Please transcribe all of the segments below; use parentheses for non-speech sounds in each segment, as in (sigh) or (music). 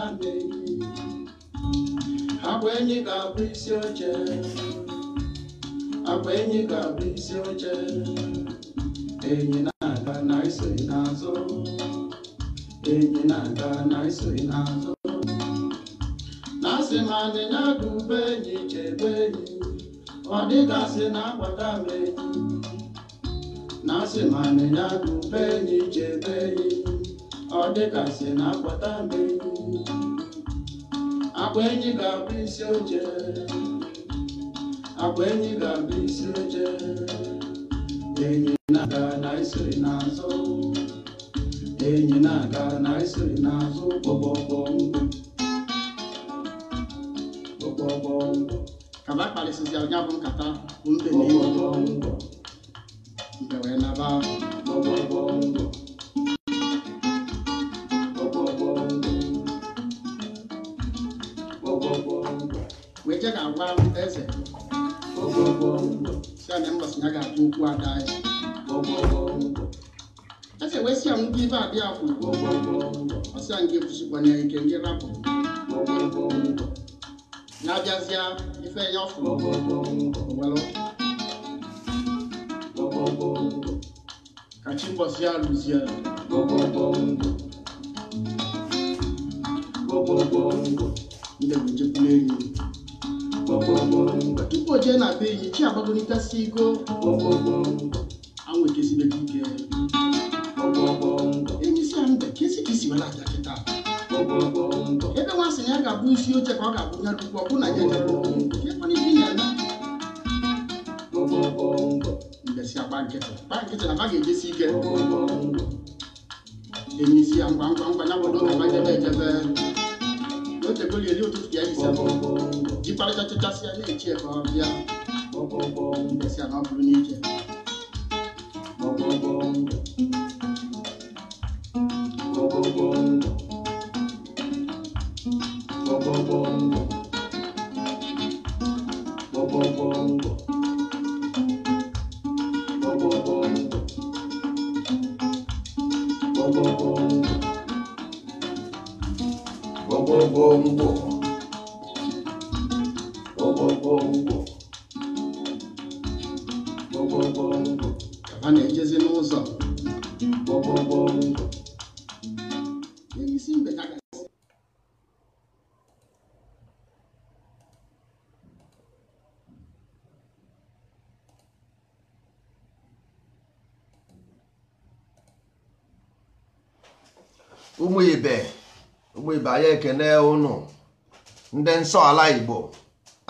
na mmebi agwa enyi ga-abụ isi oche agwa enyi ga-abụ isi oche enyi na-aga na isoghị n'azụ enyi na-aga na isoghị n'azụ na asị m adịnya ga ube enyi chebe enyi ọ dịgasị na akwata m enyi na asị m adịnya ga ube enyi chebe enyi ọ dịgasị na akpọta mmiri agba enyi ga-abụ isi oche agba enyi ga-abụ isi oche enyi na-aga na isiri n'azụ enyi na-aga na isiri n'azụ kpọbọbọmbụ kpọbọbọmbụ kaba kparịsịzi onye bụ nkata bụ mbe na ihe mbe ọgbọ naba ọgbọ. eje ga-agwa eze si na mbọsị ya ga atụ okwu ada anyị eze wee si ya m gị ibe abịa kwụ ọsịa nke kwụsịkwanye ike ndị rapụ na-abịazịa ife ya ọfụ owelu ka chi mbọsị ya rụzie ndị bụ nchekwula enyi tupu o jee na be enyi chi agbagolitasi ego mbe ka isi aja kịta ebe nwa sị na ya ga-abụ isi oche ka ọ ga-abụ ya dukwu ọ bụ na ya ibi na ba ejesi ike ngwa ngwa ngwa ya jebe ejebe otego ya ele ụtụtụ ya ise jikparịtachachasị ya na-echi ebe ọ bịa si na ọ bụrụ n'ike Bongo, bongo. ụmụ ibe anyị ekene ụnụ ndị nsọ ala igbo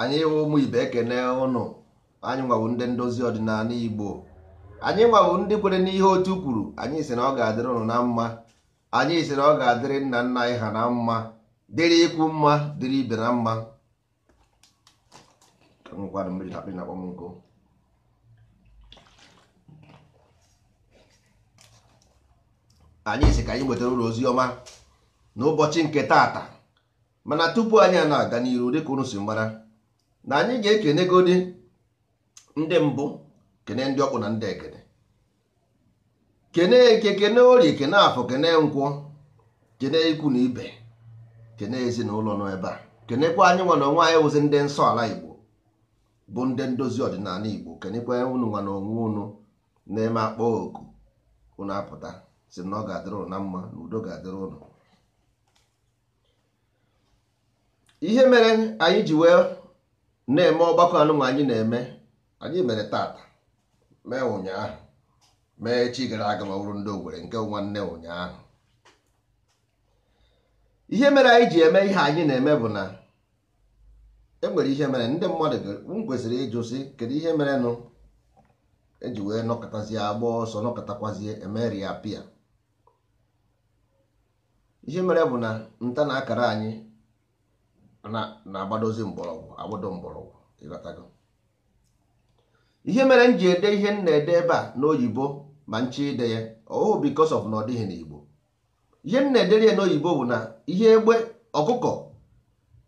anyị wụ ụmụ ibe ekene ụnụ anyị nwabụ ndị ndozi ọdịnala igbo anyị nwabụ ndị kwere n'ihe otu kwuru anyị si na ọ ga-adịrị ụnụ na mma anyị si na ọ ga-adịrị nna nna anyị ha na mma dịrị ikwu mma dịrị ibe na mma anyị si ka anyị nwetara ụlọ ozi ọma n'ụbọchị nke taata mana tupu anyị na-aga n'iru dịka unu si mara na anyị ga-ekenegodi ndị mbụ kene ndị ọkpụ na ndị ekene kene eke kene orie kene afọ kene nkwụ kene ikwu na ibe kene ezinụlọ nọ ebe a kenekwa anyị nwana onwe anyị wụzi ndị nsọ ala igbo bụ ndị ndozi ọdịnala igbo kenekwa unu nwana onwe unu na-eme akpọ oku unu apụta si na ọ ga-adịrị ụlọ na mma na udo ga-adịrị ụlọ ihe mere anyị ji wee na-eme ọgbakọ anụnwa anyị na-eme anyị mere tata mee ụnyaahụ mee echi gara aga ma bụrụ ndị Owerri nke nwanne ụnyaahụ ihe mere anyị ji eme ihe anyị na-eme bụ na enwere ihe mere ndị mmadụ m kwesịrị ịjụ sị kedu ihe mere nụ eji wee nọkọtazie agba ọsọ nọkọtakwazie e ria pia ihe mere bụ na nta na akara anyị na-agbadozi mgbọrọgwụ agbodo mgbọrọgwụ ịghọtago ihe mere m ji ede ihe m na-ede ebe a n'oyibo ma nche ide ya ọhụụ because of na ọ dịghị n'igbo ihe m na-edere ya n'oyibo bụ na ihe egbe ọkụkọ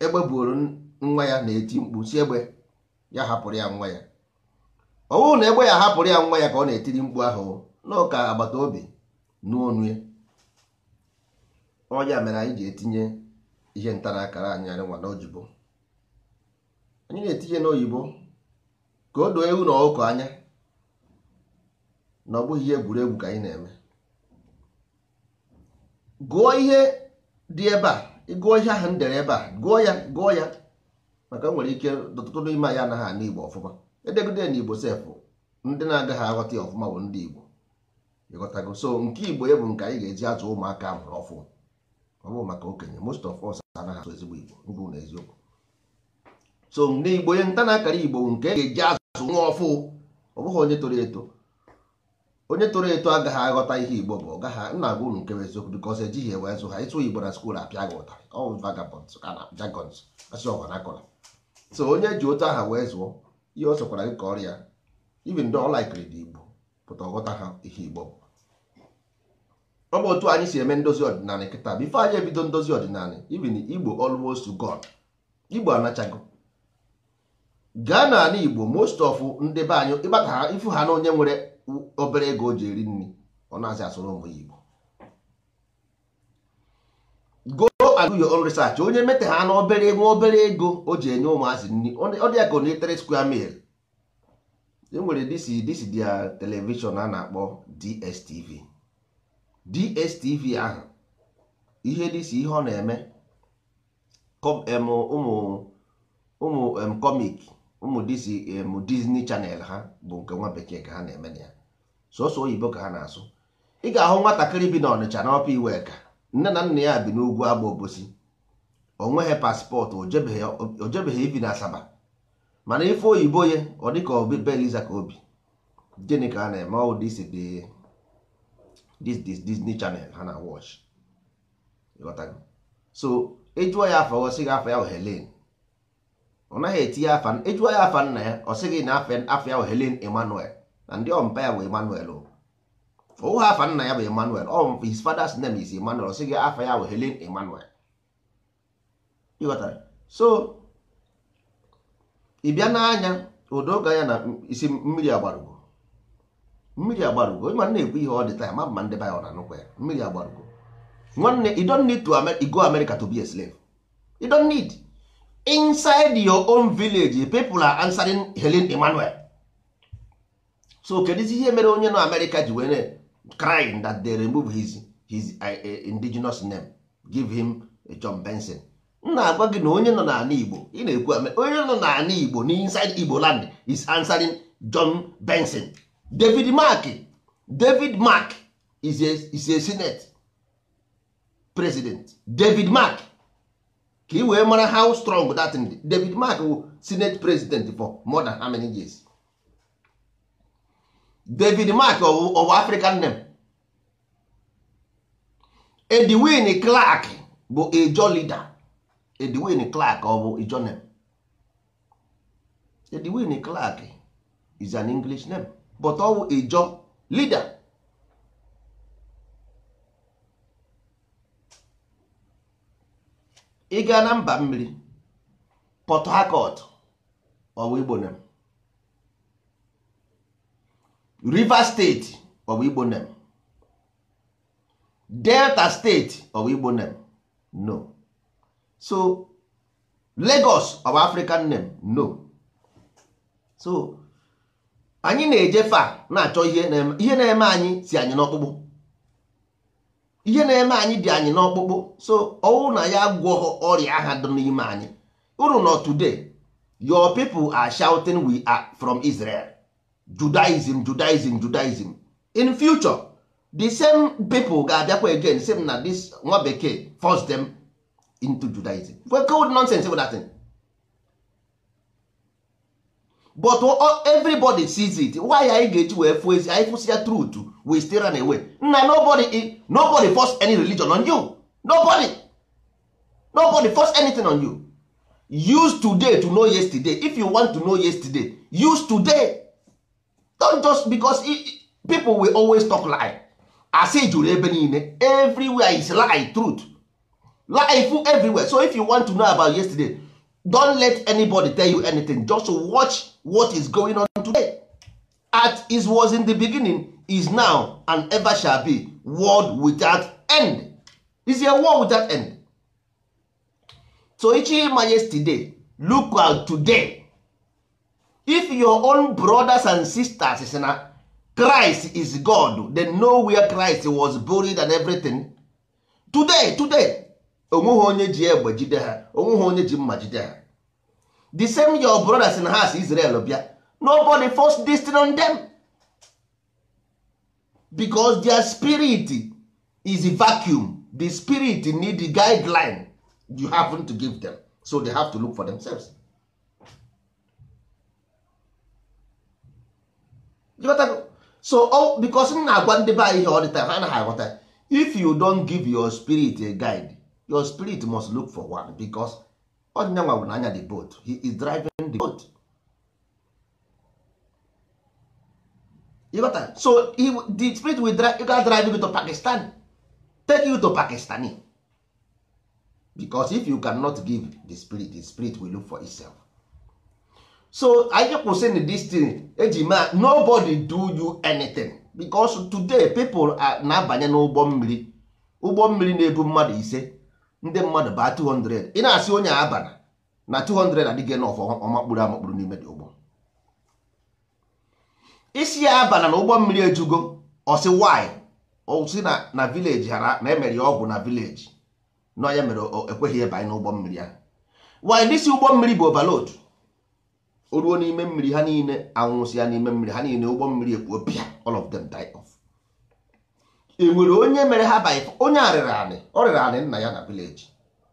egbe buoro nwa ya na-eti mkpu si egbe ya hapụrụ ya nwa ya ọwụụ na egbe ya hapụrụ ya nwa ya ka ọ na-etiri mkpu ahụ n'ụka agbata obi n'onu ya mere anyị ji etinye ihe ntara akara anyị anyị nwa n'oyibo anyị na-etinye n'oyibo ka o doo ewu na ọkụkọ anya na ọ bụghị ihe egwuregwu ka anyị na-eme gụọ ihe dị ebe a ịgụọ ihe ahụ m dere ebe a gụọ ya gụọ ya maka nwere ike ọtụtụ n'ime anyị anaghị ana igbo ọfụma edegide na igbo sefụ ndị na-agaghị aghọta ya ọfụma bụ ndị igbo ịghọtago so nke igbo ya bụ nke anyị ga-eji azụ ụmụaka a mụrụ ọfụma ọ bụrụ maka okenye most of us anaghị asụ ezigbo igbo mbụ na eziokwu so na igbo onye nta na-akara igbo nke ga-eji azụ nwa ọfụ ọ bụghị onye toro eto onye toro eto agaghị aghọta ihe igbo bụ ọgaghị nna agwa unu nke eziokwu because ejighị ewe zụ ha ịtụ igbo na skuul apịa gị ụta ọ vagabonds ka jagons asị ọgwa na akọrọ so onye ji otu aha wee zụọ ihe ọ sọkwara gị ka ọrịa even though ọ dị igbo pụta ọghọta ha ihe igbo bụ ọ bụ otu anyị si eme ndozi ọdịnala kịta bifo anyị ebido ndozi ọdịnala ibin igbo olmost to God igbo anachago gaa ala igbo most of ndị be anyị ịgbata ifu ha na onye nwere obere ego o ji eri nri ọ na-azị asụrụ ụmụ ya igbo go and do research onye mete ha na obere ego obere ego o ji enye ụmụazị nri ọ dị ya ka onyetare square mil e nwere disi disi dia telivishọn a na-akpọ DSTV DSTV ahụ ihe dịsi ihe ọ na-eme ụmụ ụmụ comic ụmụ Disney chanel ha bụ nke nwa bekee ka ha na-eme na ya sọsọ oyibo ka ha na-asụ ị ga-ahụ nwatakịrị bi na na n'ọpa iwe ka nne na nna ya bi n'ugwu agba obosi o nweghị paspọtụ ojebeghị ibi na Asaba mana ife oyibo ye ọ dịka obi beliza ka obi gịnị ka a na-eme ọwụ dịsi dị this Disney Channel ha na watch so ejụọ ya afa ọsị gị afa ya Helen ọ naghị etinye afa ejụọ ya afa nna ya ọ na afa ya Helen Emmanuel na ndị ọmpa ya bụ Emmanuel ụha afa nna ya bụ Emmanuel ọ his father's name is Emmanuel ọ sị afa ya bụ Helen Emmanuel ịghọtara so ị bịa n'anya udo ga ya na isi mmiri agbarugo mmiri agbarugo onye ma na-ekwu ihe ọ dị taa ma mma ndị baya ọ na-anụkwa ya mmiri agbarugo nwanne you don't need to go America to be a slave you don't need inside your own village people are answering Helen Emmanuel so kedizi ihe mere onye nọ America ji were crying that they remove his his uh, uh, indigenous name give him a uh, John Benson nna na-agwa gị na onye nọ n'ala Igbo ị na-ekwu onye nọ n'ala Igbo na inside Igbo land is answering John Benson david mark david mark is a, is a senate president david mark ka ị wee mara how strong that thing david mark wụ senate president for more than how many years david mark of african name edwin clark bụ ejo leader edwin clark ọ bụ ejo name edwin clark is an english name but ọwụ ịjọ leader ị gaa na mba mmiri Port Harcourt ọwụ Igbo name Rivers steeti ọwụ Igbo Delta state ọwụ Igbo no so Lagos ọwụ African name no so anyị na eje fa na-achọ ihe na-eme anyị si anyị n'ọkpụkpụ ihe na-eme anyị dị anyị n'ọkpụkpụ so ọnwụ na ya gwọghọ ọrịa aha dị n'ime anyị uru nọ today your people are shouting we are from Israel Judaism Judaism Judaism in future the same people ga-abịakwa again same na this nwa bekee force them into Judaism. What cold nonsense bụ but everybody sees it why anyị ga-eji wee fụ ezi anyị fụsi ya truth we still run away nna nobody nobody force any religion on you nobody nobody force anything on you use today to know yesterday if you want to know yesterday use today don't just because people will always talk lie as i jụrụ ebe niile everywhere is lie truth life everywhere so if you want to know about yesterday don't let anybody tell you anything just watch what is going on today at it was in the beginning is now and ever shall be world without end is a world without end so ichima yesterday look out today if your own brothers and sisters is na Christ is God they know where Christ was buried and everything today today onweghị onye ji egbe jide ha onweghị onye ji mma jide ha the same your brothers in house Israel obia nobody force destiny on them because their spirit is a vacuum the spirit need the guideline you happen to give them so they have to look for themselves so oh, because m na-agwa ndị be anyị ihe all the time ha anaghị aghọta if you don give your spirit a guide your spirit must look for one because ọdịnyanwa bụ n'anya the boat he is driving the boat you got that? so he, the spirit will drive you got drive you to Pakistan take you to Pakistani because if you cannot give the spirit the spirit will look for itself so anyị say this thing eji ma nobody do you anything because today people na-abanye n'ụgbọ mmiri ụgbọ mmiri na-ebu mmadụ ise ndị mmadụ baa 200 ị na-asị onye abana na 200 adịghị nọf ọmakpụrụ amakpụrụ n'ime dị ụgbọ isi ya abana na ụgbọ mmiri ejugo ọsị wanyị osi na vileji hara na emere ya ọgwụ na vileji na mere ekweghị ịbanye n'ụgbọ mmiri ahụ wanyị dịsi ụgbọ mmiri bụ overload o ruo n'ime mmiri ha niile anwụsị ya n'ime mmiri ha niile ụgbọ mmiri ekpuo pịa all of them die off enwere onye mere ha by onye a rịrị anị ọ rịrị anị nna ya na village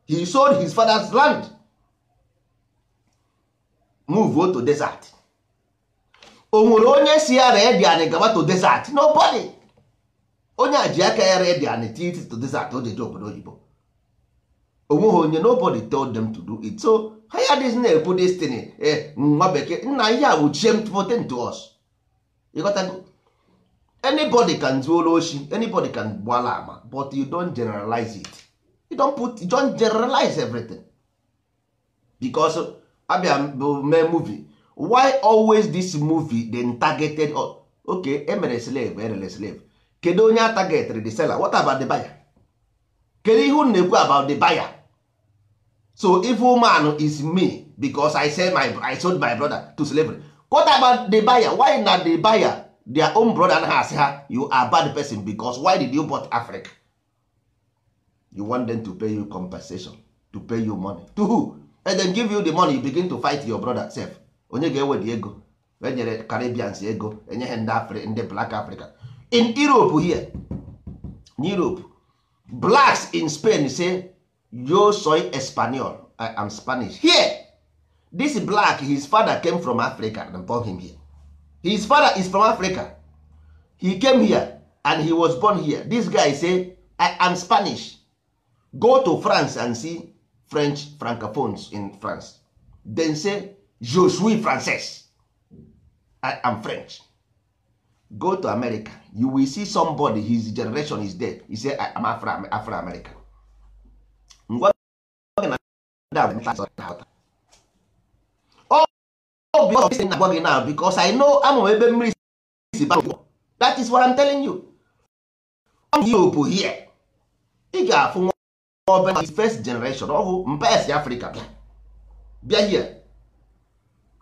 he sold his father's land move to desert o nwere onye si ya ree dị anị gaba to desert nobody onye a ji aka ya ree dị anị titi to desert o jeje obodo oyibo onweghị onye nobody told them to do it so ha ya dịz na-ebu destiny eh, nwa bekee nna ihe a bụ chem to us ịghọtago anybody can do oshi anybody can gbala ama but you don't generalize it you don't put you don't generalize everything because abia bụ mee movie why always this movie dey targeted oh, okay emere slave erere slave kedu onye target the seller what about the buyer kedu ihe unu na-ekwu about the buyer so if woman is me because I sell my I sold my brother to slavery what about the buyer why na the buyer their own brother and ha asị ha you are bad person because why did you bought Africa you want them to pay you compensation to pay you money to who and then give you the money you begin to fight your brother sef onye ga-ewedi ego enyere Caribbeans ego enye ha ndị ndị black Africa in Europe here in Europe blacks in Spain say yo soy espanol I am Spanish here this black his father came from Africa and born him here his father is from africa he came here and he was born here this guy say i am spanish go to france and see french francophones in france then say je suis i am french go to america you will see somebody his generation is dead he say i am afro american obi ọbụla na agwa gị na because I know ama ebe mmiri si ba that is what I'm telling you Europe here ị ga-afụ nwa ọbụla na first generation ọ bụ mba esi Afrịka bịa bịa here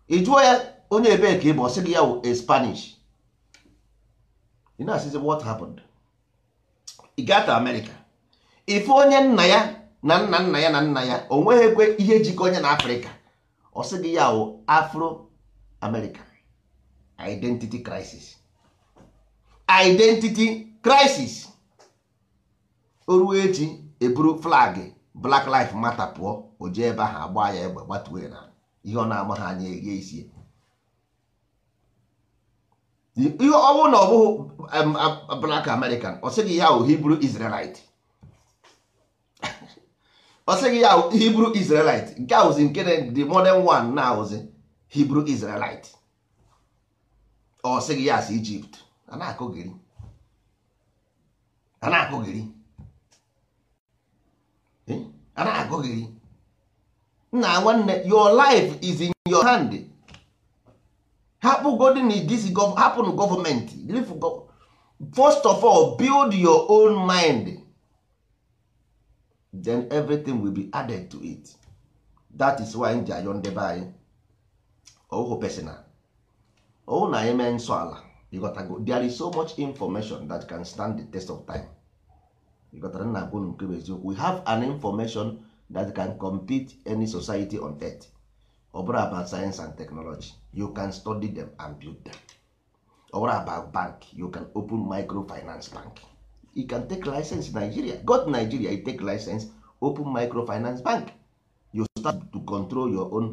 ị jụọ ya onye ebe ka ị bụ ọsị gị ya wụ Spanish ị na-asịzi what happened ị gaa gata America ife onye nna ya na nna nna ya na nna ya o nweghị ekwe ihe jikọ onye na Afrịka ọ sị gị ya wụ afro America identity crisis identity crisis o ji echi eburu flag black life matter pụọ o jee ebe ahụ agba ya egbe gbatuo na ihe ọ na-ama ha anya eghe isi ihe ọ bụrụ na ọ bụghị black american ọ sịghị ya ahụ Hebrew Israelite (laughs) ọ ya ahụ Hebrew Israelite nke ahụzi nke dị modern one na ahụzi Hebrew Israelite ọ sịghị ya asị Egypt a na-akụghịrị eh? nna nwanne your life is in your hand hapụ godin first of all build your own mind then everything will be added to it that is why nji ayọ anyị ọwụ Pesinna. ọwụ na anyị mee nsọ ala there is so much information that can stand the test of time ịghọtara na agwụ nke bụ eziokwu we have an information that can compete any society on earth ọ bụrụ about science and technology you can study them and build them ọ bụrụ about bank you can open microfinance bank you can take license Nigeria go to Nigeria you take license open microfinance bank you start to control your own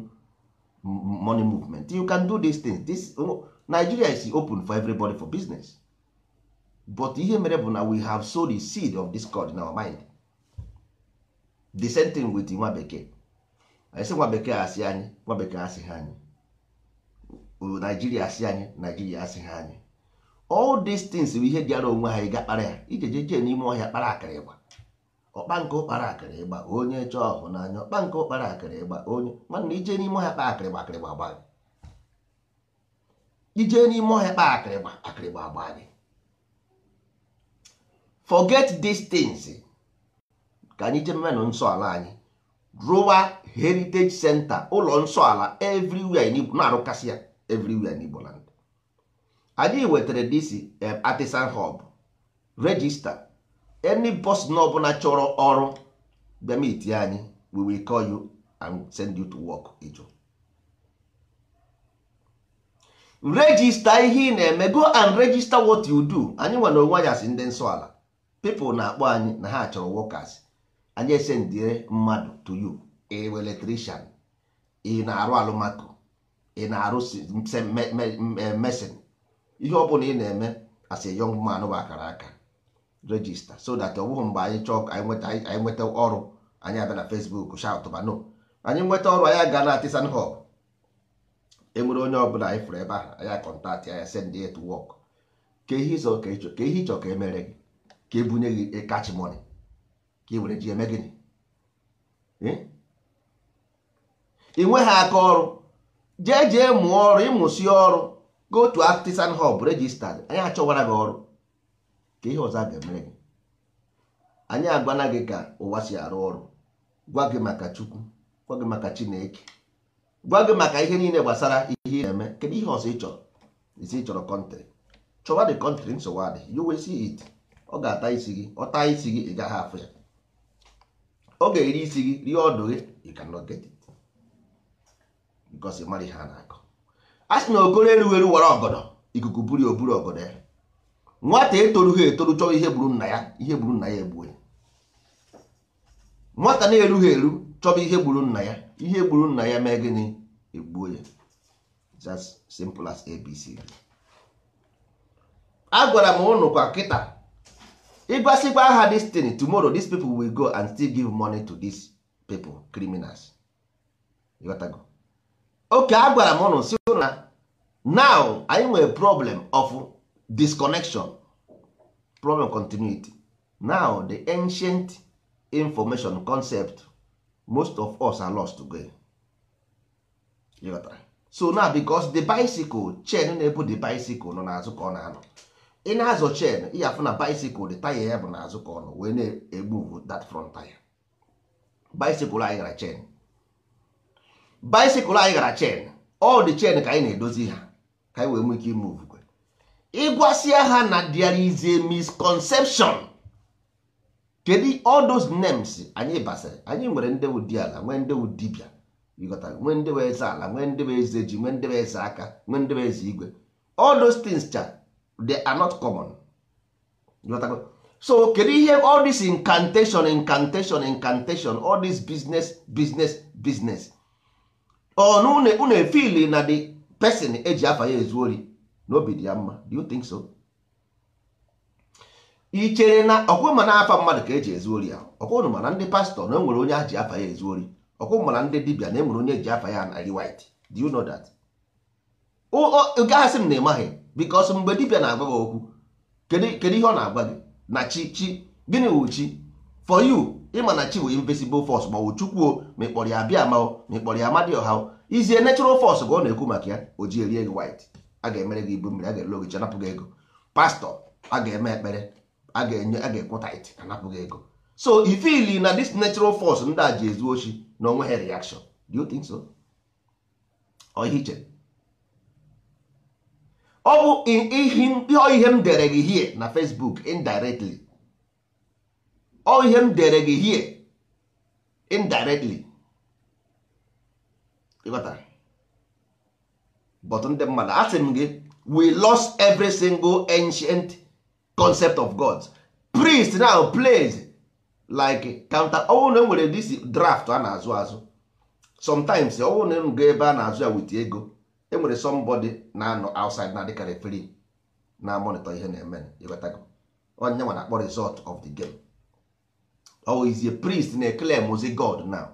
money movement you can do these things this oh, nigeria is open for everybody for business but ihe mere bụ na we have sowed the seed of discord in our mind the same thing with nwa bekee anyị nwa bekee asị anyị nwa bekee asịghị anyị nigeria asị anyị naijiria asịghị anyị all these things bụ ihe dịara onwe ha ị ga kpara ya ijejeje n'ime ọhịa kpara akara akịrịgba ọkpa nke ụkpara akịrị ịgba onye chọọ ọhụ n'anya ọkpa nke ụkpara akịrị ịgba onye mana ije n'ime ọhịa kpaa akịrịgba akịrịgba agba gị ije n'ime ọhịa kpaa akịrịgba akịrịgba agba gị forget distance ka anyị jee mmenụ nsọ ala anyị rụwa heritage center ụlọ nsọ ala everywhere n'Igbo na-arụkasị ya everywhere n'Igbo land anyị wetara dc eh, artisan hub register any person ọbụla chọrọ ọrụ bịa meet anyị we will call you and send you to work ịjụ regista ihe ị na-eme go and register what you do anyị nwere onwe anyị asị ndị nsọ ala na-akpọ anyị na ha chọrọ workers anyị esendire mmadụ to you ewe electrician ị na-arụ alụmako ị na-arụ e, mesin ihe ọbụla ị na-eme as a man bụ akara aka register so that ọ bụghị mgbe anyị chọọ anyị nweta ọrụ anyị abịa na Facebook shout no anyị nweta ọrụ anyị aga na artisan hub enwere onye ọbụla anyị fụrụ ebe ahụ anya akọntaktị anya send ya to work ka ihe ịzọ ka ịchọ ka ihe ịchọ ka emere gị ka ebunye gị kachi e money ka ị e were ji eme gịnị ị nweghị aka ọrụ jee jee mụọ ọrụ ịmụsị ọrụ go to artisan hub register anyị achọwara gị ọrụ ka ihe ọzọ a ga-emere gị anyị agwana gị ka ụwa si arụ ọrụ gwa gị maka chukwu gwa gị maka chineke gwa gị maka ihe niile gbasara ihe ị na-eme kedu ihe ọzọ ị chọrọ isi chọrọ kọntrị chọwa dị kọntrị nsogbu you will see it ọ ga-ata isi gị ọ isi gị ị gaghị afụ ya ọ ga-eri isi gị rie ọdụ gị you cannot get it because ihe a na-akọ a sị na okoro erughị wara ọgọdọ ikuku buru oburu ọgọdọ ya nwata etorughị etoru chọọ ihe gburu nna ya ihe gburu nna ya egbue nwata na-erughị eru chọba ihe gburu nna ya ihe gburu nna ya mee gịnị egbuo ya just simple as abc a gwara m ụnụ kwa kịta ịgwasikwa ha destiny tomorrow these people will go and still give money to these people criminals oke a gwara m ụnụ si na now anyị nwere problem of disconnection problem continuity now the ancient information concept most of us are lost today. so now because the bicycle chain na-ebu the bicycle nọ n'azụ ka ọ na-anọ ị na-azọ chain ị afụ na bicycle the tire ya bụ n'azụ ka ọ nọ wee na-egbu that front tire bicycle anyị gara chain bicycle anyị gara chain all the chain ka anyị na-edozi ha ka anyị wee nwee ike imove ịgwasịa ha na there is a misconception kedu all those names anyị basịrị anyị nwere ndị ụdị ala nwee ndị ụdịbịa ịghọta nwee ndị wee eze ala nwee ndị eze ji nwee ndị eze aka nwee ndị eze igwe all those things cha they are not common so kedu ihe all this incantation incantation incantation all this business business business ọ na unu na the person eji afa ya ezu ori n'obi dị ya mma do you think so ị chere na ọkwụ ma na-afa mmadụ ka eji ezu ori ya ọkwụnụ mana ndị pastọ na enwere onye a ji afa ya ezu ori ọkwụ mana ndị dibia na enwere onye eji afa ya narị white do you know that gaghasị m na ịmaghị because mgbe dibia na-agba gị okwu kedu ihe ọ na-agba gị na chi chi gịnị wụ chi for you ịma na chi wụ invisible force ma ọ chukwuo ma ịkpọrọ ya bịa ma ma ịkpọrọ ya amadioha izie natural force ka ọ na-ekwu maka ya o ji erie gị white a ga-emere gị ibu mmiri a ga-elu ogichi anapụghị ego pastọ a ga-eme ekpere a ga-enye a ga-ekweta it anapụghị ego so ifili na this natural force ndị a ji ezu ochi na onwe ha reaction do you think so ọhịa iche ọ bụ ihe m dere gị hie na Facebook indirectly ọ ihe m dere gị hie indirectly ịghọtara but ndị mmadụ asị m gị we lost every single ancient concept of god priest now plays like counter ọwụ na enwere this draft a na-azụ azụ sometimes ọwụ na ga ebe a na-azụ ya wit ego enwere somebody na-anọ outside na adịkarị free na monitor ihe na-eme onye nwa na-akpọ result of the game ọ oh, a priest na-ekele mụzi god now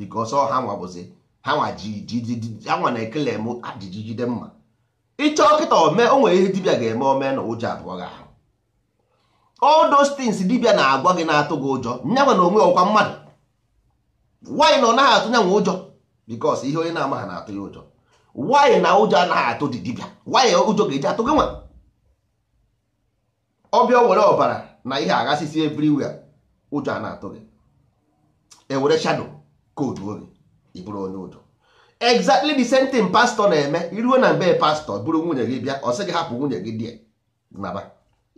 because ọ oh, ha nwabụzi ha na-ekele m ajiji mma ịchọ kịta ome o nwere ihe dibịa ga-eme ome na ụjọ abụọ gị ahụ dibịa na-agwa gị na-atụ gị ụjọ nyanwa na onwe ọkwa mmadụ nwanyị na ọ naghị atụ nyanwa ụjọ because ihe onye na-amaghị na-atụ ya ụjọ nwanyị na ụjọ anaghị atụ dị dibịa nwaanyị ụjọ ga-eji atụ gị nwa ọbịa were ọbara na ihe aghasịsị everywhere ụjọ a na-atụ gị ewere shadow koodu oge ịbụrụ onye udo exactly the same thing pastor na-eme iruo na mbe pastọ bụrụ nwunye gị bịa ọ sị gị hapụ nwunye gị di naba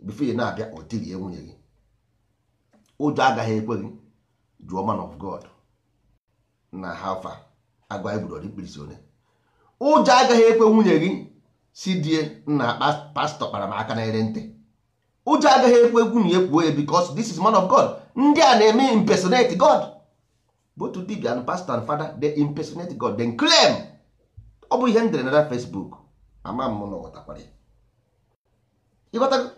bifo na-abịa ọ tirie nwunye gị ụjọ agaghị ekwe gị jụọ man of god na hafa agwa egbudori mkpirisi one ụjọ agaghị ekwe nwunye gị si die na pastọ kpara m aka na ere ntị ụjọ agaghị ekwe nwunye kwuo ya because this is man of god ndị a na-eme impersonate god both dibia and pastor and father they impersonate god then claim ọ bụ ihe m na facebook ama m na ọghọtakwara ya ịghọtara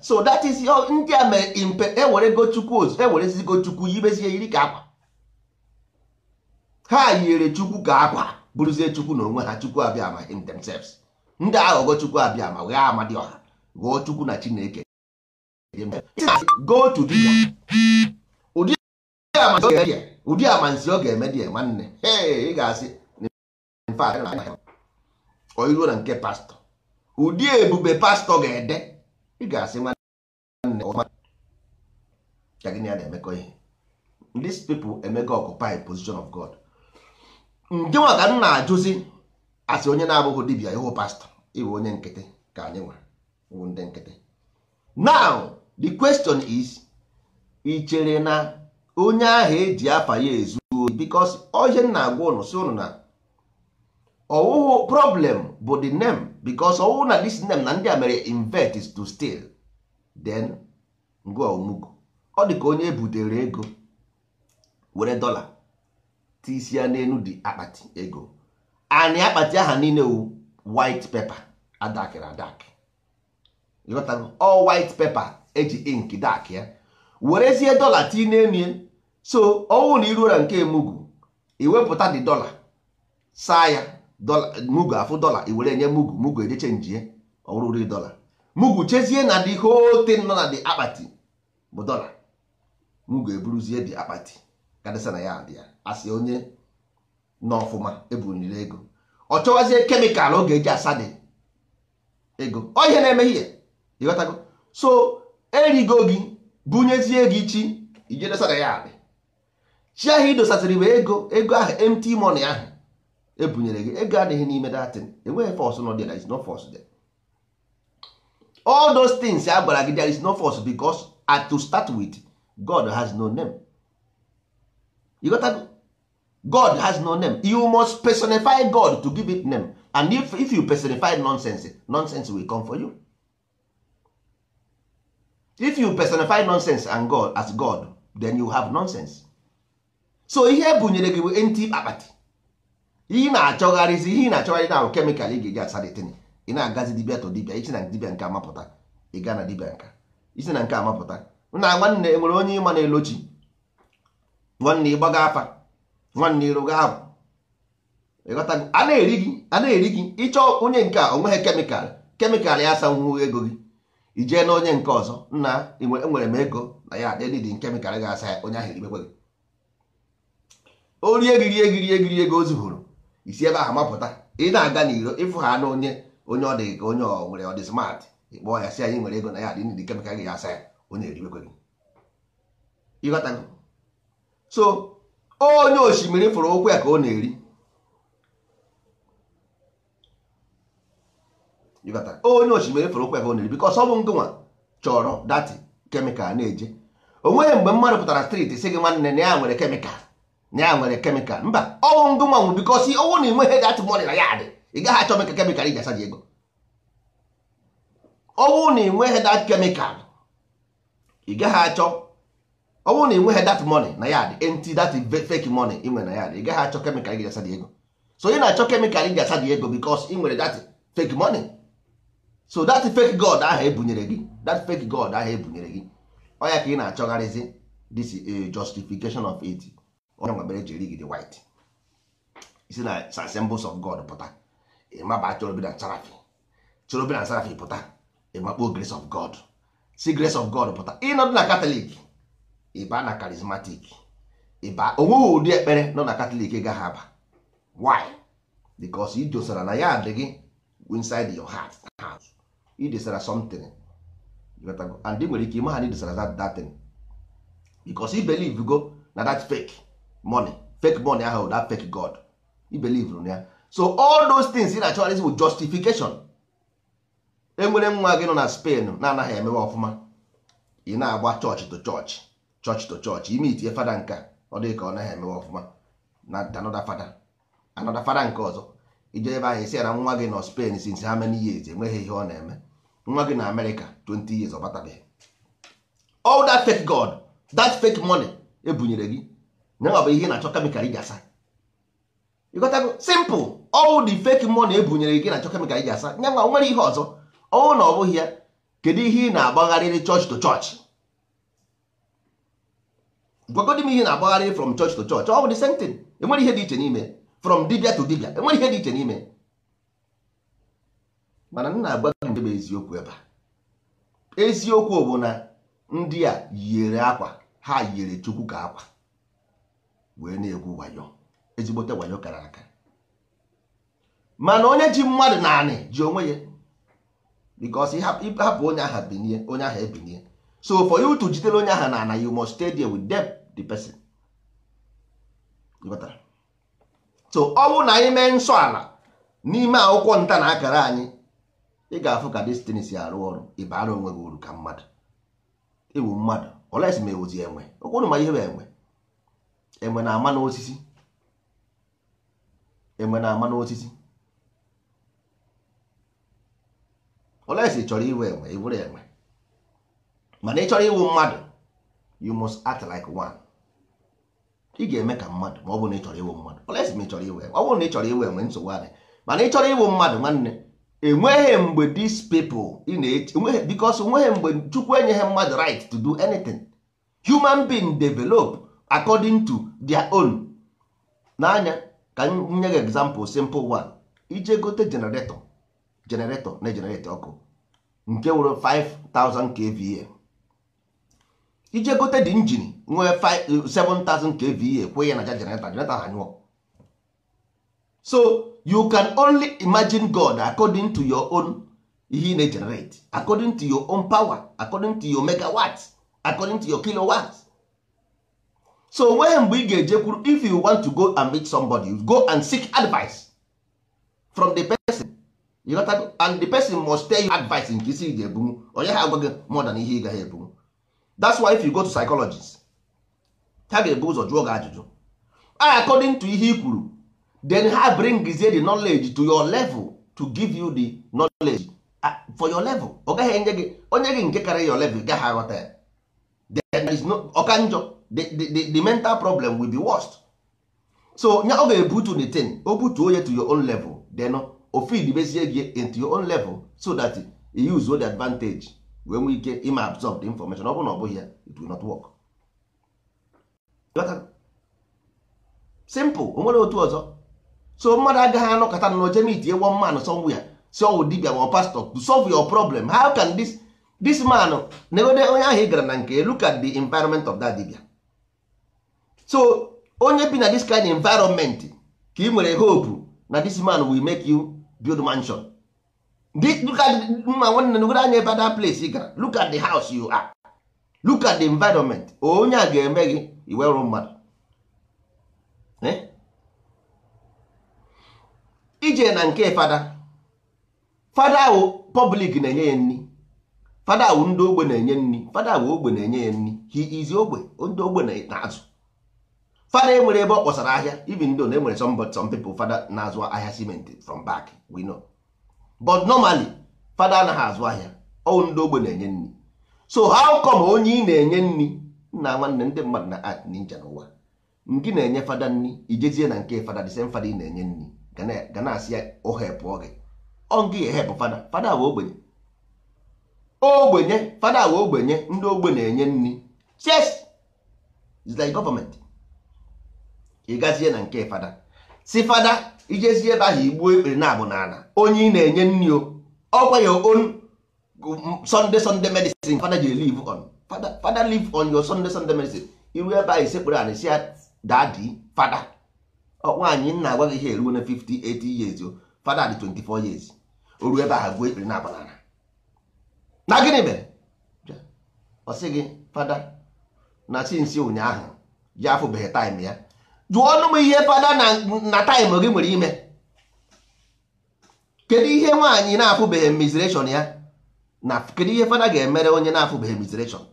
so that is ndị a mere impe ewere go chukwu ozu ewerezi go chukwu yibezie yiri ka akwa ha yiri chukwu ka akwa bụrụzie chukwu na onwe ha chukwu abịa ma in themselves ndị aghọghọ chukwu abịa ma wee amadi ọha ghọọ chukwu na chineke go to dibia ụdị amansi ọ ga-eme dị nwanne ị ga-asị iruo na nke pastọ ụdị ebube pastọ ga-ede ị ga-asị nwanne ka gịnị ya na-emekọ ihe these people emego occupy position of God ndị nwa ka m na-ajụzi asị onye na-abụghị dibia ịhụ pastọ ịbụ onye nkịtị ka anyị nwa bụ ndị nkịtị now the question is ị chere na onye ahụ eji afa ya ezu ohi because ohe na-agwa ụnụ si ụnụ na ọwụwụ problem bụ the name because ọwụwụ na this name na ndị a mere invert is to steal then ngwa omugo ọ dị ka onye e butere ego were dọla tisi ya n'elu dị akpati ego anị akpati aha niile wu white paper adakịrị adakị all white paper eji ink dak ya werezie dọla ti n'emie so ọnwụ na iruo na nke mugu iwepụta dị dọla saa ya mugu afụ dọla iwere nye mugu mugu ejeche njie ọrụri dọla mugu chezie na the whole thing nọ na the akpati bụ dọla mugu eburuzie dị akpati kadịsa na ya dị ya asị onye nọ ọfụma ebuniri ego ọ chọwazie kemịkal ọ ga-eji asa dị ego ọ ihe na eme ihe. ịghọtago so erigo gị bunyezie gị chi ije dosara ya akpị chi ahụ idosasịrị bụ ego ego ahụ empty money ahụ ebunyere gị ego adịghị n'ime datin enweghị fọs nọ there is no force there all those things a gwara gị there is no force because at to start with God has no name ịghọtago God has no name you must personify God to give it name and if, if you personify nonsense nonsense will come for you if you personify nonsense and god as god then you have nonsense so ihe bunyere gị bụ enti akpati ihe na-achọgharịzi ihe na-achọgharị na ahụ kemikal ị ga-eji asa dịtịnị ị na-agazi dibia to dibia isi na dibịa nke amapụta ị gaa na dibia nka isi na nke amapụta nna nwanne enwere onye ịma na-elochi nwanne ịgbaga afa nwanne ịrụga ahụ a na-eri gị a na-eri gị ịchọ onye nke a onweghị kemikal kemikal ya asanwuo ego gị ijee na onye nke ọzọ nna enwere m ego na ya adịdị nke mekara ga asa ya onye ahụ eribekwe gị o rie gị rie gị rie gị rie gị o zuburu isi ebe ahụ mapụta ị na-aga n'iro ịfụ ha n'onye onye ọ dị ka onye ọ nwere ọ dị smart ịkpọ ya sị anyị nwere ego na ya adịdị nke mekara gị asa ya onye eribekwe gị ịghọtago so onye osimiri fụrụ ụkwụ ya ka ọ na-eri ịbata onye osimiri fụrụ ụkwa ego nri bikos ọ bụ ngụnwa chọrọ dati kemikal na-eje onweghị mgbe mmadụ pụtara striti si gị nwanne na ya nwere kemikal na ya nwere kemikal mba ọnwụ ngụnwa nwụ bikos ọnwụ na ị nweghị dati mọnị na ya dị ị gaghị achọ meka kemikal iji asaji ego ọnwụ na ị nweghị dati kemikal ị gaghị achọ ọnwụ na ị nweghị dati money na ya dị enti dati fake money ị nwere na ya dị ị gaghị achọ kemikal ị iji asaji ego so ị na-achọ kemikal ị iji asaji ego bikos ị nwere dat fake money so that fake god ahụ ebunyere gị that fake god ahụ ebunyere gị ọ ya ka ị na-achọgharịzi this is a justification of it onye nwebere jiri gị the white isi na symbols of god pụta ịmaba chorobi na sarafi chorobi sarafi pụta ịmakpo grace of god si grace of god pụta ịnọdụ na katọlik ịba na karismatik ịba onweghị ụdị ekpere nọ na katọlik gaghị aba why because ijosara na ya adịghị inside your heart house idesara something and ị nwere ike ịma ha na idesara that that thing because i go na that fake money fake money ahụ that fake god i na ya so all those things ị na-achọgharịzi bụ justification enwere nwa gị nọ na Spain na-anaghị emewe ọfụma ị na-agba chọọchị to chọọchị chọọchị to chọọchị ime itinye fada nka ọ dịghị ka ọ naghị emewe ọfụma na anọda fada anọda fada nke ọzọ ije ebe ahụ isi ya na nwa gị nọ Spain since how many years enweghị ihe ọ na-eme nwa gị na amerịka 20 years ọbatabeghị all that fake god that fake money ebunyere gị nyanwa bụ ihe na-achọ kemikal iji asa ịgotago simple all the fake money ebunyere gị na-achọ kemikal iji asa nyanwa nwere ihe ọzọ ọnwụ na ọ bụghị ya kedu ihe ị na-agbagharịrị church to church gwagodi m ihe na-agbagharịrị from church to church ọ bụ the same thing enwere ihe dị iche n'ime from dibia to dibia enwere ihe dị iche n'ime mana nna agwa gị ndebe eziokwu ebe a eziokwu bụ na ndị a yiri akwa ha yiri chukwu ka akwa wee na-egwu wayo ezigbote wayo kara aka mana onye ji mmadụ naanị ji onwe ya because ịhapụ onye aha binie onye aha ebinie so for you to jidere onye aha na ana you must stay there with them the person so ọ bụ na anyị mee nsọ ala n'ime akwụkwọ nta na akara anyị ị ga-afụ ka destiny si arụ ọrụ ịbara onwe gị uru ka mmadụ ịwụ mmadụ olesi ma ewuzi enwe ụkwụrụ ma ihe bụ enwe enwe na-ama n'osisi enwe na-ama n'osisi olesi chọrọ iwu enwe ịbụrụ enwe mana ị chọrọ iwu mmadụ you must act like one ị ga-eme ka mmadụ ma ọ bụrụ na ị chọrọ iwu mmadụ olesi ma ị chọrọ enwe ọ bụrụ na ị chọrọ iwe enwe nsogbu adị mana ị chọrọ iwu mmadụ nwanne enweghị mgbe these people ị na-eche because nweghị mgbe chukwu enyeghị mmadụ right to do anything human being develop according to their own n'anya ka m nye gị example simple one ije gote generator generator na generator ọkụ nke were 5000 kva ije gote di injin nwee 7000 kva kwụ ya na ja generator generator ha nyụọ so you can only imagine god according to your own ihe na generate according to your own power according to your megawatts according to your kilowatts so when mgbe ị ga-ejekwuru if you want to go and meet somebody go and seek advice from the person you got to, and the person must tell you advice nke isi ga ebunwu onye ha agwa more than ihe ị gaghị ebunwu that's why if you go to psychologist ha ga-ebu ụzọ jụọ gị ajụjụ according to ihe i kwuru then ha bring the knowledge to your level to give you the knowledge ah, for your level ọ gaghị enye gị onye gị nke kara your level gaghị aghọta ya there is no ọka njọ the, the, the mental problem will be worst so nya ọ ga-ebutu the thing o butuo ya to your own level then o feed bezie gị into your own level so that you use the advantage wee nwee ike ịma absorb the information ọ bụ na ọ bụghị ya it will not work simple o nwere otu ọzọ so mmadụ agaghị anọkọta na oje mitie one man somewhere si ọwụ dibia ma pastọ to solve your problem how can this this man negode onye ahụ ị gara na nke look at the environment of that dibia so onye bi na this kind environment ka ị nwere hope na this man will make you build mansion look at mma nwanne negode anya ebe that place ị gara look at the house you are look at the environment onye a ga-eme gị iwerụ mmadụ eh? ije na nke fada fada ahụ public na-enye ya nri fada ahụ ndị ogbe na-enye nri fada ahụ ogbe na-enye ya nri he is ogbe ndị ogbe na-azụ fada enwere ebe ọ kpọsara ahịa even though na enwere some, some people fada na-azụ ahịa ciment from back we know but normally fada anaghị azụ ahịa ọwụ ndị ogbe na-enye nri so how come onye ị na-enye nri nna nwanne ndị mmadụ na art ninja n'ụwa ngị na-enye fada nri ijezie na nke fada the fada ị na-enye nri ga na-asị ya ohepụọ gị ọngị ehepụ fada fada bụ ogbenye ogbenye fada bụ ogbenye ndị ogbe na-enye nri yes it's like government na nke fada si fada ijezie ebe ahụ igbuo ekpere na-abụ n'ala onye ị na-enye nri o ọgwa ya on sunday sunday medicine fada ji live on fada live on yo sunday sunday medicine iru ebe ahụ isekpere ala si ya dadi fada nwaanyị nna agwa gị ihe eruo na 58 years o fada dị 24 years o ruo ebe ahụ gbuo ekpere na-abanara na gịnị mere ọ sị gị fada na sinsi ụnyaahụ ya afụbeghị taịm ya jụọ ọnụ m ihe fada na taịm gị nwere ime kedu ihe nwaanyị na-afụbeghị mizreshọn ya na kedu ihe fada ga-emere onye na-afụbeghị mizreshọn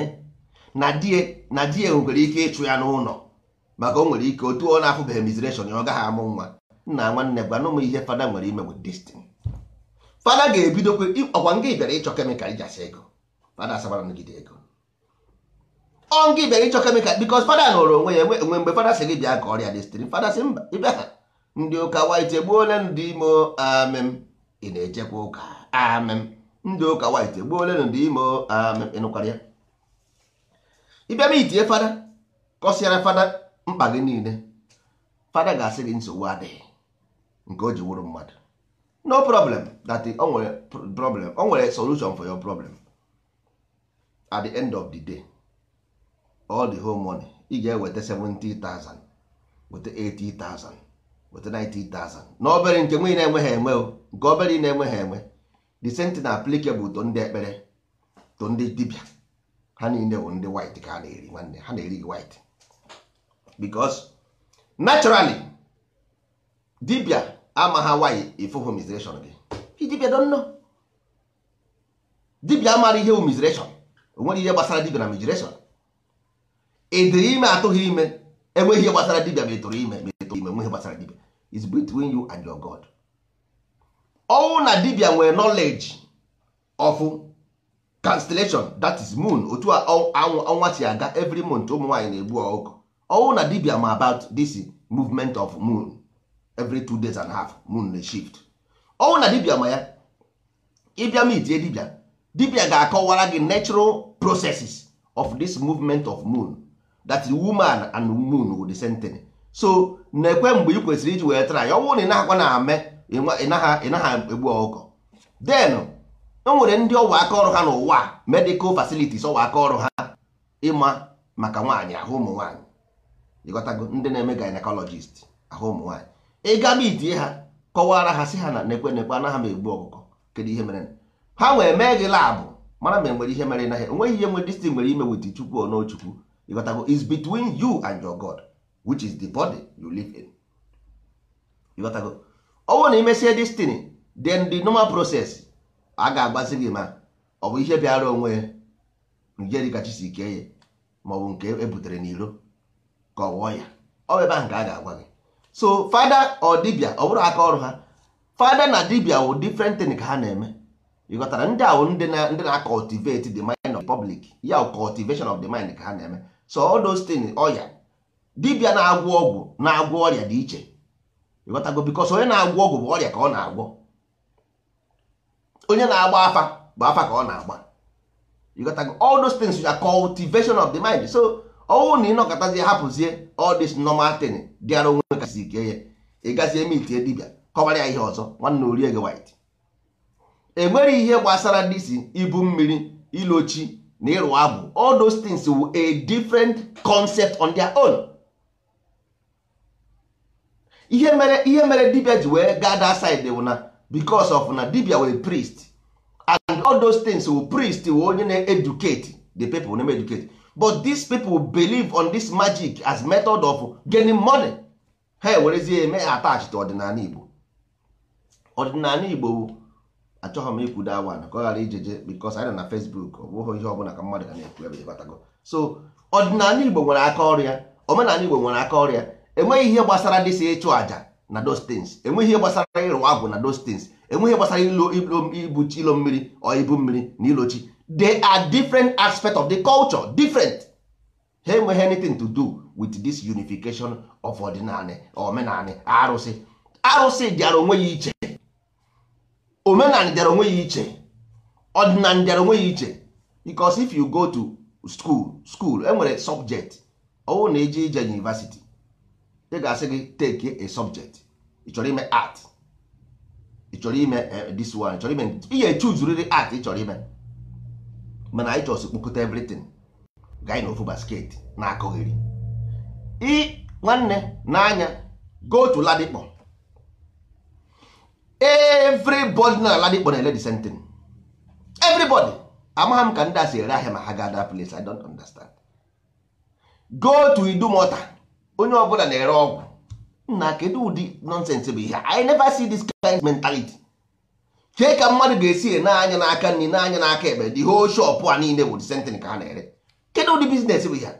eh? na di na di nwere ike ịchụ ya n'ụlọ maka o nwere ike otu ọ na-afụbeghị mizration ya ọ gaghị amụ nwa nna nwanne gwana ụmụ ihe fada nwere ime with destiny fada ga-ebidokwe ọkwa nga bịara ịchọ kemịkal ijasi ego fada asabara nụgide ego ọ nga bịara ịchọ kemịkal bikos fada nụrụ onwe ya enwe mgbe fada sị gị bịa ka ọrịa destiny fada sị mba ịbịa ha ndị ụka wit egbuole ndị imo amem ị na-ejekwa ụka amem ndị ụka wit egbuole ndị imo amem ịnụkwara ya ịbịa ma itinye fada kọsiara fada mkpa gị niile fada ga-asị gị nsogbu adịghị nke o ji wụrụ mmadụ no problem that o nwere problem o nwere solution for your problem at the end of the day all the whole money ị ga-eweta 70,000 weta 80,000 weta 90,000 na obere nke nwee na-enweghị enwe o nke obere ị na-enweghị enwe the same thing applicable to ndị ekpere to ndị dibia. ha niile bụ ndị white ka ha na-eri nwanne ha na-eri gị white because naturally dibia amagha why ifu homizration gị dibia don't know dibia amara ihe homizration onwere ihe gbasara dibia na migration ịdịrị ime atụghị ime enweghị ihe gbasara dibia ma etoro ime ma etoro ime nweghị gbasara dibia is between you and your god ọnwụ na dibia nwere knowledge of constellation that is moon otu anwụ ọnwa si aga every month ụmụ nwaanyị na-egbu ọgụ ọwụ na dibia ma about this movement of moon every two days and a half moon na shift ọwụ na dibia ma ya ịbịa ma die dibia dibia ga-akọwara gị natural processes of this movement of moon that woman and moon wụ the same so na-ekwe mgbe ị kwesịrị iji wee ya ọnwụ na ịnagha na ame ịnaghị egbu ọkụkọ then e nwere ndị ọwa aka ọrụ ha n'ụwa medical facilities ọwa aka ọrụ ha ịma maka nwaanyị ahụ ụmụ nwaanyị ịghọtago ndị na-eme gynecologist ahụ ụmụ nwaanyị ịga mitie ha kọwara ha si ha na nekwe nekwe anaghị m egbu ọkụkọ kedu ihe mere ha wee mee gị laabụ mara ma enwere ihe mere naghị onweghị ihe nwere distin nwere ime wit chukwu ọnọchukwu ịghọtago is between you and your god which is the body you live in ịghọtago ọnwụ na imesie destin then the normal process a ga-agbazi gị ma ọ bụ ihe bịara onwe njeri kachasị ike ya ma ọ nke ebutere n'iro ka ọ wụọ ya ọ ebe ahụ ka a ga-agwa gị so fada ọ dibịa ọ bụrụ aka ọrụ ha fada na dibia wụ different thing ka ha na-eme ịghọtara ndị awụ ndị na-cultivate the mind of public ya wụ cultivation of the mind ka ha na-eme so all those things ọya dibịa na agwụ ọgwụ na-agwọ ọrịa dị iche ịghọtago because onye na-agwọ ọgwụ bụ ọrịa ka ọ na-agwọ onye na-agba afa bụ afa ka ọ na-agba ịghọtago all those things are cultivation of the mind so ọnwụ na ịnọkọtazie hapụzie all this normal thing dịara onwe kasị ike ya ị gazie mitie dibia kọbara ya ihe ọzọ nwanne orie gị white enweghị ihe gbasara disi ibu mmiri ilochi na ịrụ abụ all those things were a different concept on their own ihe mere ihe mere dibia ji wee gaa that side bụ na because of na dibia were priest and all those things were priest were onye na-educate the people na-eme but these people believe on this magic as method of getting money ha ewerezie eme attach to ọdịnala Igbo ọdịnala Igbo achọghị m ikwu da wan ka ọ ghara ijeje bikos anyị nọ na Facebook ọ bụghị ihe ọbụla ka mmadụ ga na-ekwu ebe ịbatago so ọdịnala Igbo nwere aka ọrịa omenala Igbo nwere aka ọrịa enweghị ihe gbasara si ịchụ àjà na those things enweghị ihe gbasara ịrụ agwụ na those things enweghị gbasara ilo chi ilo mmiri ọ ibu mmiri na ilochi they are different aspects of the culture different ha enweghị anything to do with this unification of ọdịnala omenala arụsị arụsị dịara onwe ya iche omenala dịara onwe ya iche ọdịnala dịara onwe ya iche because if you go to school school enwere subject ọwụ na eje ije university ị ga-asị gị take a subject ị chọrọ ime art ị chọrọ ime eh, this one ị chọrọ ime ị ga art ị chọrọ ime mana anyị chọsị kpokọta everything gaa n'ofu ofu basket na-akọgheri i nwanne n'anya go to ladikpọ everybody na ladikpọ na-ele the same thing everybody amagha m ka ndị a si ere ahịa ma ha gaa ada place i don't understand go to idumota onye ọbụla na-ere ọgwụ nna kedu ụdị nonsense bụ ihe i never see this kind mentality kee ka mmadụ ga-esi e na-anya n'aka nri na-anya n'aka ekpe the whole shop a niile bụ disentịn ka ha na-ere kedụ ụdị biznes bụ ya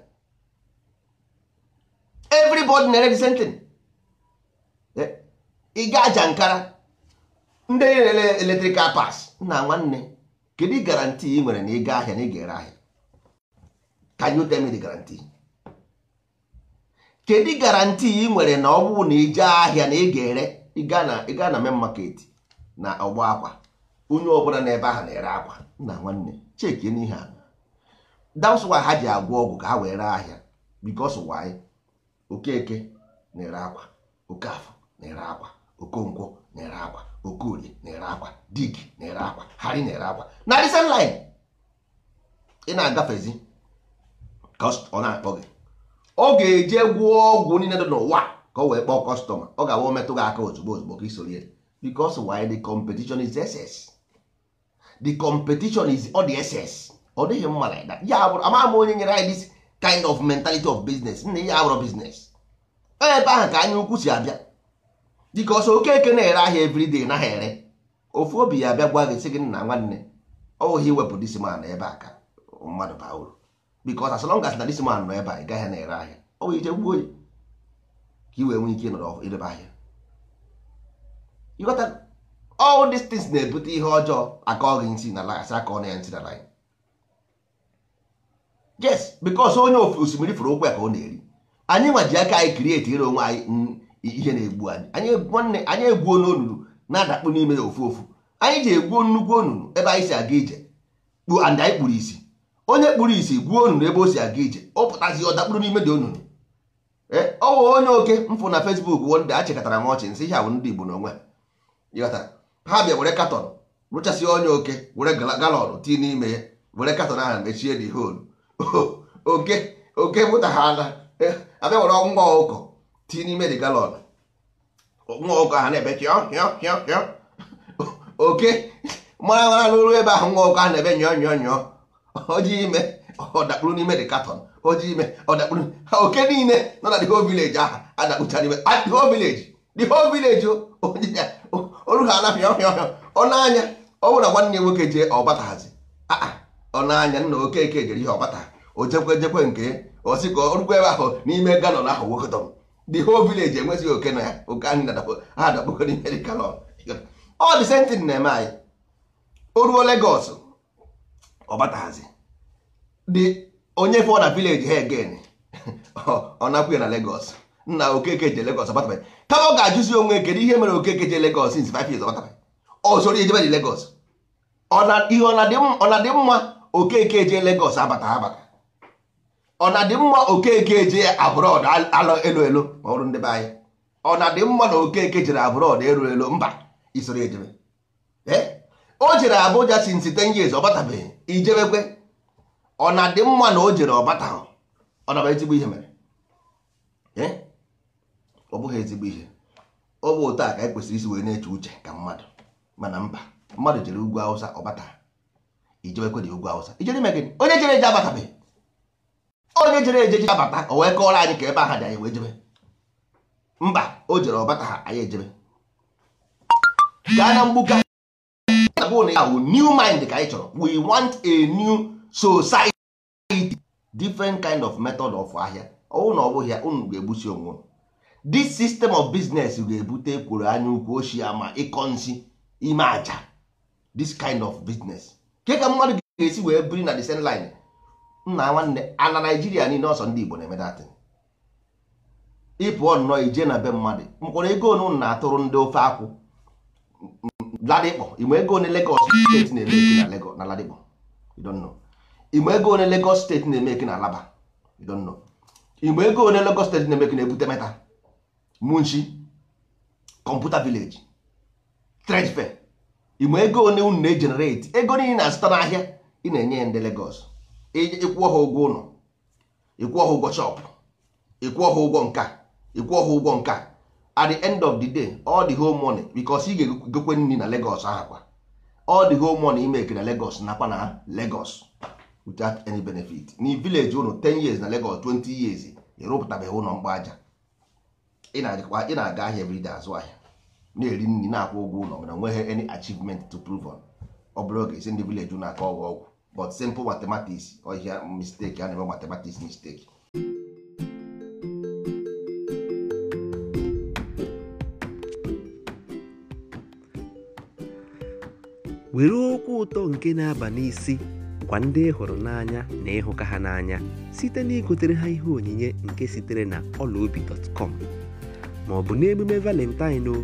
everybody na-ere disentịn eh, ị ga aja nkara ndị na-ere eletrikal pas nna nwanne kedu garanti ị nwere na ịga ahịa na ị ga-ere ahịa can you tell me the guarantee kedu garanti ị nwere na ọ bụrụ na ị jee ahịa na ị ga-ere ịga na main market na ọgba akwa onye ọbụla na ebe ahụ na-ere akwa nna nwanne cheki n'ihe a that's ha ji agwọ ọgwụ ka ha wee ree ahịa because why okeke na-ere akwa afọ na-ere akwa okonkwo na-ere akwa okorie na-ere akwa dig na-ere akwa hari na-ere akwa na recent ị na-agafezi ọ na-akpọ gị ọ ga-eje gwụọ ọgwụ niile dị n'ụwa ka ọ wee kpọọ kọstọma ọ ga-awa metụ gị aka ozugbo ozugbo ka isoro because why the competition is excess the competition is all the excess ọ dịghị mma like that ya bụrụ ama ama onye nyere anyị this kind of mentality of business nna ya bụrụ business ebe ahụ ka anyị ukwu si abịa dịka oke okeke na-ere ahịa everyday naghị ere ofu obi ya abịa gwa gị sị gị nna nwanne ọwụghị iwepụ disman ebe a ka mmadụ baa uru because as long as na disman nọ ebe a ị gaghị na-ere ahịa ọ bụ ije gbuo oyi ka i wee nwee ike ịnọrọ ịrebe ahịa you got that all these things na-ebute ihe ọjọọ akọ gị nsi na lagasị akọ na ya nsi na line yes because onye ofe osimiri fụrụ okwu ya ka ọ na-eri anyị nwa ji aka anyị krieti ire onwe anyị mm, ihe na-egbu anyị anyị egbuo nonunu na-adakpu n'ime ya ofu ofu anyị ji egbuo nnukwu onunu ebe anyị si aga ije kpuo and anyị kpuru isi onye kpuru isi gbuo onunu ebe o si aga ije ọ pụtazi ọ dakpuru n'ime dị onunu eh, ọ wụ onye oke mfụ na Facebook wonde achịkọtara m ọchị nsị ihe ahụ ndị Igbo a ha bịa were katọn rụchasị onye oke were galọn tii n'ime ya were katọn ahụ mechie dị hol (laughs) oke oke mụta ha ala abịa were nwa ọkụkọ tii n'ime dị galọn nwa ọkụkọ ha na-ebe hịọ hịọ hịọ hịọ (laughs) oke mara mara n'ụlọ ebe ahụ nwa ọkụkọ ahụ na-ebe nyọọ nyọọ nyọọ oji ime ọ dakpuru n'ime dị katọn oji ime ọ dakpuru oke niile nọ na dị whole village ahụ adakpụcha n'ime ah, the whole village the whole village onye oh. (laughs) ya olu ha anapịa ọhịa ọhịa ọnụanya ọ bụrụ na nwanne ya nwoke jee ọbataghazi ah, ah. ọnụanya nna okeke jere ihe ọbata o jekwe jekwe nke o si ka orukwa ebe ahụ n'ime galọn ahụ wekọtọm the whole village enwezighị oke na ya oke anyị ha dakpokọ n'ime dị galọn ọ dị sentin na-eme anyị o ruo Legọs ọbataghazi dị onye fọ na village ha egen (laughs) ọ napụ ya na Legọs nna okeke je legos abatabe kama ọ ga-ajụzi onwe kedu ihe mere okeke je legos since five years abatabe ọzọrọ oh, ejebe dị Lagos ihe ọ na-adị mma okeke je legos abata abata ọ na-adị mma okeke je abrọd alọ elu elu ma ọrụ ndị be anyị ọ na-adị mma na okeke jere abrọd elu elu mba isoro ejebe eh? o jere Abuja since ten years ọ batabeghị ijebekwe ọ na-adị mma na o jere ọbata ọ na ezigbo ihe mere eh? ọ bụghị ezigbo ihe ọ bụ ụta ka anyị kwesịrị isi wee na-eche uche ka mmadụ mana mba mmadụ jere ugwu awụsa ọbata bata ijewekwe dị ugwu awụsa ijere ime gịnị onye jere eje abatabeghị onye jere eje ji abata o wee kọọrọ anyị ka ebe aha dị anyị wee jebe mba o jere ọbata ha anyị ejebe gaa na mgbuka new mind ka anyị chọrọ we want a new society different kind of method of ahịa ọnwụ na ọ bụghị unu ga-egbusi onwe unu this system of business ga-ebute ekworo anya ukwu ochie ma ịkọ nsị ime aja this kind of business ke ka mmadụ ga-esi wee biri na the same line nna nwanne ana Naijiria niile ọsọ ndị Igbo na-eme datin ịpụọ nnọọ ije na be mmadụ mkpọrọ ego onu na-atụrụ ndị ofe akwụ ladịkpọ ime ego one Lagos steeti na-eme eki na Lagos na ladịkpọ ime ego one Lagos steeti na-eme eki na Alaba you ime ego one Lagos steeti na-eme eki na Ebute Meta munshi kọmputa vileji trade fair ịma ego one unu na ejenereti ego niile na-azụta n'ahịa ị na-enye ya ndị Lagos ịkwụọ ha ụgwọ ụlọ ịkwụọ ha ụgwọ chọpụ ịkwụọ ha ụgwọ nka ịkwụọ ha ụgwọ nka at the end of the day all the whole money because ị ga-egokwe nri na Lagos kwa all the whole money imeke na Lagos nakwa na Lagos without any benefit n vileji unu 10 years na Lagos 20 years ịrụpụtabeghị ụlọ aja. ị na-aga ahịa everyday azụ ahịa na-eri nri na-akwụ ụgwọ ụlọ mana nweghị any achievement to prove on ọ bụrụ oge esi ndị village na-aka ọgwụ ọgwụ but simple mathematics ọhịa mistake a na-eme mathematics mistake were okwu ụtọ nke na-aba n'isi gwa ndị hụrụ n'anya na ịhụka ha n'anya site na igotere ha ihe onyinye nke sitere na ọlaobi.com ma ọ bụ n'emume valentine o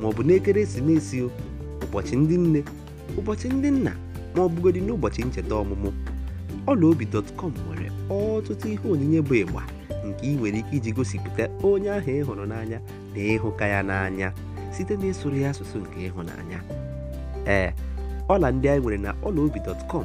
ma ọ bụ n'ekeresimesi o ụbọchị ndị nne ụbọchị ndị nna ma ọ bụgodị n'ụbọchị ncheta ọmụmụ ọlaobi.com nwere ọtụtụ ihe onyinye bụ ịgba nke ị nwere ike iji gosipụta onye ahụ ị hụrụ n'anya na ịhụka ya n'anya site na ịsụrụ ya asụsụ nke ịhụnanya ee ọla ndị anyị nwere na ọlaobi.com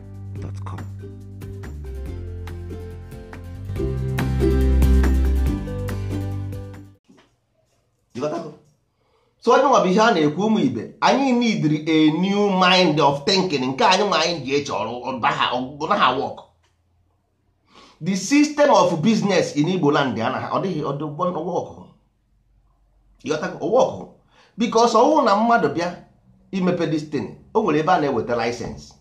so onye nwa bụ ihe a na-ekwu ụmụ ibe anyị need a new mind of thinking nke anyị ma anyị ji eche ọrụ naha work the system of business in Igbo land anaghị ọ dịghị ọdụgbọwọkụ because ọwụ na mmadụ bịa imepe destin o nwere ebe a na-eweta license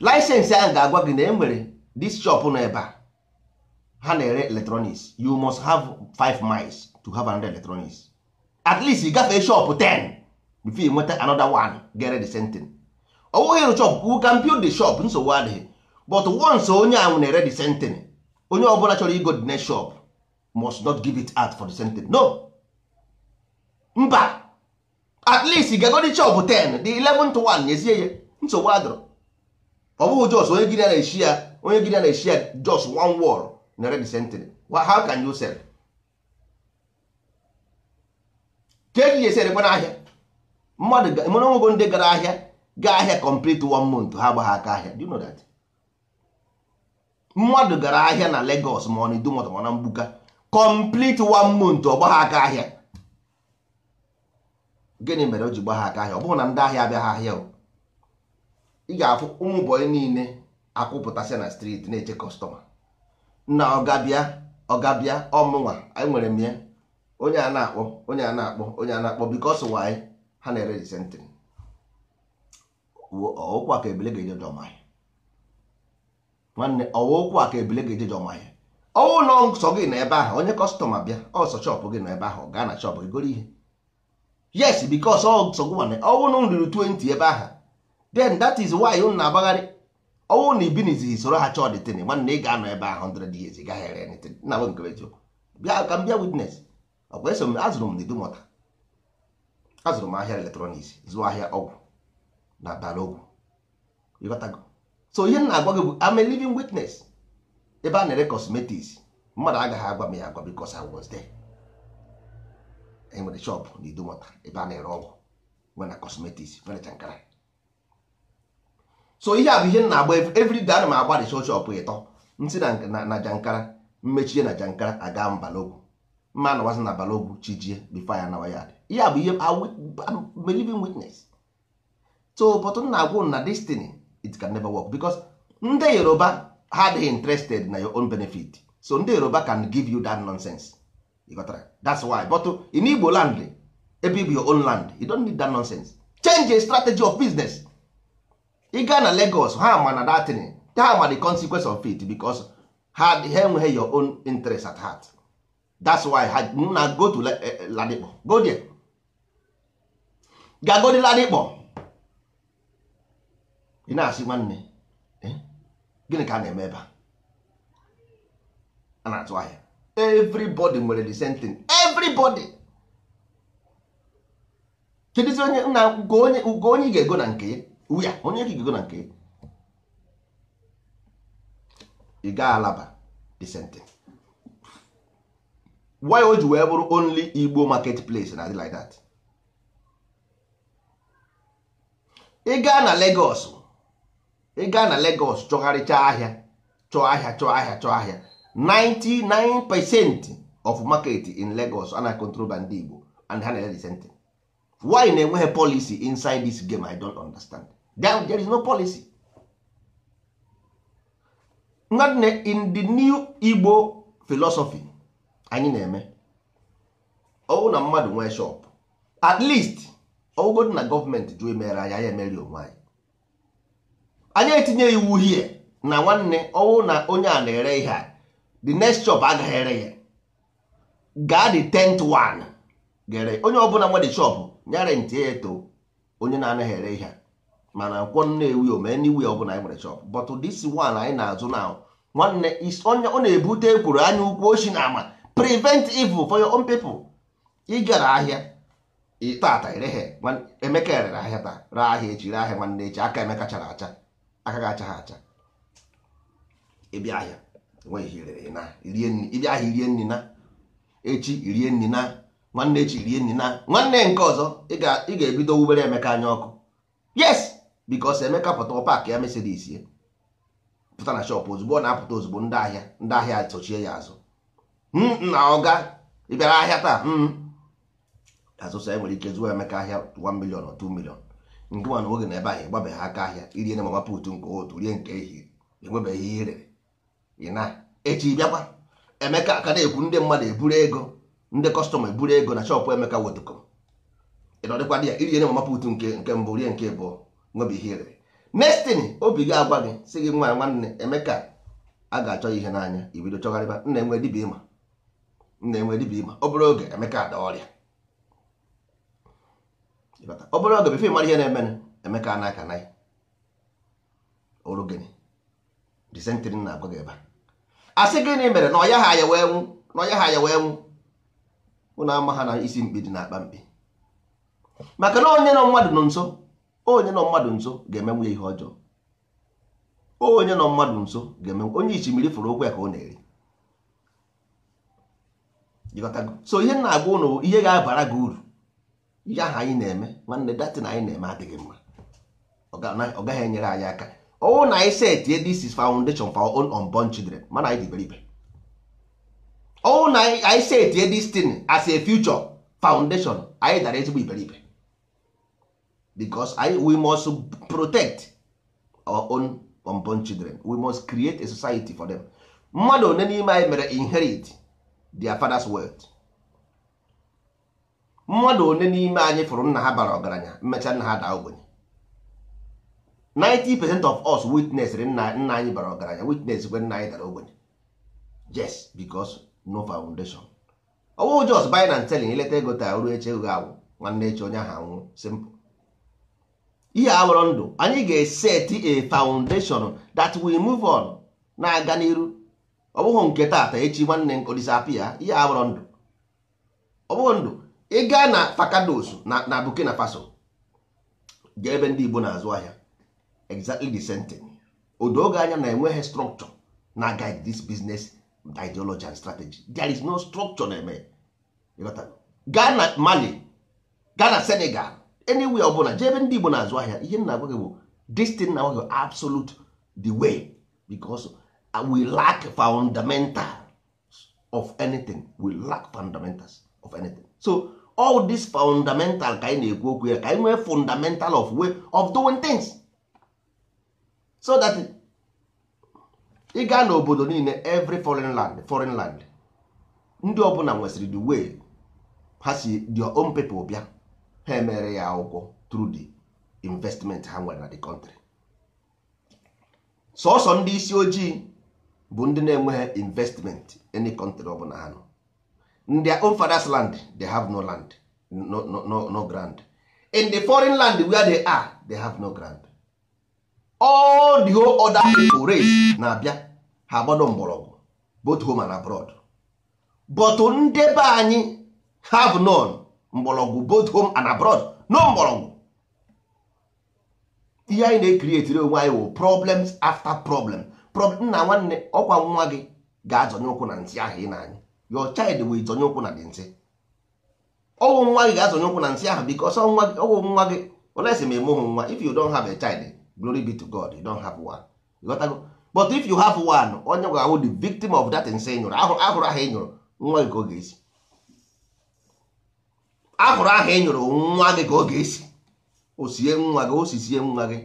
laịsensị ahụ ga-agwa gị na e nwere this shop nọ ebe a ha na-ere electronics you must have 5 miles to have another electronics at least ị gafee shop 10 before you nweta another one gere the same thing ọ bụghị ịrụ shop you can build the shop nsogbu adịghị but once onye ahụ na-ere the same thing onye ọbụla chọrọ igo the next shop must not give it out for the same thing no mba at least ị gago the shop 10 the 11 to 1 nyezie ya nsogbu adịrọ ọ bụghị jos onye gịrịa na-eshi ya onye gịrịa na-eshi ya jos one wall na red century how can you sell ka eji eserekwa n'ahịa mmadụ mana onwego ndị gara ahịa gaa ahịa complete one month ha agbaghị aka ahịa do you know that mmadụ gara ahịa na Lagos ma ọ na Idumota ma na Mgbuka complete one month ọ gbagha aka ahịa gịnị mere o ji gbagha aka ahịa ọ bụghị na ndị ahịa abịaghị ahịa o ị ga-afụ ụmụbọyị niile akwụpụtasị na striti na-eche kọstọma na ọgabịa ọgabịa ọmụnwa anyị nwere m ya onye a na-akpọ onye a na-akpọ onye a na-akpọ bikos waanyị ha na-ere disentịrị ọwụkwụ aka ebile ga-eje jọmahịa nwanne ọwụkwụ aka ebile ga-eje jọmahịa ọwụ nọ nsọ gị na ebe ahụ onye kọstọma bịa ọsọ chọpụ gị na ebe ahụ gaa na chọpụ gị goro ihe yes bikos ọ nsọ gị nwanne ọwụ na ruru 20 ebe ahụ then that is why unu na-agbagharị ọnwụ na ibinizi soro ha chọọ dịtịnị nwanne ị ga-anọ ebe ahụ 100 years ị gaghị ere anything nna m nke eziokwu bịa ka m bịa witness ọkwa eso m azụrụ m n'idumọta azụrụ m ahịa eletrọniks zụọ ahịa ọgwụ na bara ọgwụ ịghọtago so ihe m na-agwa gị bụ I'm a living witness ebe a na-ere cosmetics mmadụ agaghị agwa m ya agwa because I was there enwere shop n'idumọta ebe a na-ere ọgwụ nwere na cosmetics nwere chankara so ihe a bụ ihe na-agba everyday ana m agba the shop ịtọ ntị na na jankara mmechie na jankara aga mbalogwu mma na wasị na balogwu chijie before ya nawa ya ihe a bụ ihe believing witness so but m na-agwụ na destiny it can never work because ndị yoruba ha adịghị interested na your own benefit so ndị yoruba can give you that nonsense you got that? that's why but in igbo land ebe you your own land you don't need that nonsense change a strategy of business ị gaa na Lagos ha ma na datin ha ma the consequence of it because ha enweghị your own interest at heart that's why ha na go to eh, eh, Ladipo go there ga go ị na-asị nwanne eh, gịnị ka a na-eme ebe a na-atụ ahịa everybody nwere the same thing everybody kedụzi onye nna ugo onye ị ga-ego na nke ya uya onye ka ikuku na nke ị gaa alaba disenti why o ji wee bụrụ only igbo market place na like that ị gaa na Lagos ị gaa na Lagos chọgharịcha ahịa chọọ ahịa chọọ ahịa chọọ ahịa 99 percent of market in Lagos ana control by ndị Igbo and ha na-ele disenti why na-enweghị policy inside this game I don't understand. there is no policy nwanne in the new igbo philosophy anyị na-eme ọwụ na mmadụ nwee shop at least ọwụgodị na gọọmenti jụ emere anyị anyị emeri onwe anyị anyị etinye iwu hie na nwanne ọwụ na onye a na-ere ihe a the next shop agaghị ere ya gaa the tenth one gere onye ọbụla nwe di shop nyere ntị eto onye na-anaghị ere ihe a mana nkwọ nnewi ome n'iwu ya ọbụla anyị nwere shop but this one anyị na-azụ na nwanne onye ọ na-ebute ekwuru anya ukwu oshi na ama prevent evil for your own people ị gara ahịa tata ireghe emeka rere ahịa taa ree ahịa echi ree ahịa nwanne echi aka emeka chara acha aka ga-acha ha acha ịbịa ahịa irie nri na echi irie nri na nwanne echi irie nri na nwanne nke ọzọ ị ga-ebido wubere emeka anya ọkụ yes bikos Emeka pụta paakị ya Mercedes ya pụta na shọpụ ozugbo ọ na-apụta ozugbo ndị ahịa ndị ahịa sochie ya azụ hmm, na ọga ịbịara ahịa taa hmm. azụsa enwere ike zụọ Emeka ahịa 1 million or 2 million nke nwa na oge na ebe ahụ ịgbabeghị aka ahịa irie na mama put nke otu rie nke ehihie enwebeghị ihe ị na echi bịakwa Emeka aka na-ekwu ndị mmadụ eburu ego ndị kọstọma eburu ego na shọpụ Emeka wetụkọ ịnọdịkwa dị ya irie na mama put nke mbụ rie nke abụọ nwebi ihe obi gị agwa gị si gị nwa nwanne emeka a ga-achọ ihe n'anya ibido chọgharịba nna enwe dibịa ịma nna enwe dibịa ịma obere oge emeka ada ọrịa obere oge befe mara ihe na-emenụ emeka na aka naghị oru gịnị disentin na agwa gị ebe a sị gịnị mere na ọya ha ya wee nwụ na ọya ha ya wee nwụ ụna ama ha na isi mkpi dị n'akpa mkpi maka na onye nọ mmadụ nọ nso onye nọ mmadụ nso ga-emenwu ya ihe ọjọọ onye nọ mmadụ nso ga-emenwu onye ichimiri fụrụ okwu ya ka ọ na-eri so ihe na-agwa ụnụ ihe ga-abara gị uru ihe ahụ anyị na-eme nwanne na anyị na-eme adịghị mma ọ gaghị enyere anyị aka ọwụ na anyị setie this anyị because I, we must protect our own unborn children we must create a society for them mmadụ one n'ime anyị mere inherit their father's wealth mmadụ one n'ime anyị fụrụ nna ha bara ọgaranya mmecha nna ha daa ogbenye 90% of us witness nna nna anyị bara ọgaranya witness kwe nna anyị dara ogbenye yes because no foundation ọwụ just buy and selling ileta ego taa ruo eche ego awụ nwanne eche onye ahụ anwụ simple ihe agbọrọ ndụ anyị ga-eseti a foundation that we move on na-aga n'iru ọ bụghị nke taata echi nwanne nkụ disapia ihe agbọrọ ndụ ọ bụghị ndụ ị gaa na fakados na Burkina Faso ga ebe ndị Igbo na-azụ ahịa exactly the same thing odo oge anya na-enweghị structure na guide this business ideology and strategy there is no structure na-eme gaa na Mali gaa na Senegal any ọ bụla jee ebe ndị Igbo na-azụ ahịa ihe nna agwa gị bụ destin na agwa absolute the way because uh, we lack fundamental of anything we lack fundamentals of anything so all this fundamental ka anyị na-ekwu okwu ya ka anyị nwee fundamental of way of doing things so that ị gaa n'obodo niile every foreign land foreign land ndị ọbụla nwesịrị the way ha si their own people bịa ha emere ya akwụkwọ through the investment ha nwere na the country sọsọ ndị isi ojii bụ ndị na-enweghị investment any country ọ bụla ha nọ in their own father's land they have no land no, no, no, no ground in the foreign land where they are they have no ground all the whole other people race na-abịa ha gbado mgbọrọgwụ both home and abroad but ndị anyị have none mgbọrọgwụ both home and abroad no mgbọrọgwụ ihe anyị na-ekrietiri onwe anyị wụ problems after problem nna nwanne ọkwa nwa gị ga-azọnye ụkwụ na ntị ahụ ị na anyị your child will zonye ụkwụ na dị ntị ọwụ nwa gị ga-azọnye ụkwụ na ntị ahụ because ọwụ nwa gị nwa gị olesi ma emeghụ nwa if you don't have a child glory be to God you don't have one ịghọtago but if you have one onye ga-awụ the victim of that nsị nyụrụ ahụrụ ahụ ị nyụrụ nwa gị ka ọ ga-esi a hụrụ aha ị e nyụrụ nwa gị ka ọ ga-esi osie nwa gị osisie nwa gị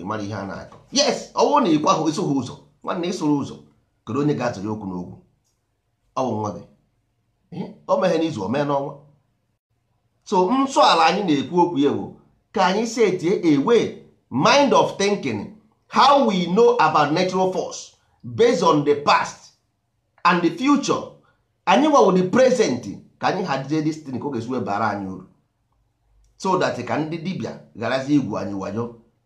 ịmara ihe a na-akọ yes ọnwụ na ịkwa ahụ ịsụghị ụzọ nwanne ịsụrụ ụzọ kedu onye ga-atụrụ okwu n'okwu ọ bụ nwa gị o meghe n'izu o mee n'ọnwa so nsọ ala anyị na-ekwu okwu ya bụ ka anyị setie a mind of thinking how we know about natural force based on the past and the future anyị nwawo the present ka anyị hazie destin ka ọ ga-esi anyị uru so that ka ndị dibịa garazi igwu anyị wayo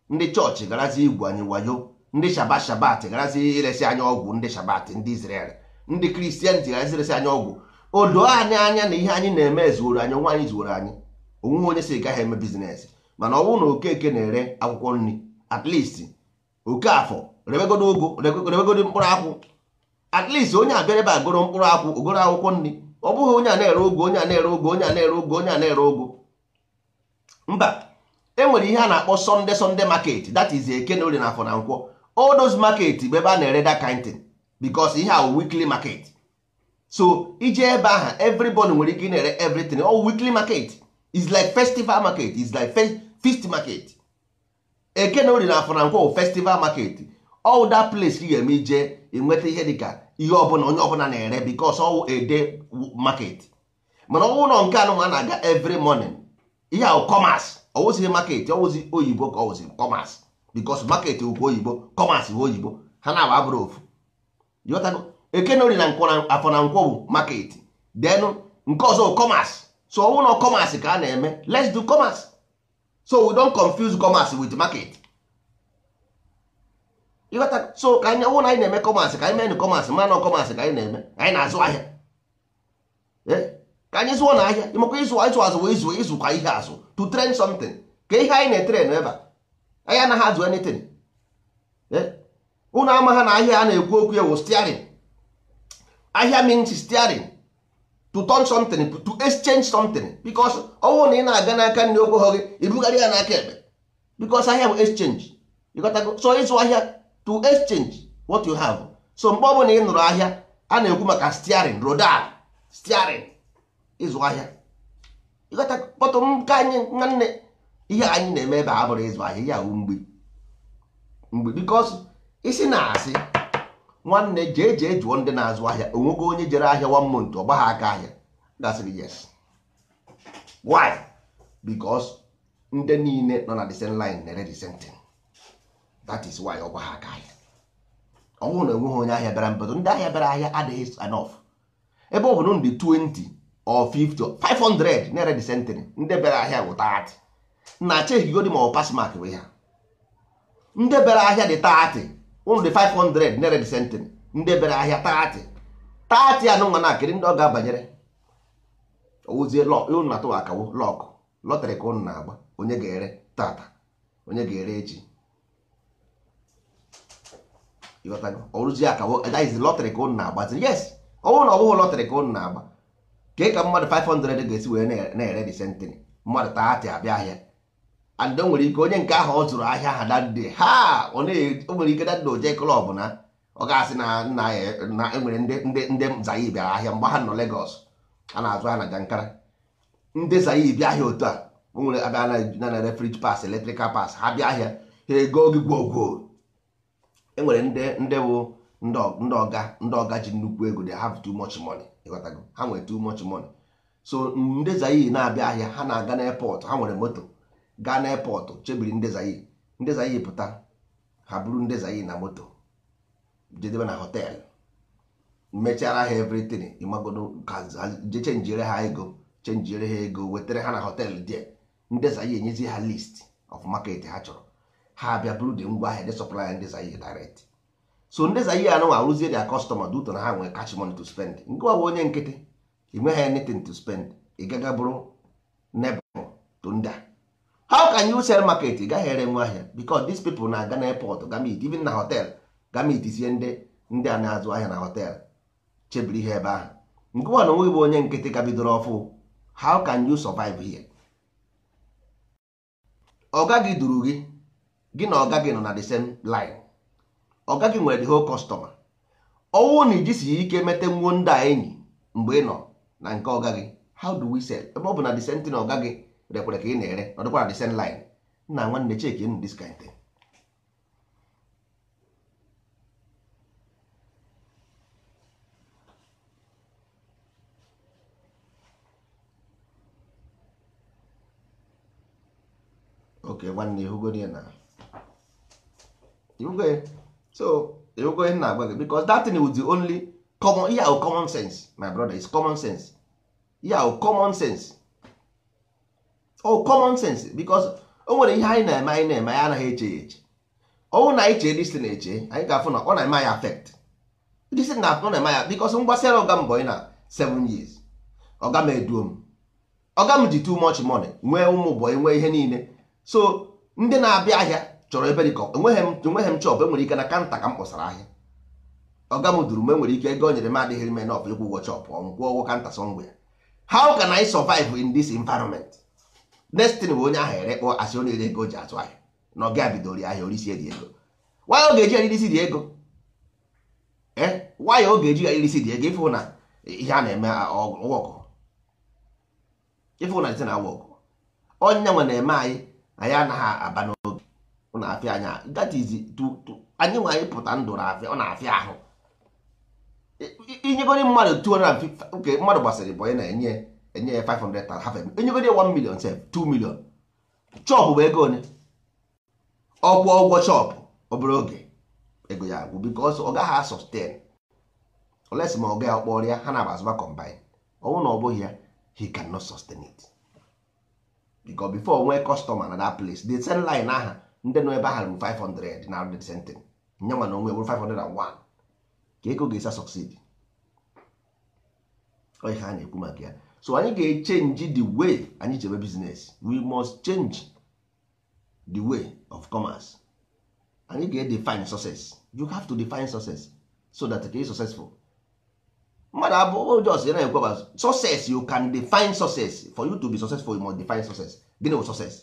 ndị chọọchị garazi igwu anyị wayo ndị shabat shabat garazi iresi anyị ọgwụ ndị shabat ndị Israel ndị kristian ji garazi iresi anyị ọgwụ odo anyị anya na ihe anyị na-eme ezuoro anyị nwa anyị zuoro anyị onwe onye si gaghị eme bizines mana ọ bụrụ na okeke na-ere akwụkwọ nri at least oke afọ rebegodo ogo rebegodo mkpụrụ akwụ at least onye abịara ebe agoro mkpụrụ akwụ ogoro akwụkwọ nri ọ bụghị onye a na-ere ogo onye a na-ere ogo onye a na-ere ogo onye a na-ere ogo mba enwere ihe a na-akpọ sọnde sọnde market dat is eke na orie nkwọ all those market bụ ebe a na-ere da kind thing because ihe a weekly market so ije ebe ahụ everybody nwere ike ị na-ere everything all weekly market is like festival market is like fist feast market eke na orie na afọ festival market all that place ka ị ga-eme ije enweta ihe dịka ihe ọbụla onye ọbụla na-ere because ọwụ ede market mana ọwụ nọ nke anụ na-aga every morning ihe ahụ commerce ọwụzighị market ọwụzi oyibo ka ọwụzi commerce because market ukwu oyibo commerce bụ oyibo ha na-abụ abụrụ ofu ekenori na afọ na nkwọ bụ market then nke ọzọ commerce so ọwụ commerce ka a na-eme let's do commerce so we don't confuse commerce wit market ịghọta so ka anyị ọnwụ na anyị na-eme kọmasị ka anyị mee kọmasị mana kọmasị ka anyị na-eme anyị na-azụ ahịa ka anyị zụọ na ahịa ịmakwa ịzụ ịzụ azụ wee izụ ịzụ kwa ihe azụ to train something ka ihe anyị na-etere n'ebe anyị anaghị azụ anything ụnụ ama ha na ahịa a na-ekwu okwu ya wụ steering ahịa means steering to turn something to exchange something because ọnwụ na ị na-aga n'aka nri okwu hụ gị ibugharị ya n'aka ekpe because ahịa bụ exchange ịghọtago so ịzụ ahịa to exchange what you have so mgbe ọbụla ị nụrụ ahịa a na-ekwu maka steering rodal steering ịzụ ahịa ịghọta kpọtụ nke anyị nwanne ihe anyị na-eme ebe a bụrụ ịzụ ahịa ya mgbe mgbe because isi na-asị nwanne jee jee jụọ ndị na-azụ ahịa onwego onye jere ahịa one month ọ gbagha aka ahịa gasịrị yes why because ndị niile nọ na the same line na-ere the same thing that is why ọgwa aka ahịa ọnwụ na enweghị onye ahịa bịara mbedo ndị ahịa bịara ahịa adịghị enough ebe ọ bụ 20 or 50 or 500 nere dị century ndị bịara ahịa bụ 30 na acheghigodi ma ọ pass mark we ya ndị bịara ahịa dị 30 ụnụ dị 500 nere dị century ndị bịara ahịa 30 30 anụ nwa akịrị ndị ọ ga-abanyere ozie ụnụ na akawo lọkụ lọtrị ka ụnụ na-agba onye ga-ere tata onye ga-ere echi ọrụzi aka daiz lọtrị ka ụnụ na-agbaziri yes ọ oh, na ọ bụghị lọtrị ka ụnụ na-agba kee ka mmadụ 500 ga-esi wee na-ere dị sentịrị mmadụ taatị abịa ahịa eh, and eh, o nwere ike onye nke ahụ ọ zụrụ ahịa ha dande ha o nwere ike dande oje klọb na ọ ga-asị na nna na enwere ndị ndị zayi bịara ahịa mgbe ha nọ Lagos a na-azụ ha na Jankara ndị zayi bịa ahịa otu a o nwere abịa na-ere fridge pass electrical pass ha bịa ahịa ha ego gị gwogwo enwere ndị ndị bụ ndị ọga ndị ọga ji nnukwu ego they have too much money ịghọtago ha nwere too much money so ndị zayi na-abịa ahịa ha na-aga n'epọtụ ha nwere moto gaa n'epọtụ chebiri ndị zayi ndị zayi pụta ha buru ndị zayi na moto jedebe na họteelụ mechara ha everything ịmagodo je chenjiere ha ego chenjire ha ego wetara ha na họteelụ dị ndị zayi enyezi ha list of market ha chọrọ ha bịa buru dị ngwa ahịa de supply ndị Zaire direct so ndị Zaire anụnwa arụzie dia customer due to na ha nwere cash money to spend nke ọ bụ onye nkịtị ị nweghị anything to spend ị gaga bụrụ nebel to ndị a how can you sell market ị gaghị ere nwe ahịa because these people na-aga n'airport gamit even na hotel gamit isie ndị ndị a na-azụ ahịa na hotel chebiri ihe ebe ahụ nke nwa na onwe bụ onye nkịtị ka bidoro ọfụ how can you survive here ọ gaghị duru gị gị na ọga gị nọ na the same line ọga gị nwere the whole customer ọwụ na ijisi ike mete nwuo ndị a enyi mgbe ị nọ na nke ọga gị how do we sell ebe ọ bụ na the same thing ọga gị rekwere ka ị na-ere ọ dịkwa na the same line nna nwanne cheki in this kind thing okay nwanne hụgodi ya na iwukwe so iwukwe nna agwa gị because that thing was the only common ihe ahụ common sense my brother is common sense ihe ahụ common sense oh common sense because o nwere ihe anyị na-eme anyị na-eme anyị anaghị eche ya eche ọnwụ na anyị chee na eche anyị ga-afụ na ọ na-eme anyị affect distin na ọ na-eme ya because mgbasara ọga mbọ na 7 years ọga m eduo m ọga m ji too much money nwee ụmụ ụbọyị nwee ihe niile so ndị na-abịa ahịa chọrọ ebe dịka enweghị m chọp enwere ike na kanta ka m kpọsara ahịa ọga m duru m enwere ike ego nyere m adịghị m enọf ịkwụ ụgwọ chọp ọnwụ kwụọ ụgwọ kanta sọngwe ya how na anyị survive in this environment next bụ onye ahụ ere kpọ asị onye ere ego ji atụ ahịa na ọ ga bidoro ahịa orisi dị ego nwanyị oge eji eri isi dị ego nwanyị eh? oge eji eri isi dị ego ịfụ na ihe a na-eme ọgụ ịfụ na ite na awa ọgụ onye nwe na-eme anyị anyị anaghị aba ọ na-afịa anya that is anyị nwanyị pụta ndụ na-afịa ọ na-afịa ahụ inyegoro mmadụ 200 oke mmadụ gbasịrị bụ na-enye enye ya 500 half enyegoro 1 million sef 2 million chọpụ bụ ego one ọ kwụọ ụgwọ chọpụ obere oge ego ya agwụ because ọ gaghị sustain oles ma ọ gaghị ọkpọrọ ya ha na-abazụba combine ọnwụ na ọ bụghị ya he cannot sustain it because before nwee customer na that place the sell line aha ndị nọ ebe ahụ 500 na arụdị sentin nyanwa na onwe bụrụ 501 ka ego ga-esa succeed ọ ihe a na-ekwu maka ya so anyị ga-echenji the way anyị chebe bizines we must change the way of commerce anyị ga-edefine success you have to define success so that ka ị successful mmadụ abụọ jos ya na-ekwe success you can define success for you to be successful you must define success gịnị bụ success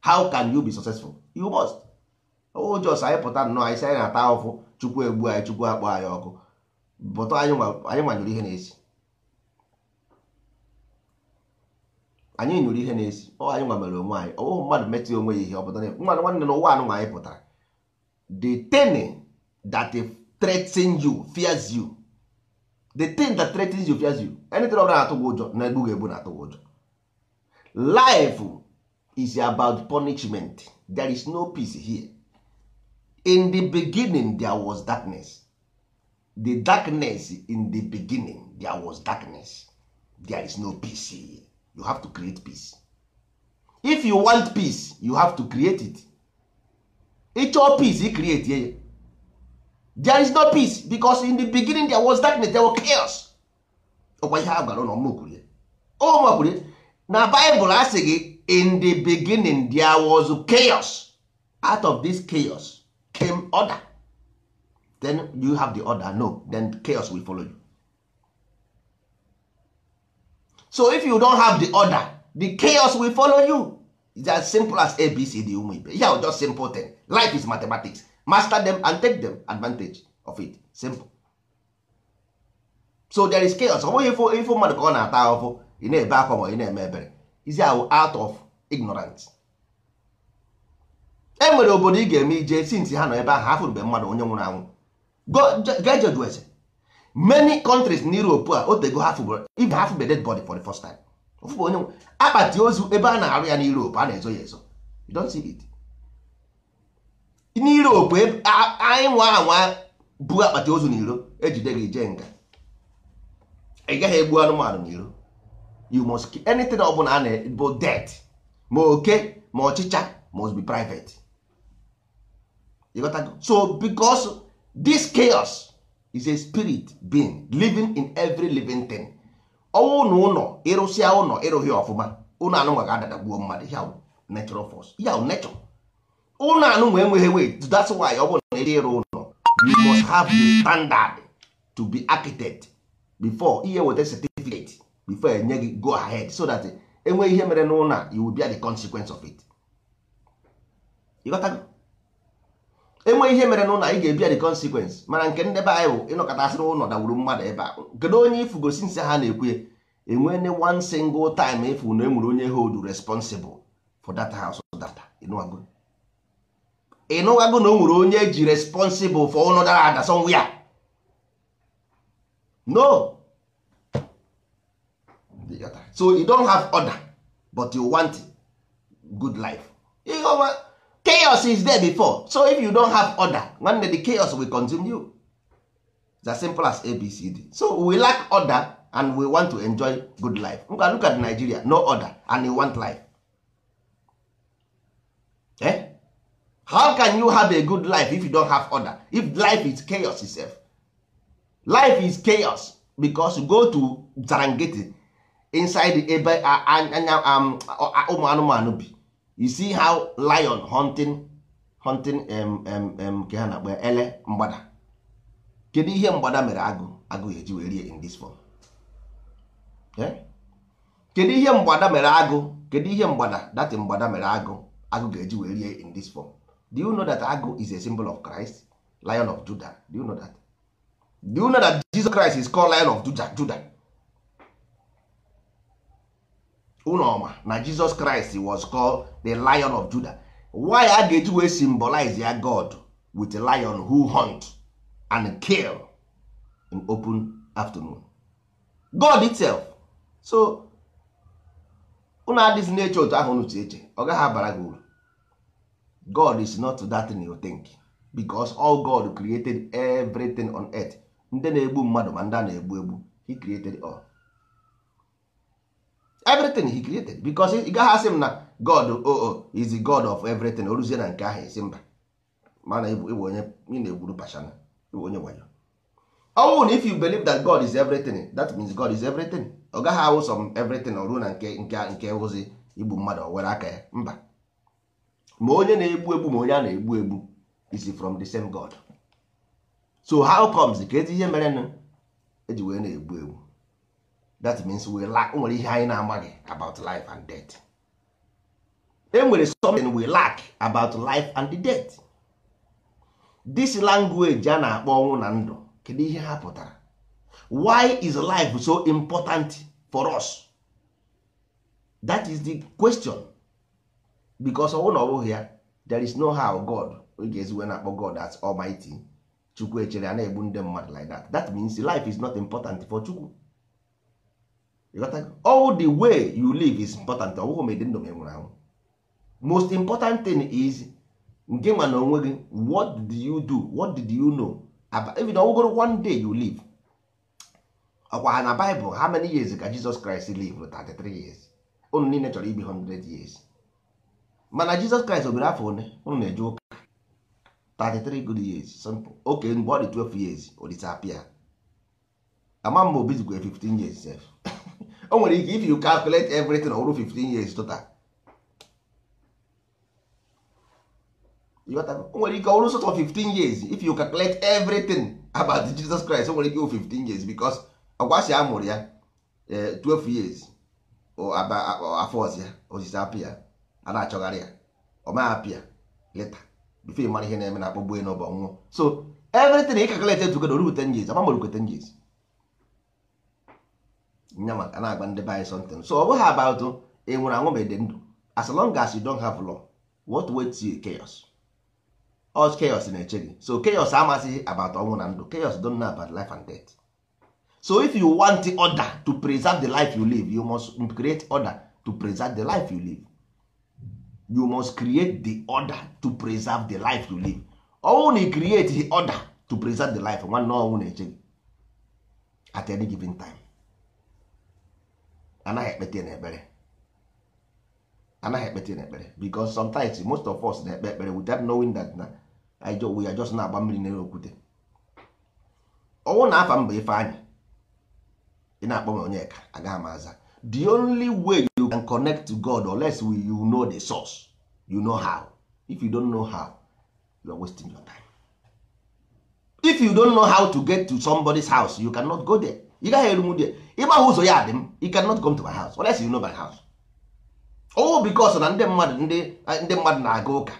how can you be successful you must o jos anyị pụta nnọọ anyị si anyị na-ata ahụfụ chukwu egbu anyị chukwu akpọ ọkụ bụtọ anyị ihe na-esi anyị nyụrụ ihe na-esi ọ anyị nwa ihe nwanne na ụwa anụnwa anyị pụtara the thing that threatens you fears you the that you fears you anything na egbu ụjọ life is about punishment there is no peace here in the beginning there was darkness the darkness in the beginning there was darkness there is no peace here. you have to create peace if you want peace you have to create it ịchọọ peace i create ya there is no peace because in the beginning there was darkness there was chaos ọkwa ihe a gwara ụlọ mmakwurie ọ makwurie na baịbụl asị gị in the beginning there was chaos out of this chaos came order then you have the order no then chaos will follow you so if you don't have the order the chaos will follow you it's as simple as abc the ụmụ ibe yeah, just simple thing life is mathematics master them and take them advantage of it simple so there is chaos ọ bụghị ifo mmadụ ka ọ na-ata ahụhụ ị na-ebe akwa ma ị na-eme ebere izi ahụ out of ignorance e nwere obodo ị ga-eme ije sint ha nọ ebe ahụ afọ mgbe mmadụ onye nwụrụ anwụ gejodwese many countries na Europe a otego ibe ha fụbe dead body for the first time ofụbụ onye nwụrụ akpati ozu ebe a na-arụ ya na a na-ezo ya ezo you don't see it e, anyị nwa anwa bu akpati ozu n'iro ejide gị ije nga ị gaghị egbu anụmanụ n'iro you must keep anything ọ bụla a na-bụ debt ma oke ma ọchịcha must be private you got so because this chaos is a spirit being living in every living thing ọnwụ na ụlọ ịrụsịa ụlọ ịrụghị ọfụma ụlọ anụnwa ga-adadagbuo mmadụ ya natural force ya nature ụlọ anụnwa enweghị wait that's why ọ bụrụ na ịrụ ụlọ you must have the standard to be architect before ihe weta certificate before enye gị go ahead so that enwee ihe mere n'ụlọ a you will bear the consequence of it enweghị ihe mere n'ụlọ ị ga-ebia the consequence mana nke ndị be anyị bụ ịnọkọta asịrị ụlọ dawuru mmadụ ebe a kedu onye ifugosi nsị ha na-ekwu enwene one single time ifu na emuru onye hold responsible for that house data ịnụwago na o nwere onye ji responsible for ụlọ dara ada somewhere no so you don't have order but you want good life ọma chaos is there before so if you don't have order nwanne the chaos will continue it's as simple as abcd so we lack order and we want to enjoy good life ngwa look at nigeria no order and you want life eh? how can you have a good life if you don't have order if life is chaos itself life is chaos because you go to Zarangeti inside ebe anya um, ụmụ anụmanụ bi you see how lion hunting hunting um, um, nke ha na-akpọ ele mgbada kedu ihe mgbada mere agụ agụ eji wee rie in this form eh? kedu ihe mgbada mere agụ kedu ihe mgbada dati mgbada mere agụ agụ ga-eji wee rie in this form do you know that agụ is a symbol of Christ lion of Juda, do you know that do you know that Jesus Christ is called lion of Juda? Judah unoma ọma na jesus christ was called the lion of judah why a ga-eji wee symbolize ya god with a lion who hunt and kill in open afternoon god itself so unu adịzi na-eche otu ahụ unu eche ọ gaghị abara gị uru god is not that thing you think because all god created everything on earth ndị na-egbu mmadụ ma ndị a na-egbu egbu he created all everything he created because ị gaghị asị m na god oo oh, oh, is the god of everything oruzie na nke ahụ isi mba mana ịbụ onye na-egburu pashana ịbụ onye wayo ọnwụ na if you believe that god is everything that means god is everything ọ gaghị awụ som everything ọ ruo na nke nke nke ụzi igbu mmadụ ọ were aka ya mba ma onye na-egbu egbu ma onye a na-egbu egbu is from the same god so how comes ka ezi ihe mere nụ eji wee na-egbu egbu that means we lack nwere ihe anyị na-amaghị about life and death Enwere something we lack about life and the death this language a na-akpọ ọnwụ na ndụ kedu ihe ha pụtara why is life so important for us that is the question because ọnwụ na ọ bụghị ya there is no how God oge eziwe na-akpọ God as almighty chukwu echere a na-egbu ndị mmadụ like that that means life is not important for chukwu all the way you live is important ọ bụghị ma ịdị ndụ ma nwụrụ anwụ most important thing is nke ma na onwe gị what did you do what did you know even ọwụgoro one day you live ọkwa ha na Bible how many years ka Jesus Christ live 33 years unu niile chọrọ ibi 100 years mana Jesus Christ obere afọ one unu na-eje ụka 33 good years simple oke mgbe ọ dị 12 years o disappear ama m ma obizikwa 15 years sef o nwere ike if you calculate everything ọhụrụ 15 years total o nwere ike ọhụrụ sort of 15 years if you calculate everything about Jesus Christ o nwere ike 15 years because ọgwasị si amụrụ ya 12 eh, years afọ ọzọ ya osisi apịa a na-achọgharị ya ọ ma apịa leta bifo ịmara ihe na-eme na akpọgbu enụ bụ ọnwụọ so everything ị calculate together ruru 10 years amamorukwe 10 years nya maka na-agba ndị be something so ọ bụghị about ị e nwụrụ anwụ ma ede ndụ as long as you don't have law what waits you chaos all chaos na-eche gị so chaos amasịghị about ọnwụ na ndụ chaos don know about life and death so if you want the order to preserve the life you live you must create order to preserve the life you live you must create the order to preserve the life you live ọnwụ na create the order to preserve the life nwanne ọnwụ na-eche gị at any given time anaghị ekpete n'ekpere anaghị ekpete n'ekpere because sometimes most of us na-ekpe ekpere without knowing that na we are just na-agba mmiri n'elu okwute ọnwụ na afa mba ife anyị ị na-akpọ m onyeka agaghị m aza the only way you can connect to God unless you know the source you know how if you don't know how you are wasting your time if you don't know how to get to somebody's house you cannot go there ị gaghị eru m dị ịgbagha ụzọ ya dị m you cannot come to my house unless you know my house oh because na ndị mmadụ ndị ndị mmadụ na-aga ụka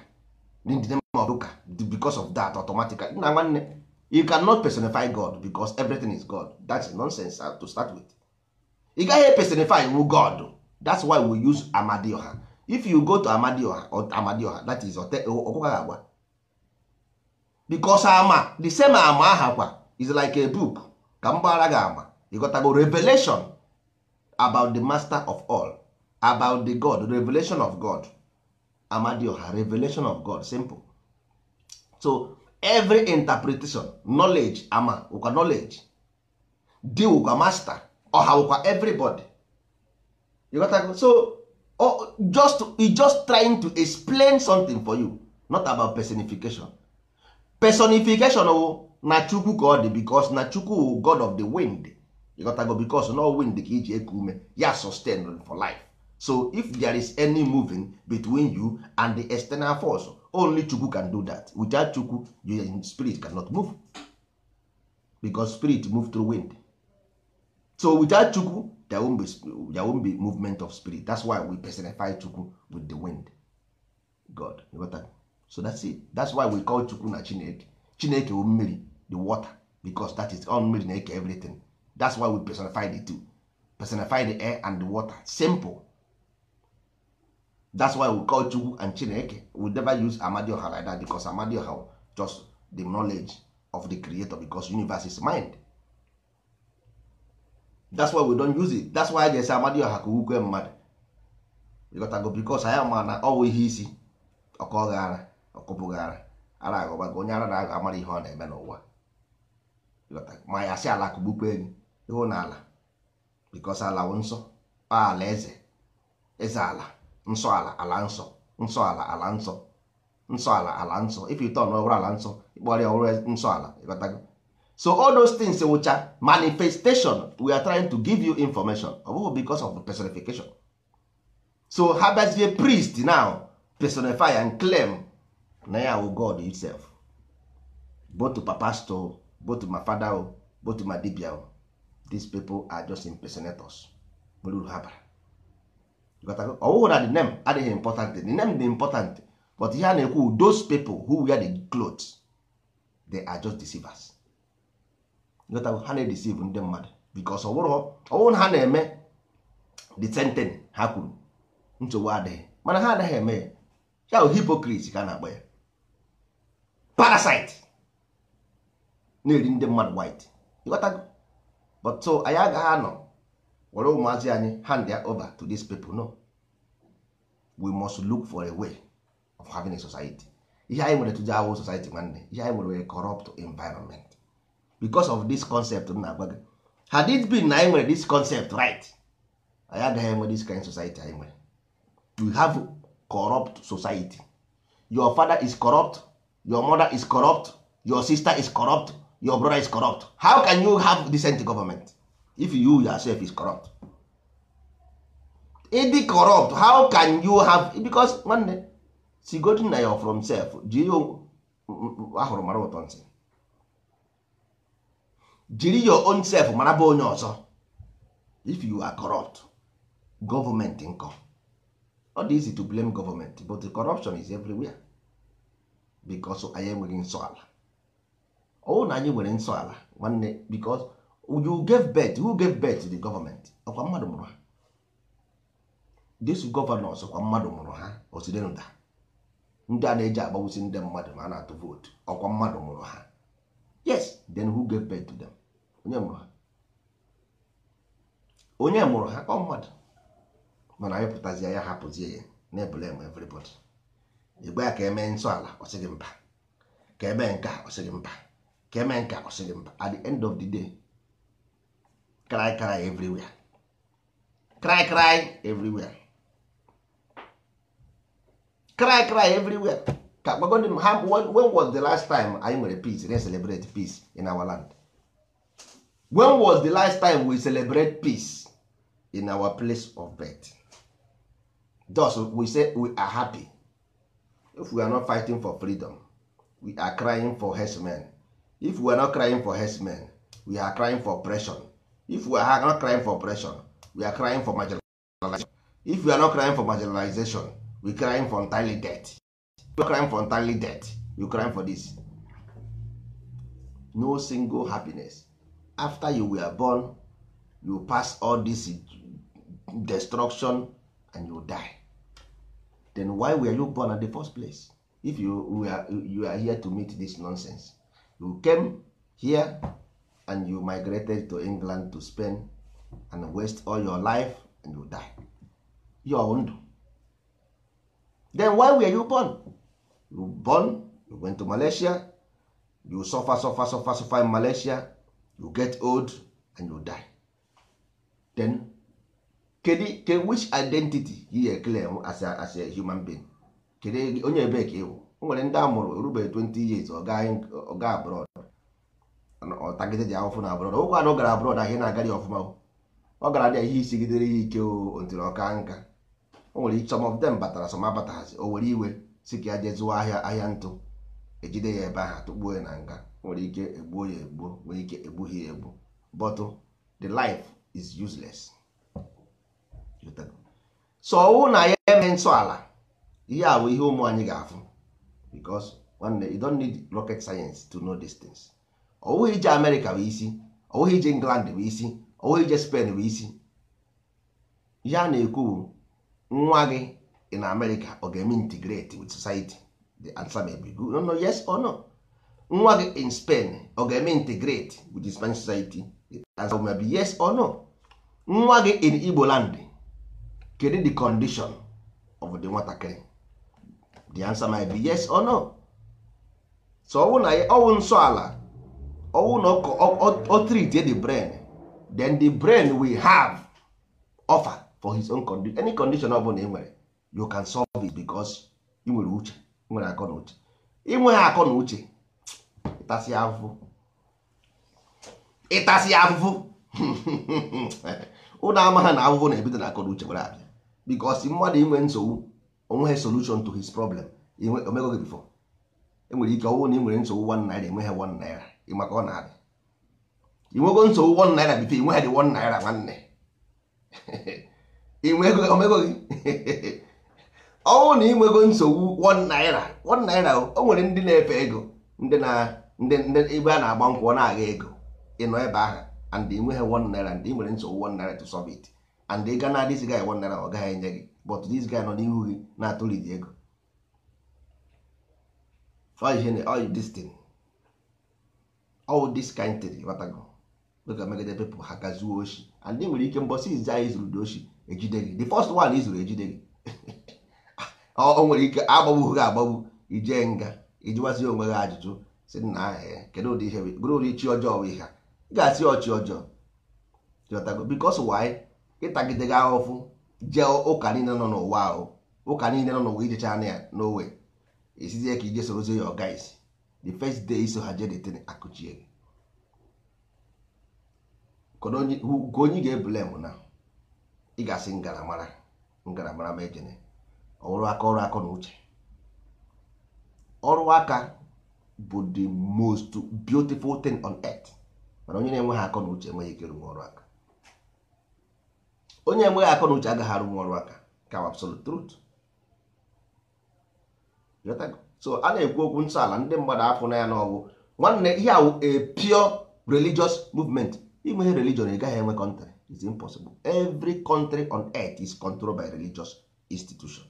ndị mmadụ ụka because of that automatically na nwanne you cannot personify God because everything is God That is nonsense uh, to start with ị gaghị personify wu God that's why we use Amadioha if you go to Amadioha Amadioha that is ọkụkọ agwa because ama the same ama ahakwa is like a book ka m ara gị agba ịghọtago revelation about the master of all about the god revelation of god amadioha revelation of god simple so every interpretation knowledge ama ụka knowledge di ụkwa master ọha ụkwa everybody ịghọtago so oh, just e just trying to explain something for you not about personification personification o oh, na chukwu ka ọ dị bikos na chukwu god of the wind ịghọtago bikos na wind ka iji eku ume ya sustain for life so if there is any moving between you and the external force only chukwu can do that without chukwu your spirit cannot move because spirit move through wind so without chukwu there won't be, there won't be movement of spirit that's why we personify chukwu with the wind god so that's it that's why we call chukwu na chineke chineke wo mmiri the water because that is all made in eke everything that's why we personify the two personify the air and the water simple that's why we call chukwu and chineke we never use amadioha like that because amadioha just the knowledge of the creator because universe is mind that's why we don't use it that's why jesi amadioha ka ukwe mmadụ ịgotago bikos anyị ma na ọwụ ihe isi ọkọghara ọkụpụghara ara aghọbago onye ara na-aga amara ihe ọ na-eme n'ụwa ma ya si ala kụgbukwa enyi ịhụ na ala bikos ala nsọ ala eze eze ala nsọ ala ala nsọ nsọ ala ala nsọ nsọ ala ala nsọ ifite ọhụrụ ala nsọ ịkpọrọ ya ọhụrụ nsọ ala ịghọtago so all those things wụcha manifestation we are trying to give you information ọ bụghị because of personification so ha priest now personify and claim na ya wụ god itself both to papa to both ma fada o both ma dibia o these people are just impersonators nwere uru ha bara ọwụghụ na the name adịghị important the name dị important but ihe a na-ekwu those people who wear the clothes they are just deceivers ha na-edeceive ndị mmadụ because ọwụrụ na ha na-eme the sentence ha kwuru nsogbu adịghị mana ha anaghị eme ya ya hipocrit ka a na-akpọ ya parasite na-eri ndị mmadụ white ịghọtago but so anyị agaghị anọ were ụmụazị anyị hand ya over to dis people no we must look for a way of having a society ihe anyị nwere tụje awụ society nwanne ihe anyị nwere corrupt environment because of this concept m na-agwa gị had it been na anyị nwere this concept right anyị agaghị enwe this kind society anyị nwere we have corrupt society your father is corrupt your mother is corrupt your sister is corrupt your brother is corrupt how can you have decent government if you yourself is corrupt ịdị corrupt how can you have because nwanne si godi na ya from self jiri ahụrụ mara ụtọ ntị jiri your own self mara bụ onye ọzọ if you are corrupt government nkọ ọ dị easy to blame government but corruption is everywhere because anyị enweghị nsọ ala ọwụ na anyị nwere nsọ ala nwanne because you gave birth who gave birth to the government ọkwa mmadụ mụrụ ha this governors ọkwa mmadụ mụrụ ha oside nda ndị a na-eji agbawusi ndị mmadụ ma a na-atụ vootu ọkwa mmadụ mụrụ ha yes then who gave birth to them onye mụrụ ha onye mụrụ ha ọ mmadụ mana anyị pụtazie ya hapụzie ya na-ebule eme everybody egbe ya ka emee nsọ ala ọ sịghị mba ka emee nke a ọ sịghị mba ka eme nke mba at the end of the day cry cry everywhere cry cry everywhere cry cry everywhere ka gbagodi ha when was the last time anyị nwere peace re celebrate peace in our land when was the last time we celebrate peace in our place of birth thus we say we are happy if we are not fighting for freedom we are crying for herdsmen if we are not crying for herdsmen we are crying for oppression if we are not crying for oppression we are crying for marginalization if we are not crying for marginalization we crying for entirely debt you crying for entirely debt you crying for this no single happiness after you were born you pass all this destruction and you die then why were you born at the first place if you were, you are here to meet this nonsense you came here and you migrated to england to spain and waste all your life and you die your ndụ then why were you born you born you went to malaysia you suffer suffer suffer suffer in malaysia you get old and you die then kedi which identity you claim as a, as a human being kede onye ebe ka ịwụ o nwere ndị amụrụ mụrụ 20 years ọ ga abroad ọtagide ji ahụfụ na abroad ụkwa na ọ gara abroad ahịa na-agara ọfụma ọ gara dị ihe isigidere ya ike otiri ọka nka o nwere some of them batara some abataghazi o were iwe si ka ya jee ahịa ahịa ntụ ejide ya ebe aha tụgbuo ya na nga nwere ike egbuo ya egbuo nwere ike egbughị ya egbu but the life is useless so ọwụ na ya eme nsọ ala ihe a bụ ihe ụmụ anyị ga-afụ because nwanne you don't need rocket science to know these things ọwụghị ije amerịka bụ isi ọwụghị ije england bụ isi ọwụghị ije spen bụ isi Ya na-ekwu nwa gị in amerịka ọ ga-eme integrate with society the answer may be good no yes or no nwa gị in spen ọ ga-eme integrate with the spanish society the answer may be yes or no nwa gị in igbo land kedu the condition of the nwatakịrị the answer might be yes or no so ọwụ na ọwụ nsọ ala ọwụ na ọkọ ọ treat the brain then the brain will have offer for his own condition any condition ọ bụla ị nwere you can solve it because ị nwere uche nwere akọ na uche inweghị akọ na uche ịtasị afụfụ ịtasị afụfụ (laughs) ụlọ amaghị na afụfụ na-ebido na akọ na uche were abịa because mmadụ inwe nsogbu onweghị solution to his problem omego gị bifọ. enwere ike ọnwụ na ị nwere nsogbu one naira enweghị one naira ọ na-adị inwego nsogbu one naira bifo dị naira nwanne (laughs) omego gị (laughs) nsogbu naira naira o nwere ndị na-efe ego ndị na ndị ebe a na-agba nkwụ ọ na-agha ego ịnọ ebe ahụ and inweghị one naira ndị nwere nsogbu naira to ị ọ gaghị enye gị but this guy nọ n'ihu gị na-atụlidi ego all this thing all this kind thing batago dịka megide people ha gazuo oshi and nwere ike mbọsị izi anyị zuru dị ejide gị the first one izuru ejide gị o nwere ike agbagbu gị agbagbu ije nga ijiwazi onwe gị ajụjụ si nna ahịa kedu ụdị ihe bụrụ ụdị chi ọjọọ bụ ihe ị ga-asị ọchị ọjọọ jọtago bikos wanyị ịtagide gị ahụfụ jee ụka niile nọ n'ụwa ahụ ụka niile nọ n'ụwa ijecha anya ya n'owe esizie ka ije sorozie ya ọga isi the first day iso ha jee detin akụchie gị ka onye ga-ebule m na ị ga-asị ngaramara ngaramara ma ejene ọrụ aka ọrụ aka na uche ọrụ aka bụ the most beautiful thing on earth mana onye na-enweghị akọ na uche enweghị ike ịrụ ọrụ aka onye enweghị akọ na uche agaghị arụ ọrụ aka ka absolute truth so a na-ekwu okwu nsọala ndị mmadụ afụ na ya n'ọgwụ nwanne ihe awụ a pure religious movement ime ihe religion ị gaghị enwe country is impossible every country on earth is controlled by religious institution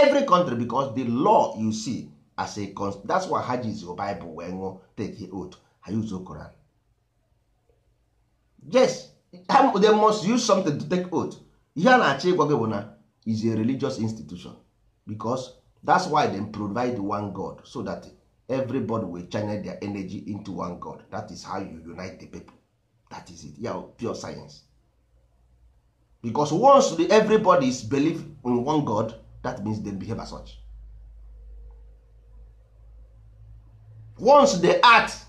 every country because the law you see as a that's why ha ji Bible wee ṅụọ take oath ha use Quran yes they must use something to take oath ihe a na-achọ ịgwa gị bụ na is a religious institution because that's why dem provide one god so that everybody will channel their energy into one god that is how you unite the people that is it yeah, pure science because once the everybody is believe in one god that means they behave as such once they act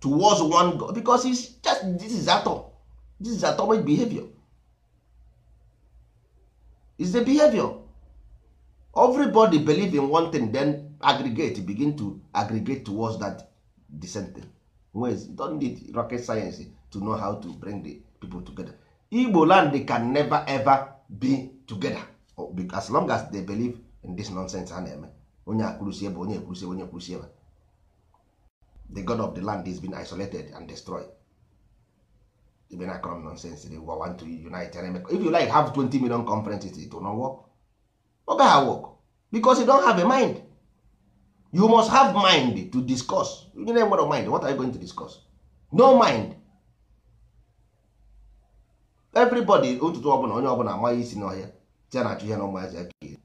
towards one god because it's just this is atom this is atomic behavior is the behavior everybody believe in one thing then aggregate begin to aggregate towards that decent thing ways don't need rocket science to know how to bring the people together igbo land can never ever be together oh, as long as they believe in this nonsense a na-eme onye akwụrụsi ebe onye ekwurusi onye ekwurusi ebe the god of the land is been isolated and destroyed even be na com nonsense dey want to unite and if you like have 20 million conferences it will not work oga ha work because you don have a mind you must have mind to discuss you need enwere mind what are you going to discuss no mind everybody ụtụtụ ọbụla onye ọbụla amaghị isi n'ọhịa tia na achụ ihe na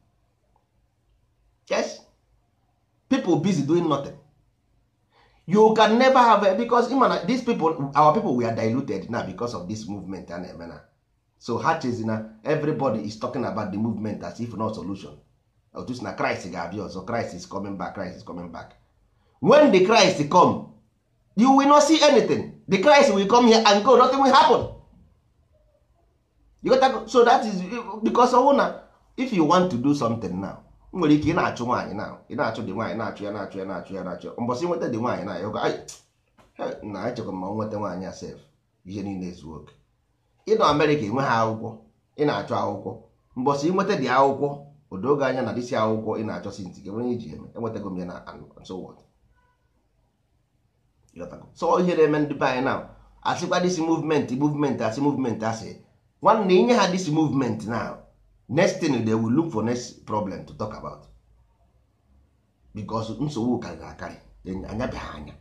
yes people busy doing nothing you can never have because ima na these people our people we are diluted now because of this movement a na-eme na so ha chezina everybody is talking about the movement as if not solution otu si na Christ ga-abịa ọzọ Christ is coming back Christ is coming back when the Christ come you will not see anything the Christ will come here and go nothing will happen you got to, so that is because ọwụ na if you want to do something now nwere ike ị na-achụ nwaanyị na ị na-achụ dị nwaanyị na-achụ ya na-achụ ya na-achụ ya na-achụ mbọsị nweta dị nwaanyị na ahụ na echekwa ma nweta nwaanyị a sef ihe niile zuo oke ịnọ Amerịka enwe ha akwụkwọ ị na achụ akwụkwọ mbọsị nweta dị akwụkwọ odoge anya na dịsị akwụkwọ ị na-achọ si ntị gị iji eme enwetago m ya na so ihe na-eme ndị be anyị na asịkwa dịsị muvment muvment asị muvment asị nwanne inye ha dịsị muvment na next thing they will look for next problem to talk about because nsogbu ka ga anya anyabeghị anya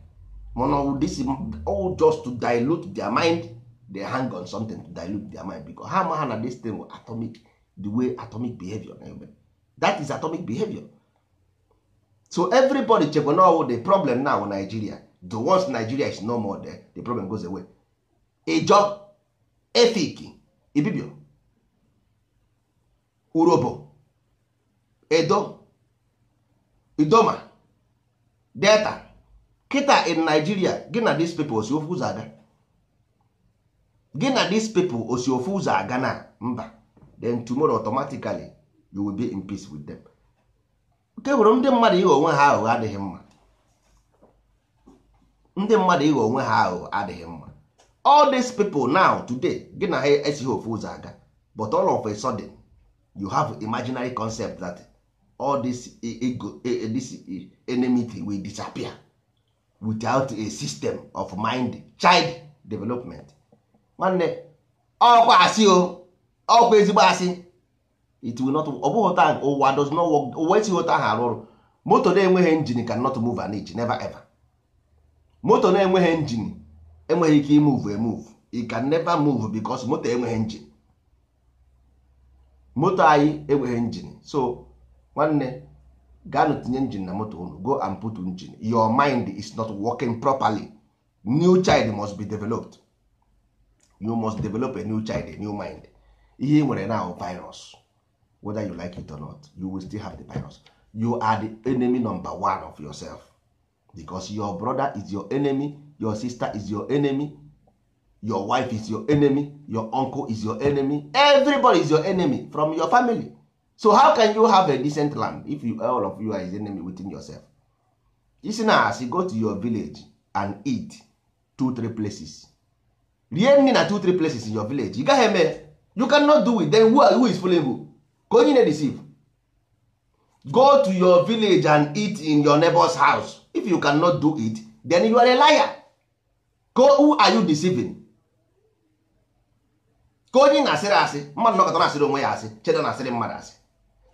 mana ọwụ this all just to dilute their mind they hang on something to dilute their mind because ha ma ha na this thing atomic the way atomic behavior eh, that is atomic behavior so everybody chekwa na ọwụ the problem now Nigeria the worst Nigeria is no more there the problem goes away ịjọ efik ibibio urobo edo idoma delta kita in nigeria gị na dis people osi ofu ụzọ aga gị na dis people osi ofu ụzọ aga na mba then tomorrow automatically you will be in peace with them nke hụrụ ndị mmadụ ịghọ onwe ha aghụghọ adịghị mma ndị mmadụ ịghọ onwe ha aghụghọ adịghị mma all these people now today gị na ha esighị ofu ụzọ aga but all of a sudden you have imaginary concept that all this ego e, e, e, this enmity will disappear without a system of mind child development nwanne ọkwa asị o ọkwa ezigbo asị it will not ọ ụta ụwa does not work ụwa esighị ụta ahụ arụ ọrụ moto na-enweghị engine can not move an inch never ever moto na-enweghị injin enweghị ike imove emove it can never move because moto enweghị engine. moto anyị enweghị njin so nwanne gaanụ tinye njin na moto unu go and put njin your mind is not working properly new child must be developed you must develop a new child a new mind ihe ị nwere now virus whether you like it or not you will still have the virus you are the enemy number one of yourself because your brother is your enemy your sister is your enemy your wife is your enemy your uncle is your enemy everybody is your enemy from your family so how can you have a decent land if you, all of you are his enemy within yourself you isi na you go to your village and eat two three places rie nri na two three places in your village you gaghị eme you cannot do it then who, who is fooling who ka onye na receive go to your village and eat in your neighbor's house if you cannot do it then you are a liar go who are you deceiving ka onye na-asịrị asị mmadụ nọkọta na-asịrị onwe ya asị chedo na-asịrị mmadụ asị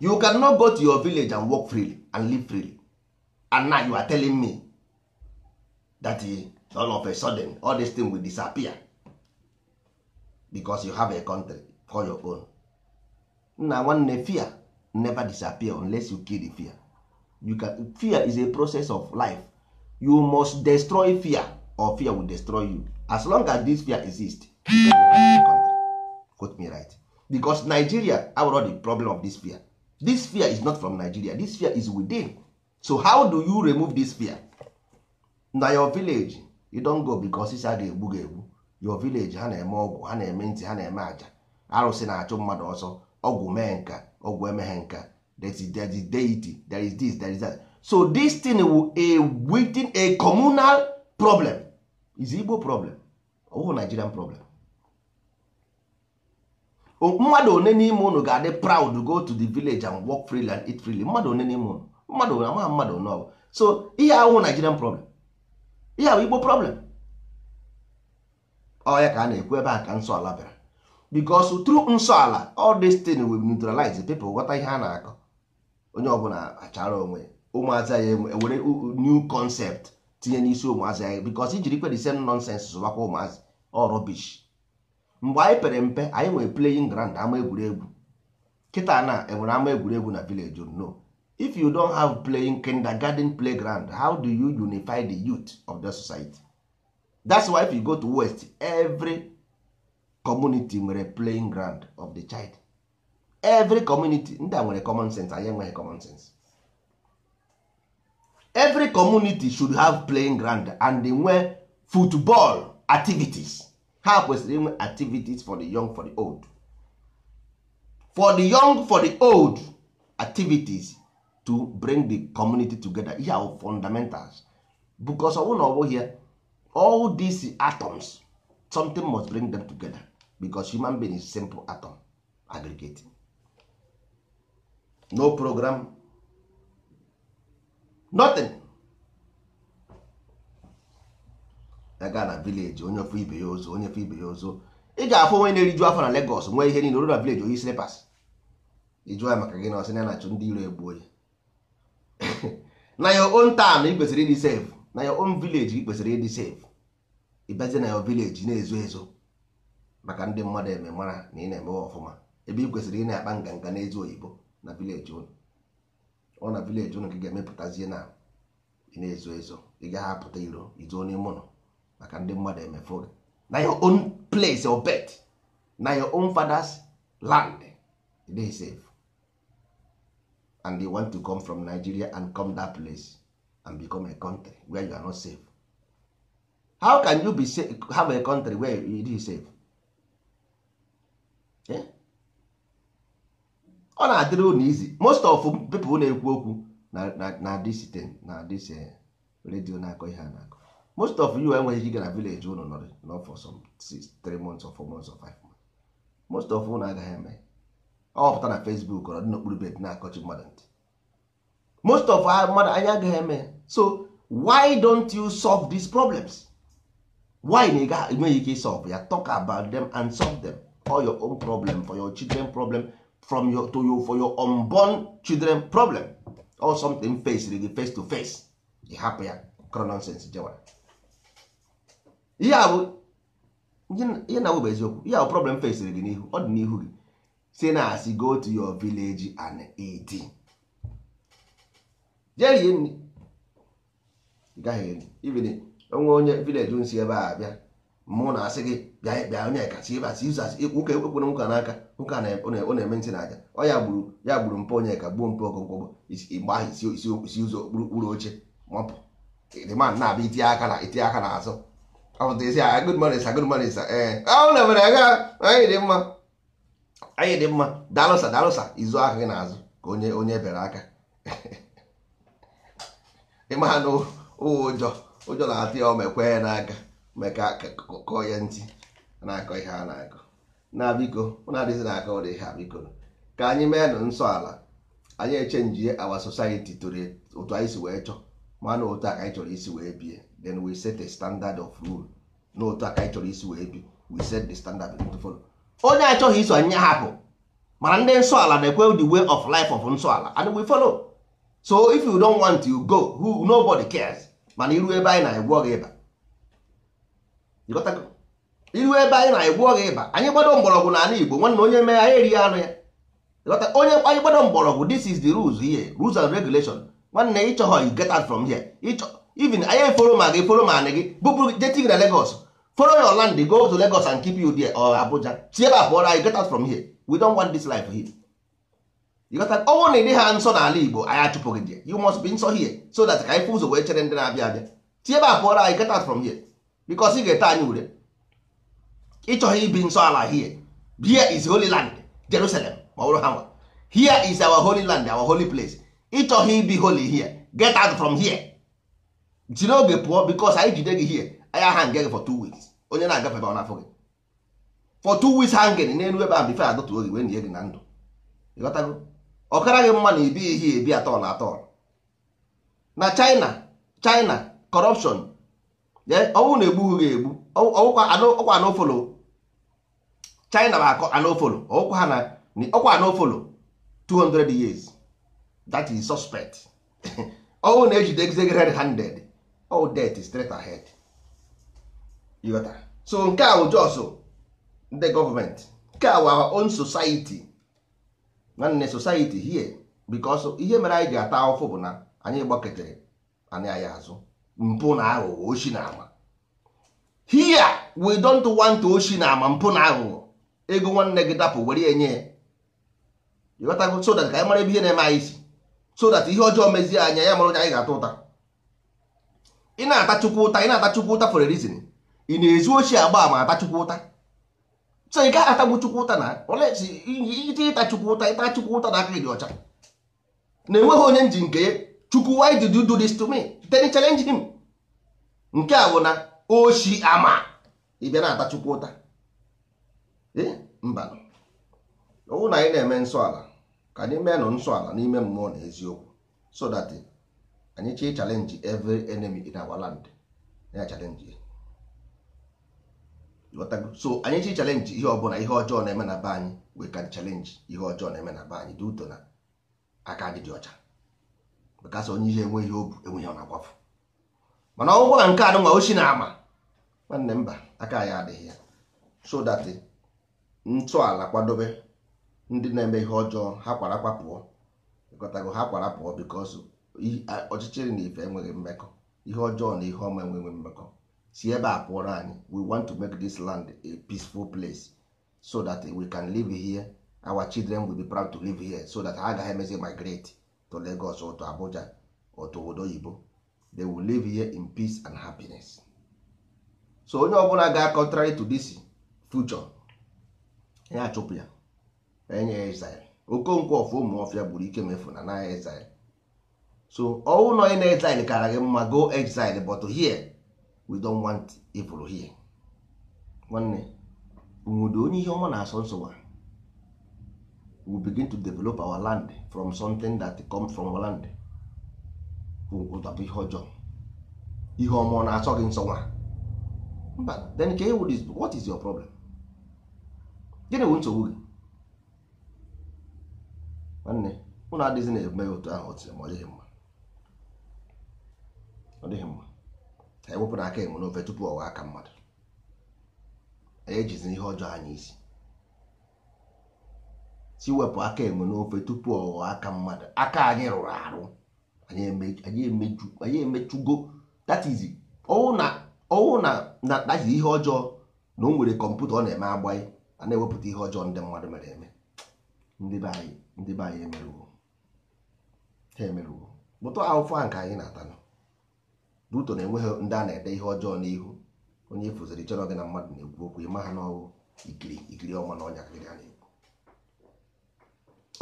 you can not go to your village and work freely and live freely and now you are telling me that eh, all of a sudden all this thing will disappear because you have a country for your own nna nwanne fear never disappear unless you kill the fear you can fear is a process of life you must destroy fear or fear will destroy you as long as this fear exists you can quote me right because nigeria abụrụ the problem of this fear this fear is not from nigeria this fear is within so how do you remove this fear na your village you don go because isi a ga-egbu ga-egbu your village ha na-eme ọgwụ ha na-eme ntị ha na-eme aja arụsị na-achụ mmadụ ọsọ ọgwụ mee nka ọgwụ emeghe nka there is deity there is this there is that so this thing will a within a communal problem is Igbo problem ọwụ Nigerian problem mmadụ one n'ime unu ga-adị proud go to the village and work freely and eat freely mmadụ one n'ime unu mmadụ na ama mmadụ one ọbụ so ihe ahụ Nigerian problem ihe ahụ Igbo problem ọ ya ka a na-ekwu ebe a ka nsọ ala bịara bikos through nsọ ala all this thing will neutralize people ghọta ihe a na-akọ onye ọbụla achara onwe ụmụazị ya ewere new concept tinye n'isi ụmụazị ya bikos ijiri kwe the same nonsense zụbakwa ụmụazị ọ rubbish mgbe anyị pere mpe anyị nwere playing ground ama egwuregwu kịta na enwere ama egwuregwu na village no if you don't have playing kindergarten playground how do you unify the youth of the society that's why if you go to west every community nwere playing ground of the child every community ndị a nwere common sense anyị enweghị common sense every community should have playing ground and nwee football activities ha kwesịrị inwe activities for the young for the old for the young for the old activities to bring the community together ihe ahụ fundamentals because ọbụ na ọ bụghị ya all these atoms something must bring them together because human being is simple atom aggregate no program nothing ya na vileji onye ofe ibe ya ozo onye ofe ibe ya ozo ị ga-afụ onye na-eriju afọ na Legọs nwee ihe niile na vileji oyi slipas ịjụọ ya maka gị na ọsị na na-achụ ndị iro egbuo ya (laughs) na your own town ị kwesịrị ịdị sef na your own vileji ị kwesịrị ịdị sef ịbazi na your vileji na-ezo ezo maka ndị mmadụ eme mara na ị na-emewe ọfụma ebe ị kwesịrị ị na-akpa nganga n'ezi oyibo na vileji ụnụ ọ na vileji ụnụ ka ị ga-emepụtazie na ị na-ezo ezo ị gaghị apụta iro izo n'ime ụlọ maka ndị mmadụ emefuru na your own place or bed na your own father's land dey safe and they want to come from Nigeria and come that place and become a country where you are not safe how can you be safe, have a country where you dey safe eh? ọ na-adịrị unu izi most of people na-ekwu okwu na this thing na this eh, radio na-akọ ihe a na-akọ most of you enweghị ike na village unu nọrị not for some six, three months or four months or five months most of unu agaghị eme ọpụta na Facebook ọ dị n'okpuru bed na-akọchi mmadụ ntị most of mmadụ anyị agaghị eme so why don't you solve these problems why na ịga enweghị ike solve ya talk about them and solve them for your own problem for your children problem from your to you for your unborn children problem or something face really face to face ị hapụ ya cronon jewara ihe a bụ ihe na bụ eziokwu ihe a bụ problem fesiri gị n'ihu ọ dị n'ihu gị si na asị go to your village and eat jee rie nri ị gaghị eri ibili onwe onye vileji nsi ebe a bịa mụ na asị gị bịa bịa onye kasị ebe asị izu asị nwoke ekwere nwoke n'aka nwoke ọ na-eme ntị na aja ọ ya gburu ya gburu mpe onye ka gbuo mpụ ọgụgụ igba ahụ isi ụzọ okpuru oche mapụ dị ma na-abịa itinye aka na itinye aka n'azụ na-emere aga anyị dị mma anyị dị mma dalụsa dalụsa izu ahụ gị n'azụ ka onye onye bere aka ịma na ụjọ ụjọ na-atụ ya omekwe n'aka meka kọ ya ntị na-akọ ihe a na-akọ na biko na adịghị na-akọ ụdị ihe a biko ka anyị mee nụ nsọ ala anyị echenjie awa society tụrụ otu anyị si wee chọọ mana otu a ka anyị chọrọ isi wee bie then we set a standard of rule n'otu aka anyị chọrọ isi wee bi we set the standard of to follow onye achọghị iso anyị hapụ mana ndị nsọ ala na-ekwe the way of life of nsọ ala and we follow so if you don't want to go who nobody cares mana iru ebe anyị na-egbu gị ịba iru ebe anyị na-egbu ọgha ịba anyị gbado mgbọrọgwụ n'ala Igbo nwanna onye mee anyị erighị anụ ya onye anyị gbado mgbọrọgwụ this is the rules here rules and regulation nwanne ịchọghọ you get out from here ịchọ even anyị foro ma gị foro ma anị gị bụpụrụ jetig na Lagos foro your land go to Lagos and keep you there or Abuja si ebe a anyị get out from here we don't want this life here ọnwụ oh, na ịdị ha nsọ n'ala Igbo anyị achụpụghị gị you must be nsọ here so that ka anyị fụ ụzọ wee chere ndị na-abịa abịa si ebe a anyị get out from here because ị ga-ete anyị ure ịchọghị ibi nsọ ala here here is holy land Jerusalem ma ọ bụrụ ha nwa here is our holy land our holy place ịchọghị ibi holy here get out from here jiri oge pụọ bikos anyị jide gị hie anyị ahanga gị for two weeks onye na-agafe ebe ọ na-afọ gị for two weeks hanging n'elu ebe a bife adọtuo gị wee nye gị na ndụ ịghọtago ọkara gị mma na ibi ihe ebi atọ na atọ na China China corruption ọnwụ na-egbu gị egbu ọkwa anofolo China bụ akọ anofolo ọkwa anofolo 200 years that is suspect (laughs) ọnwụ na-ejide gị red handed all death is straight ahead you got that? so nke ahụ bụ jos ndị gọọmenti nke a wụ on society nwanne society here because ihe mere anyị ji ata ahụfụ bụ na anyị gbaketere anyị anyị azụ mpụ na aghụghọ oshi na ama here we don't want oshi na ama mpụ na aghụghọ ego nwanne gị dapụ were ya nye ya ịghọtago so that ka anyị mara ebe ihe na-eme anyị isi so that ihe ọjọọ mezie anya ya mara onye anyị ga-ata ụta ị na-ata chukwu ụta ị na-ata chukwu ụta for a reason ị na-ezu ochie agba ma ata chukwu ụta so ị gaghị atagbu chukwu ụta na ite ịta chukwu ụta ịta chukwu ụta na aka gị dị ọcha na-enweghị onye nji nke chukwu why did you do this to me then challenge him nke a bụ na oshi ama ị bịa na-ata chukwu ụta mba ọwụ na anyị na-eme nsọ ala ka anyị nọ nsọ ala n'ime mmụọ na eziokwu so that anyị chọọ challenge every enemy in our land ya challenge so anyị chọọ challenge ihe ọbụla ihe ọjọọ na-eme na be anyị we can challenge ihe ọjọọ na-eme na be anyị dị ụtọ na aka anyị dị ọcha maka sọ onye ihe enwe ihe obu enweghị ọ na mana ọgwụgwọ na nke a nwa ochi na-ama nwanne mba aka anyị adịghị ya so that ntọala kwadobe ndị na-eme ihe ọjọọ ha kwara pụọ ịkọtago ha kwara pụọ because ọchịchịrị na ife enweghị mmekọ ihe ọjọọ na ihe ọma enweghị mmekọ si ebe a pụọrọ anyị we want to make this land a peaceful place so that we can live here our children will be proud to live here so that ha agaghị emezi migrate to Lagos or to Abuja or to oyibo they will live here in peace and happiness so onye ọbụla ga contrary to this future ya achụpụ ya enye ya okonkwo ọfụ ụmụ ọfịa gburu ike mefu na na ya so ọnwụ na na-exile kara gị mma go exile but here we don't want evil here nwanne nwudo onye ihe ọma na-asọ nsogbu we begin to develop our land from something that come from our land ụtabụ ihe ọjọọ ihe ọma ọ na-asọ gị nsọ nwa mba then ka ewu is what is your problem gịnị wụ nsogbu gị nwanne ụnụ adịghị na-eme otu ahụ ọ tiri ma ọ dịghị mma ọ dịghị mma anyị wepụrụ aka enwe n'ofe tupu ọwa aka mmadụ anyị ejizi ihe ọjọọ anyị isi si wepụ aka enwe n'ofe tupu ọwa aka mmadụ aka anyị rụrụ arụ anyị emechugo that is ọwụ na ọwụ na that ihe ọjọọ na o nwere kọmputa ọ na-eme agbaghị a na-ewepụta ihe ọjọọ ndị mmadụ mere eme ndị be anyị ndị be anyị emerụwo ha emerụwo bụtụ ahụfụ a nke anyị na-atanụ ruto na enweghị ndị a na-ede ihe ọjọọ n'ihu onye ifụziri e chọrọ gị na mmadụ na-ekwu okwu ịma ha n'ọwụ ikiri ikiri ọma na ọnya kịrị a na-ekwu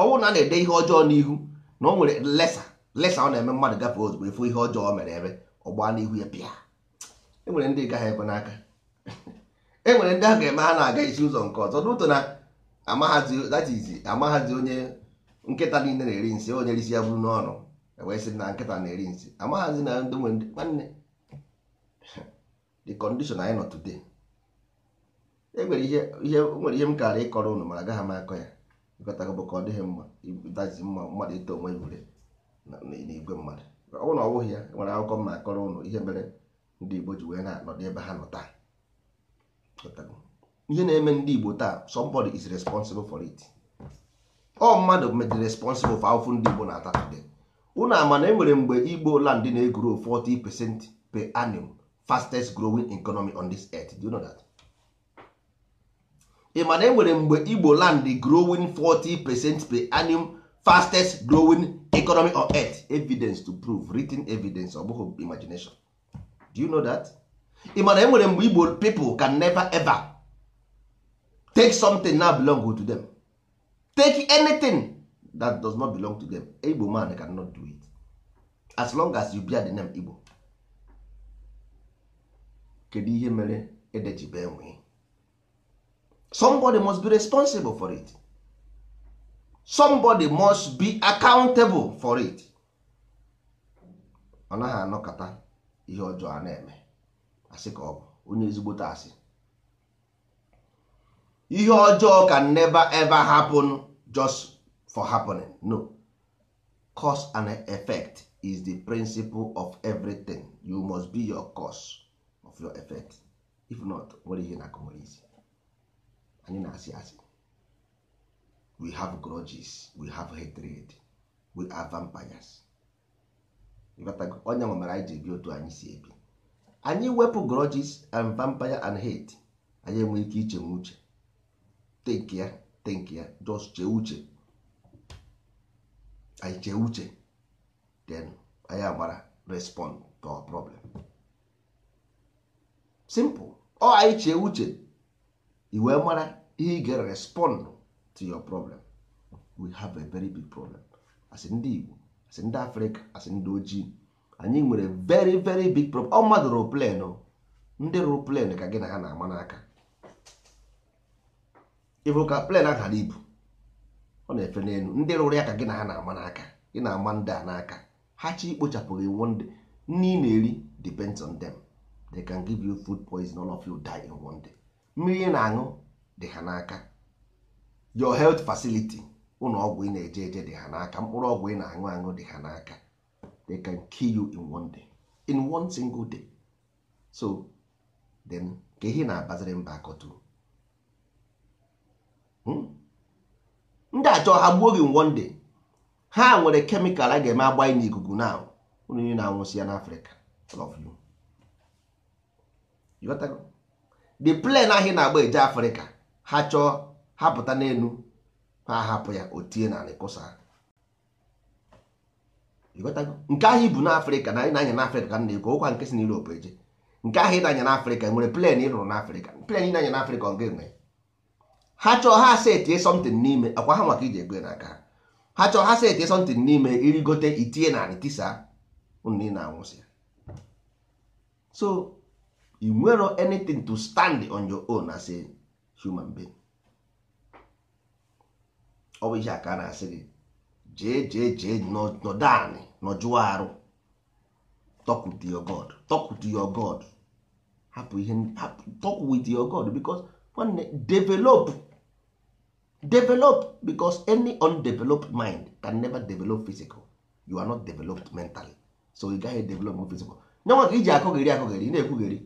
ọnwụ na a na-ede ihe ọjọọ n'ihu na o nwere lesa lesa ọ na-eme mmadụ gafee ozugbo efu ihe ọjọọ mere ebe ọgba n'ihu ya pịa enwere ndị gaghị ebe n'aka enwere ndị a ga-eme ha na-aga isi ụzọ nke ọzọ ruto na amaghazi onye nkịta niile na-eri nsị onye risi ya bụrụ n'ọnụ wee sị na nkịta na-eri nsị amaghazi na ndị nwe nwanne the condition anyị nọ today enwere ihe nwere ihe m kara ịkọrọ unu mara agaghị m akọ ya ịkọtago bụ ka ọ dịghị mma dazi mma mmadụ ito onwe na n'igwe mmadụ ọ bụrụ na ọ bụghị ya nwere akwụkwọ m na-akọrọ ụnụ ihe mere ndị Igbo ji wee na-anọdụ ebe ha nọ taa ihe na-eme ndị Igbo taa somebody is responsible for it ọ oh, mmadụ mejiri responsible for ahụfụ ndị Igbo na-ata today una ama enwere mgbe igbo land na-egro 40 percent per annum fastest growing economy on this earth do you know that? ị ma na enwere mgbe igbo land growing 40 percent per annum fastest growing economy on earth evidence to prove written evidence ọ imagination do you know that? ị ma na enwere mgbe igbo people can never ever take something na belong to them take anything that does not belong to them igbo man cannot do it as long as you bear the name igbo kedu ihe mere edejibe enwe somebody must be responsible for it somebody must be accountable for it ọ naghị anọkọta ihe ọjọọ a na-eme asị ka ọ bụ onye ezigbo asị ihe ọjọọ can never ever happen just for happening no cause and effect is the principle of everything you must be your cause of your effect if not nwere ihe na isi anyị na-asị asị we have grudges we have hatred we are vampires onye nwe Onye anyị ji ebi otu anyị si ebi anyị wepụ grudges and vampire and hate anyị enwe ike iche uche Take ya take ya just chee uche anyị chee uche then anyị agbara respond to our problem simple ọ oh, anyị chee uche i wee mara ihe ị respond to your problem we have a very big problem as ndị Igbo as ndị Afrịka as ndị ojii anyị nwere very very big problem ọ mmadụ rụrụ plen ndị rụrụ plen ka gị na ha na-ama n'aka ịbụ ka plen ahụ ibu ọ na-efe n'elu ndị rụrụ ya ka gị na ha na-ama n'aka ị na-ama ndị a n'aka ha chi ikpochapụghị one day nri ị na-eri depends on them they can give you food poison all of you die in one day mmiri ị na-aṅụ dị ha n'aka your health facility ụlọ ọgwụ ị na-eje eje dị ha n'aka mkpụrụ ọgwụ ị na-aṅụ aṅụ dị ha n'aka they can kill you in one day in one single day so then ka ihe na-abaziri mba akọtu ndị achọ ha gbuo gị one day ha nwere kemikal a ga-eme agbanye n'ikuku na unu niile na-anwụsị ya n'afrịka the plan ahụ na-agba eje afrịka ha chọọ ha pụta n'elu ha hapụ ya otie tie na kụsa nke ahụ ibu n'afrịka na anyị na-anya n'afrịka ka m na-ekwu ụkwa nke si n'Europe eje nke ahụ ị na-anya n'afrịka e nwere plan ị rụrụ n'afrịka plan ị na-anya n'afrịka ọ ga-enwe ha chọọ ha asa etinye something n'ime akwa ha maka iji egwe n'aka ha ha chọọ ha sa etinye something n'ime irigote itinye na anị tisa unu ị na-anwụsị so you nwero anything to stand on your own as a human being ọ bụ ihe aka a na-asị gị jee jee jee nọdụ anị nọjụọ arụ talk with your god talk with your god hapụ ihe talk with your god because nwanne develop develop because any undeveloped mind can never develop physical you are not developed mentally so ị gaghị develop physical nyanwa ka iji akụgheri akụgheri ị na-ekwugheri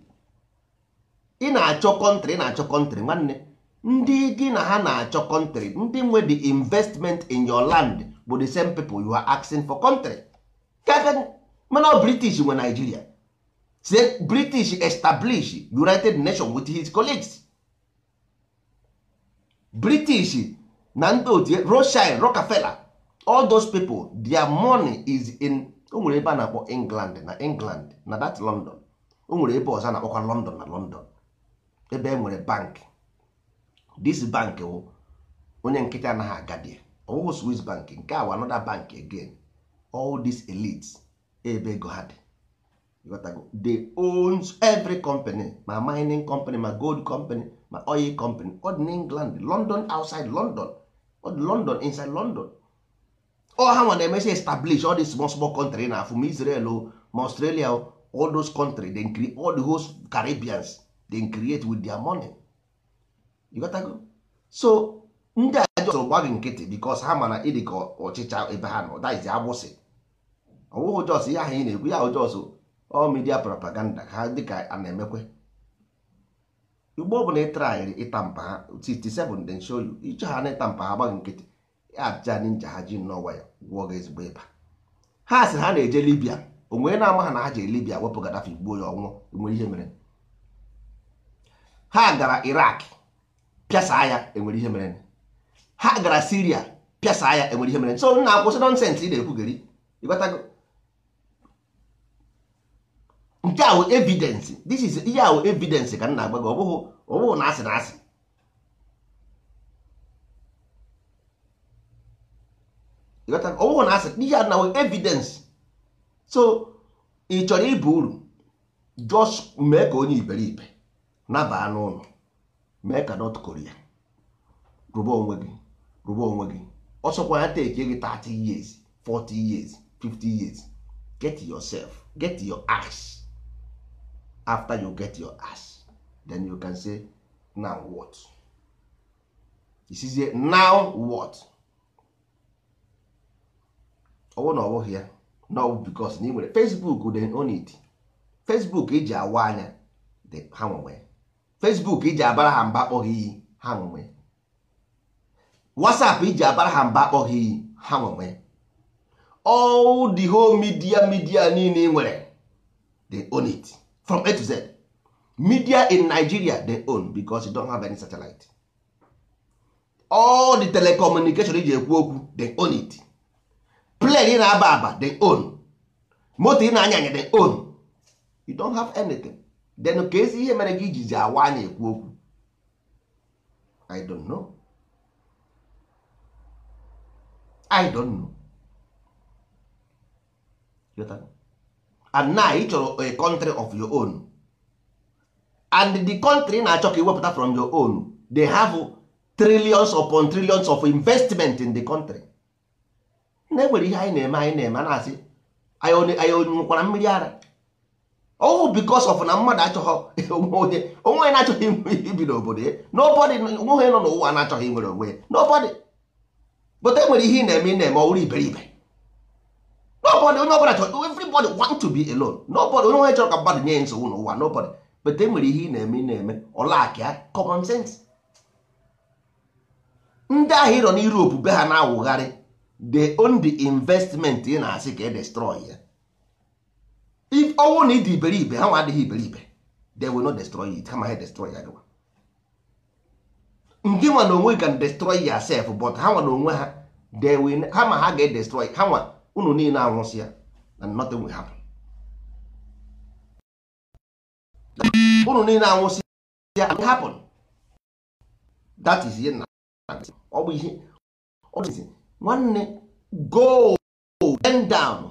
ị na-achọ kọntri ị na-achọ kọntri nwanne ndị gị na ha na-achọ kọntri ndị nwe the investment in your land bụ the same people you are asking for country mana british nwe nigeria say british establish united nations with his colleagues british na ndị otu rothschild rockefeller all those people their money is in o nwere ebe a na-akpọ england na england na that london o nwere ebe ọzọ a na-akpọkwa london na london ebe e nwere bank this bank wụ onye nkịtị anaghị agadi ọwụghụ swiss bank nke a bank again all these elites ebe ego ha dị they owns every company ma mining company ma gold company ma oil company ọ dị n'england london outside london ọ dị london inside london ọ ha nwa na-emesi establish all these small small country na afọ ma israel oh, ma australia or oh, all those country dey create all the host caribbeans dey create with their money you go so ndị a jọsọ gba gị nkịtị because ha mana ịdị ka ọchịcha ebe ha nọ that is agbụsị ọwụghị jos ihe ahụ ị na-ekwu ya ahụ jos all media propaganda ha dịka a na-emekwe igbo ọ bụla ịtraịrị ịta mpa ha 67 den show you ịchọ ha na ịta mpa ha gbaghị nkịtị ajija ndị nja ha ji n'ọwa ya gwụọ gị ezigbo ịba ha sị ha na-eje libia onwere na-ama ha na ha jere libia wepụ gadafi gbuo ya ọnwụ enwere ihe mere ha gara irak pịasa ya enwere ihe mere ha gara siria pịasa ya enwere ihe mere so na akwụsị nọnsensị ị na-ekwu gari ịgbatago nke ahụ wụ evidence this is ihe a evidence ka m na-agba gị ọ bụghị na asị na asị ọ na asị ihe a na evidence so ị chọrọ ịba uru just mee ka onye iberibe nabaa n'ụlọ mee ka North Korea rụba onwe gị rụba onwe gị ọsọkwa ya take gị 30 years 40 years 50 years get yourself get your ass after you get your ass then you can say now what isizie now what ọwụ na ọbụghị ya na ọbụ bikos na ị nwere facebook dị onid facebook iji e awa anya dị ha nwere facebook iji e abara ha mba akpọghị iyi ha nwere whatsapp iji e abara ha mba akpọghị iyi ha nwere all the whole media media niile ị nwere dị onid from A to Z media in Nigeria they own because you don have any satellite all the telecommunication iji ekwu okwu they own it plane na-aba aba they own moto ị na-anya anya they own you don't have anything then ka ihe mere gị ijizi awa anya ekwu okwu I don't know I don't know and now ị chọrọ a country of your own and the country na-achọ ka iwepụta from your own they have trillions upon trillions of investment in the country na enwere ihe anyị na-eme anyị na-eme a na-asị anyị onwukwara mmiri ara ọwụ oh, bikos of na mmadụ achọghọ onwe onye na-achọghị ibi n'obodo ya nobody onwe onye nọ n'ụwa na-achọghị inwere onwe ya nobody bụta enwere ihe ị na-eme ị na-eme ọwụrụ iberibe nobody onye ọbụla chọrọ everybody want to be alone nobody onye onye chọrọ ka mmadụ nye nsogbu n'ụwa nobody but e nwere ihe ị na-eme ị na-eme ọlakịa common sense ndị ahụ ịrọ na Europe be ha na-awụgharị the only investment ị na-asị ka e destroy ya if ọnwụ na ịdị iberibe ha nwa adịghị iberibe they will not destroy it kama ha destroy ya gịwa ndị nwa na onwe can destroy yourself but ha nwa na onwe ha they will ha ma ha ga-edestroy ha nwa unu niile anwụsịa and nothing will happen unu niile anwụsịa and happen that is ihe na ọ bụ ihe ọ bụ nwanne go bend down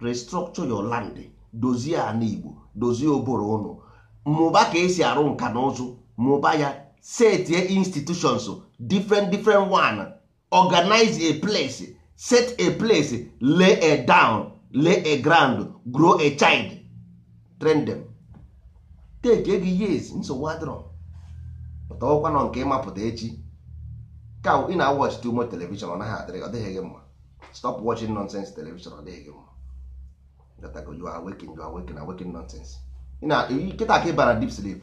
restructure your land dozie na Igbo dozie oboro unu mụba ka esi arụ nka na ụzụ mụba ya setie institutions different different one organize a place set a place lay a down lay a ground grow a child train them take ego years nsogbu adịrọ pụta ọkwa nọ nke ịmapụta echi ka ị na watch too much television ọ naghị adịrị ọ dịghị gị mma stop watching nonsense television ọ dịghị gị mma gatago you are waking you are waking waking nonsense kịta ka ịbara deep sleep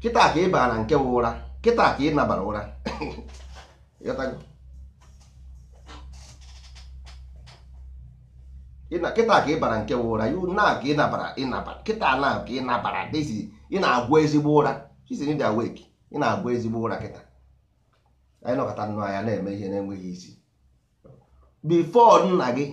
kịta ka ịbara nke ụra kịta ka ị nabara ụra (coughs) kịta ka ị bara nke ụra na ka ị nabara ịnabara kịta na ka ị nabara ị na-agwa ezigbo ụra d awake ị na-agwa ezigbo ụra kịta anyị nọkọta nnụ anya na-eme ihe na-enweghị isi before nna gị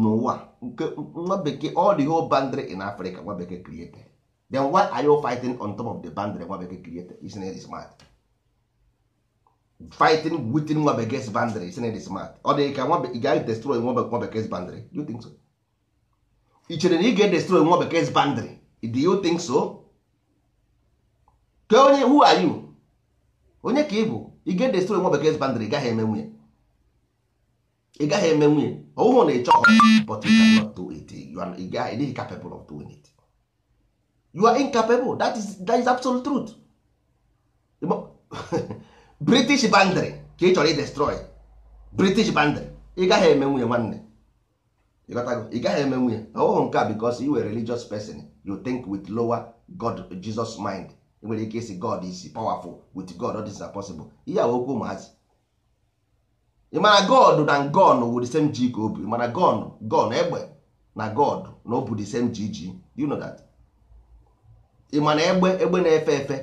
n'ụwa nke nwa bekee all the whole boundary in Africa nwa bekee created then why are you fighting on top of the boundary nwa bekee created isn't it smart fighting within nwa bekee boundary sin it smart ọ dị ka ị gaghị destroy nwa bekee boundary do you think so ị chere na ị ga-edestroy nwa bekee boundary do you think so Ke onye who are you onye ka ị bụ ị ga-edestroy nwa bekee boundary gaghị eme nwunye ị gaghị eme nwunye ọwụhụ na ịchọ but you cannot do it you are ịdịghị capable of doing it you are incapable that is, that is absolute truth (laughs) british bandry ka ị chọrọ idestroy british bandry ị gaghị eme nwunye nwanne ị gaghị eme nwunye ọhụrụ nke a because you were religious person you think with lower god jesus mind nwere ike isi god is powerful with god all things are possible ihe a okwu ụmụazị ị mana god na gon wụ the same ji ka o bu ị mana gon gon egbe na god na o bu the same ji ji you know that ị mana egbe egbe na-efe efe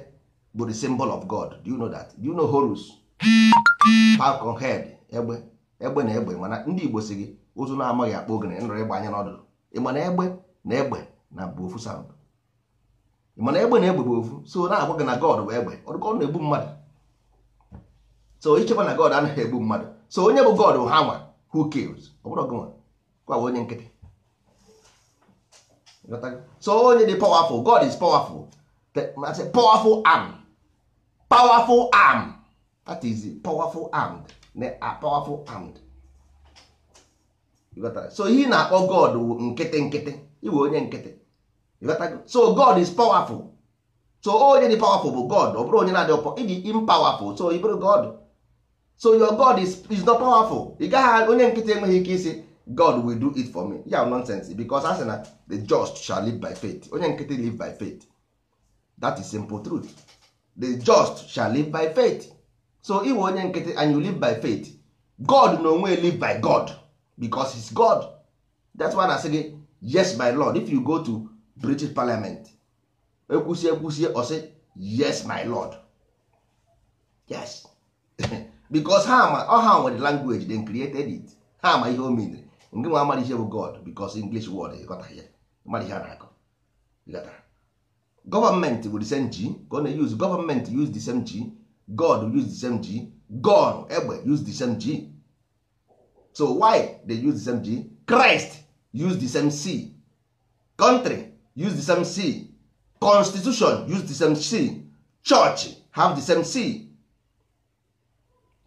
bụ the symbol of God do you know that do you know Horus falcon head egbe egbe na egbe mana ndị Igbo si gị ụzụ na-amaghị akpa ogene nrọ ịgba anya n'ọdụdụ ịma na egbe na egbe na bụ ofu sound ịma na egbe na egbe bụ ofu so na-agwa gị na God bụ egbe ọ na-egbu mmadụ so ichekwa na God anaghị egbu mmadụ so onye bụ God ha nwa who kills ọ bụrụ gị nwa kwa onye nkịtị so onye dị powerful God is powerful powerful arm powerful arm that is powerful armed n'a powerful armed so he na-akpọ god wụ nkịtị nkịtị iwe onye nkịtị so god is powerful so onye dị powerful bụ god ọ bụrụ onye na-adị ọpọ ịdị impowerful so ị bụrụ god so your god is, is not powerful ị gaghị onye nkịtị enweghị ike isi god will do it for me ya nonsense because a na the just shall live by faith onye nkịtị live by faith that is simple truth the just shall live by faith so iwe onye nkịtị and you live by faith god na onwe live by god because he's god that's why na asị gị yes my lord if you go to british parliament ekwusi ekwusie ọsị yes my lord yes (laughs) because ha ma ọ ha nwere language they created it ha ma ihe o mere ngị nwa amara ihe bụ god because english word ịghọta ya mara ihe a na-akọ ịghọtara gọọmenti wụ the same g ka ọ na-use gọọmenti use the same g god use the same g god egbe use the same g so why they use the same g christ use the same c country use the same c constitution use the same c church have the same c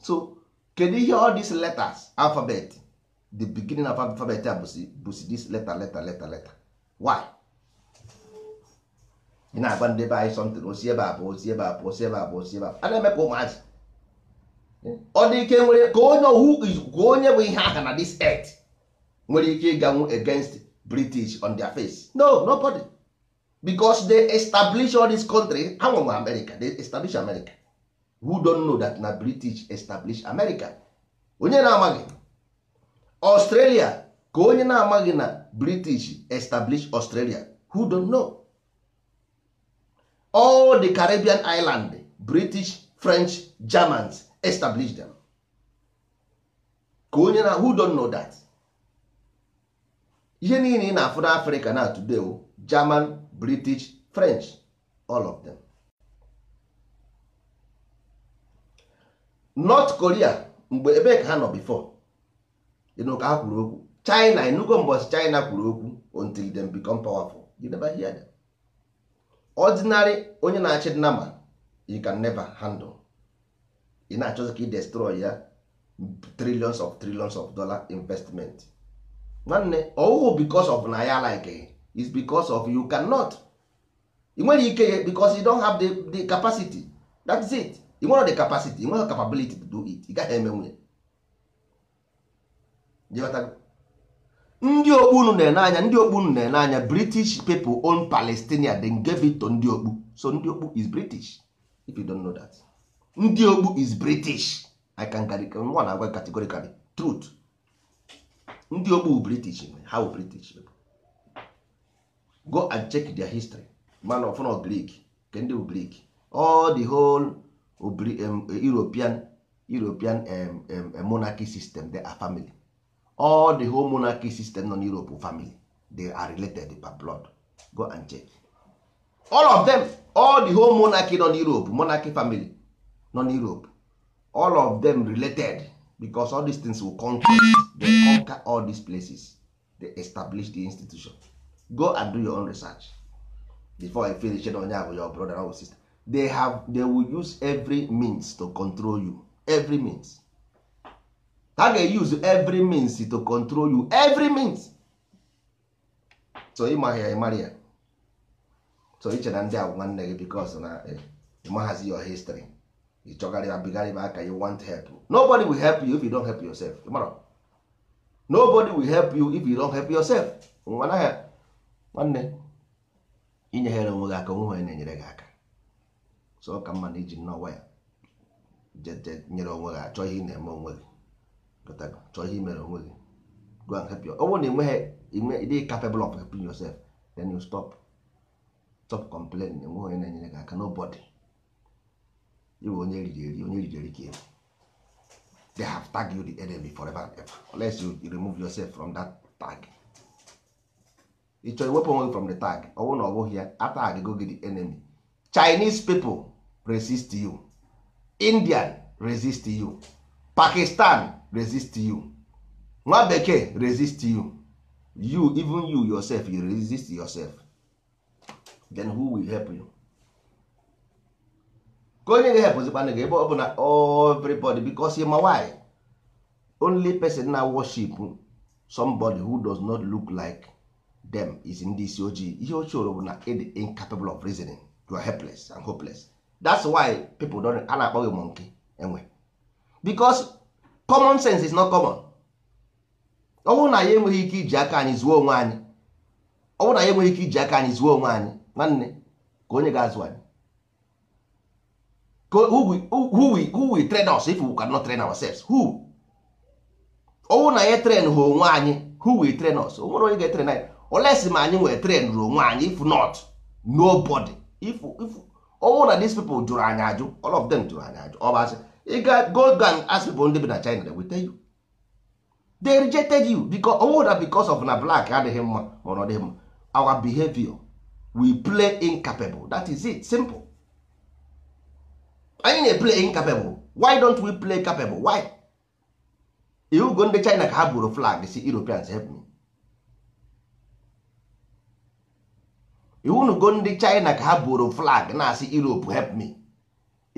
so kedu ihe all these letters alphabet the beginning of alphabet a bụsi this letter letter letter letter why ị na-agba ndị be anyị sọntịn osi ebe a pụ osi ebe a pụ osi ebe a osi ebe a a na-eme ka ụmụazị ọ dị ike nwere ka onye ohu onye bụ ihe aha na this earth nwere ike ịganwu against british on their face no nobody because they establish all this country ha nwenwe america they establish america who don't know that na british establish america onye na-amaghị australia ka onye na-amaghị na british establish australia who don't know all the caribbean island british french germans establish them ka onye na who don't know that ihe niile ị na-afụ na afrịka na today german british french all of them north korea mgbe ebe ka ha nọ before ịnụ ka ha kwuru okwu china enugo mbọchị china kwuru okwu until them become powerful you never hear them. ordinary onye na-achị nama you can never handle ị na-achọzi ka ị destroy ya trillions of trillions of dollar investment nwanne ọwụwụ because of na ya like is because of you cannot ị nwere ike ya because you don have the, capacity that is it ị nwere the capacity ị nwere capability to do it ị gaghị eme nwunye ndị okpu unu na-ene anya ndị okpu unu na-ene anya british people own palestinia then gave it to ndị okpu so ndị okpu is british if you don't know that ndị okpu is british i can carry nwa na agwa categorically truth ndị okpu british how british go and check their history man of no greek ke ndị greek all the whole european european um, um, monarchy system they are family all the whole monarchy system nọ n'europe family they are related by blood go and check all of them all the whole monarchy nọ n'europe monarchy family nọ n'europe all of them related because all these things will conquer they conquer all these places they establish the institution go and do your own research before i finish onye abụ your brother or sister they have they will use every means to control you every means ha ga use every means to control you every means so ịmaghị ya ya so iche na ndị agwụ nwanne gị bikos na eh, ịmaghazi your history ị chọgarịba bigarịba aka you want help nobody will help you if you don't help yourself ịmara nobody will help you if you don't help yourself nwa naghị nwanne inyeghere onwe gị aka onwe onye na-enyere gị aka so ọ ka mma na iji nnọwa ya nyere onwe gị achọ ihe ị na-eme onwe gị chọọ ihe imere onwe gị go and help your ọ bụrụ na enweghị ịdị capable of helping yourself then you stop stop complaining enweghị onye na-enyere gị aka nobody ịbụ onye riri eri onye riri eri ka efu they have tag you the enemy forever and ever unless you remove yourself from that tag ị chọrọ iwepụ onwe from the tag ọ bụrụ na ọ bụghị ya atag go gị the enemy Chinese people resist you Indian resist you Pakistan resist you nwa bekee resist you you even you yourself you resist yourself then who will help you ka onye ga-ehepụzikwana gị ebe ọ bụla everybody because ma why only person na worship somebody who does not look like them is ndị isi ojii ihe ochie bụ na ịdị incapable of reasoning you are helpless and hopeless that's why people don a na-akpọ gị monkey enwe common sense is not common ọ bụrụ na ya enweghị ike iji aka anyị zuo onwe anyị ọ bụrụ na anyị enweghị ike iji aka anyị zuo onwe anyị nwanne ka onye ga-azụ anyị who we train us if we cannot train ourselves who ọ bụrụ na ya train ha onwe anyị who we train us onwere onye ga-etrain anyị olesi ma anyị nwere train ru onwe anyị if not nobody if if ọ bụrụ na these people jụrụ anyị ajụ all of them jụrụ anyị ajụ ọ bụ asị ịga gold gang asị bụ ndị bi na China weta you they rejected you because ọ oh, wụrụ because of na black adịghị mma ma ọ dịghị mma our behavior we play incapable that is it simple anyị na play incapable why don't we play capable why go ndị China ka ha buru flag si Europeans help me go ndị China ka ha buru flag na-asị Europe help me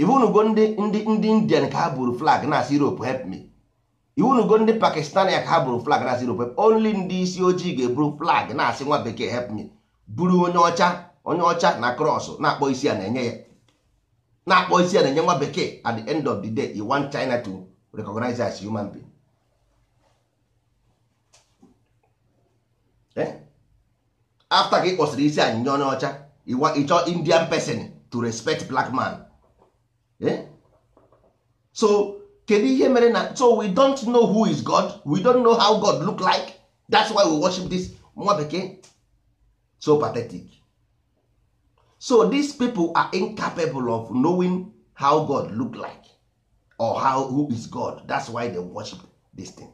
iwunugo ndị ndị ndị indian ka ha buru flag na asị europe help me iwunugo ndị pakistani ka ha buru flag na asị europe help only ndị isi ojii ga-eburu flag na asị nwa bekee help me buru onye ọcha onye ọcha na krọs na-akpọ isi a na-enye ya na-akpọ isi a na-enye nwa bekee at the end of the day you want china to recognize as human being eh? after ka ị kpọsịrị isi anyị nye onye ọcha ịchọ indian person to respect black man Eh? so kedu ihe mere na so we don't know who is god we don't know how god look like that's why we worship this nwa bekee so pathetic so these people are incapable of knowing how god look like or how who is god that's why they worship this thing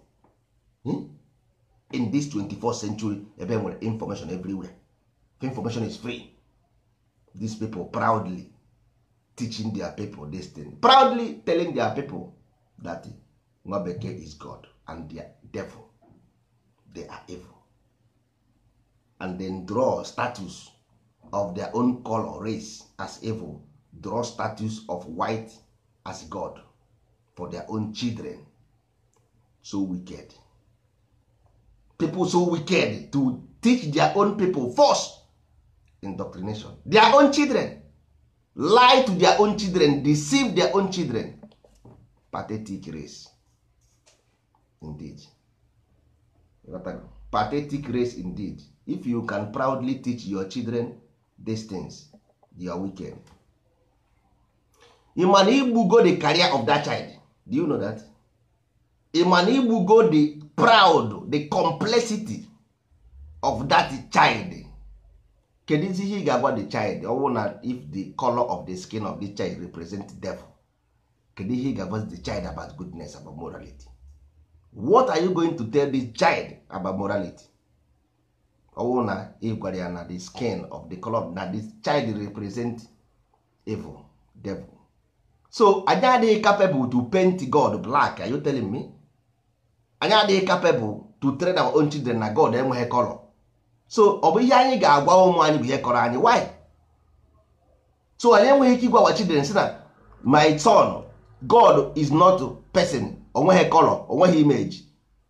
hmm? in this 24th century ebe nwere information everywhere information is free these people proudly teaching their people this thing proudly telling their people that nwa is god and their devil they are evil and then draw status of their own color race as evil draw status of white as god for their own children so wicked people so wicked to teach their own people first indoctrination their own children lie to their own children deceive their own children pathetic race indeed pathetic race indeed if you can proudly teach your children these things you are wicked ịma igbugo the career of that child do you know that ịma igbugo the proud the complexity of that child kedụzi ihe ị ga-agwa the child ọwụ na if the color of the skin of the child represent devil kedu ihe ị ga-agwa the child about goodness about morality what are you going to tell the child about morality ọwụ na if gwara ya na the skin of the color na the child represent evil devil so anyị adịghị capable to paint god black are you telling me anyị adịghị capable to train our own children na god enweghị color so ọ bụ ihe anyị ga-agwa ụmụ anyị bụ ihe kọrọ anyị why so anyị enweghị ike ịgwawa children si na my turn god is not person onweghị color onweghị image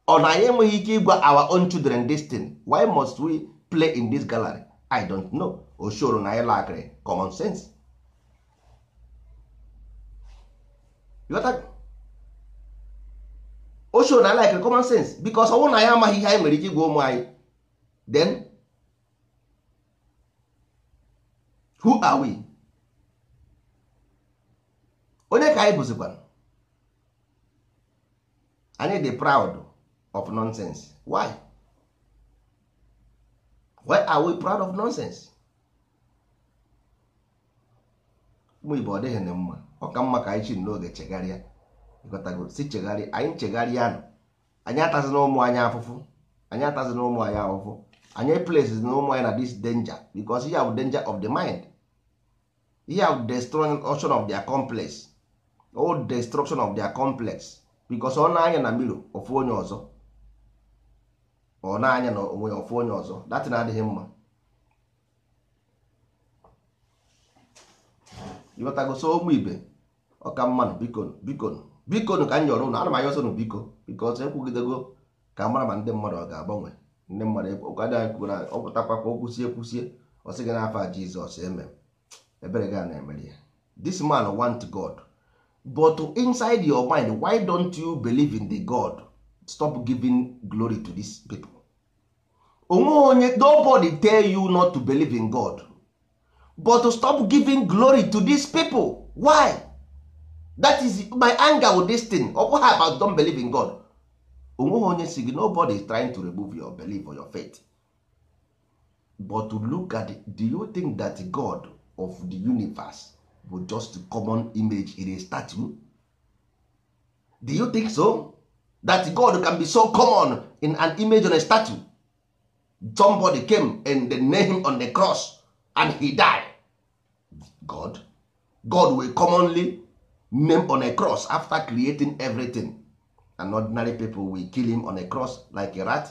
ọ na anyị enweghị ike ịgwa our own children this thing why must we play in this gallery i don't know o na anyị lakịrị common sense o na anyị lakịrị common sense because ọ bụrụ na anyị amaghị ihe anyị nwere ike ịgwa ụmụ anyị then who are we onye ka anyị bụzikwara anyị dị proud of nonsense why why are we proud of nonsense ụmụ igbo ọ dịghị na mma ọ ka mma ka anyị chi n'oge chegharịa ịghọtago si chegharịa anyị chegharịa nụ anyị atazi na ụmụ anyị afụfụ anyị atazi na ụmụ anyị afụfụ anyị places na ụmụ anyị na this danger because ya bụ danger of the mind ya destruction of their complex o oh, destruction of their complex because ọ na-anya na mmiri ofu onye ọzọ ọ na-anya na onwe ya ofu onye ọzọ datin adịghị mma ịghọtagoso ụmụ ibe ọka mmanụ bikon bikonu bikonu ka m nyọrọ ụnụ ana m anya ọsọ n biko biko ọsọ ekwugidego ka mara ma ndị mmadụ ọ ga-agbanwe ndị mmadụ ụka dị anyị kwuo na ọ pụtakwakwa o kwusie kwusie ọ sị gị n'afọ a Jizọs eme ebere ga na-emere ya this man want God but inside your mind why don't you believe in the God stop giving glory to these people onwe onye nobody tell you not to believe in God but to stop giving glory to these people why that is my anger with this thing ọ bụghị about don't believe in God onweghị onye si gị nobody is trying to remove your belief or your faith but to look at it, do you think that God of the universe bụ just common image in a statue do you think so that god can be so common in an image on a statue somebody came and they named him on the cross and he died god god will commonly name on a cross after creating everything and ordinary people will kill him on a cross like a rat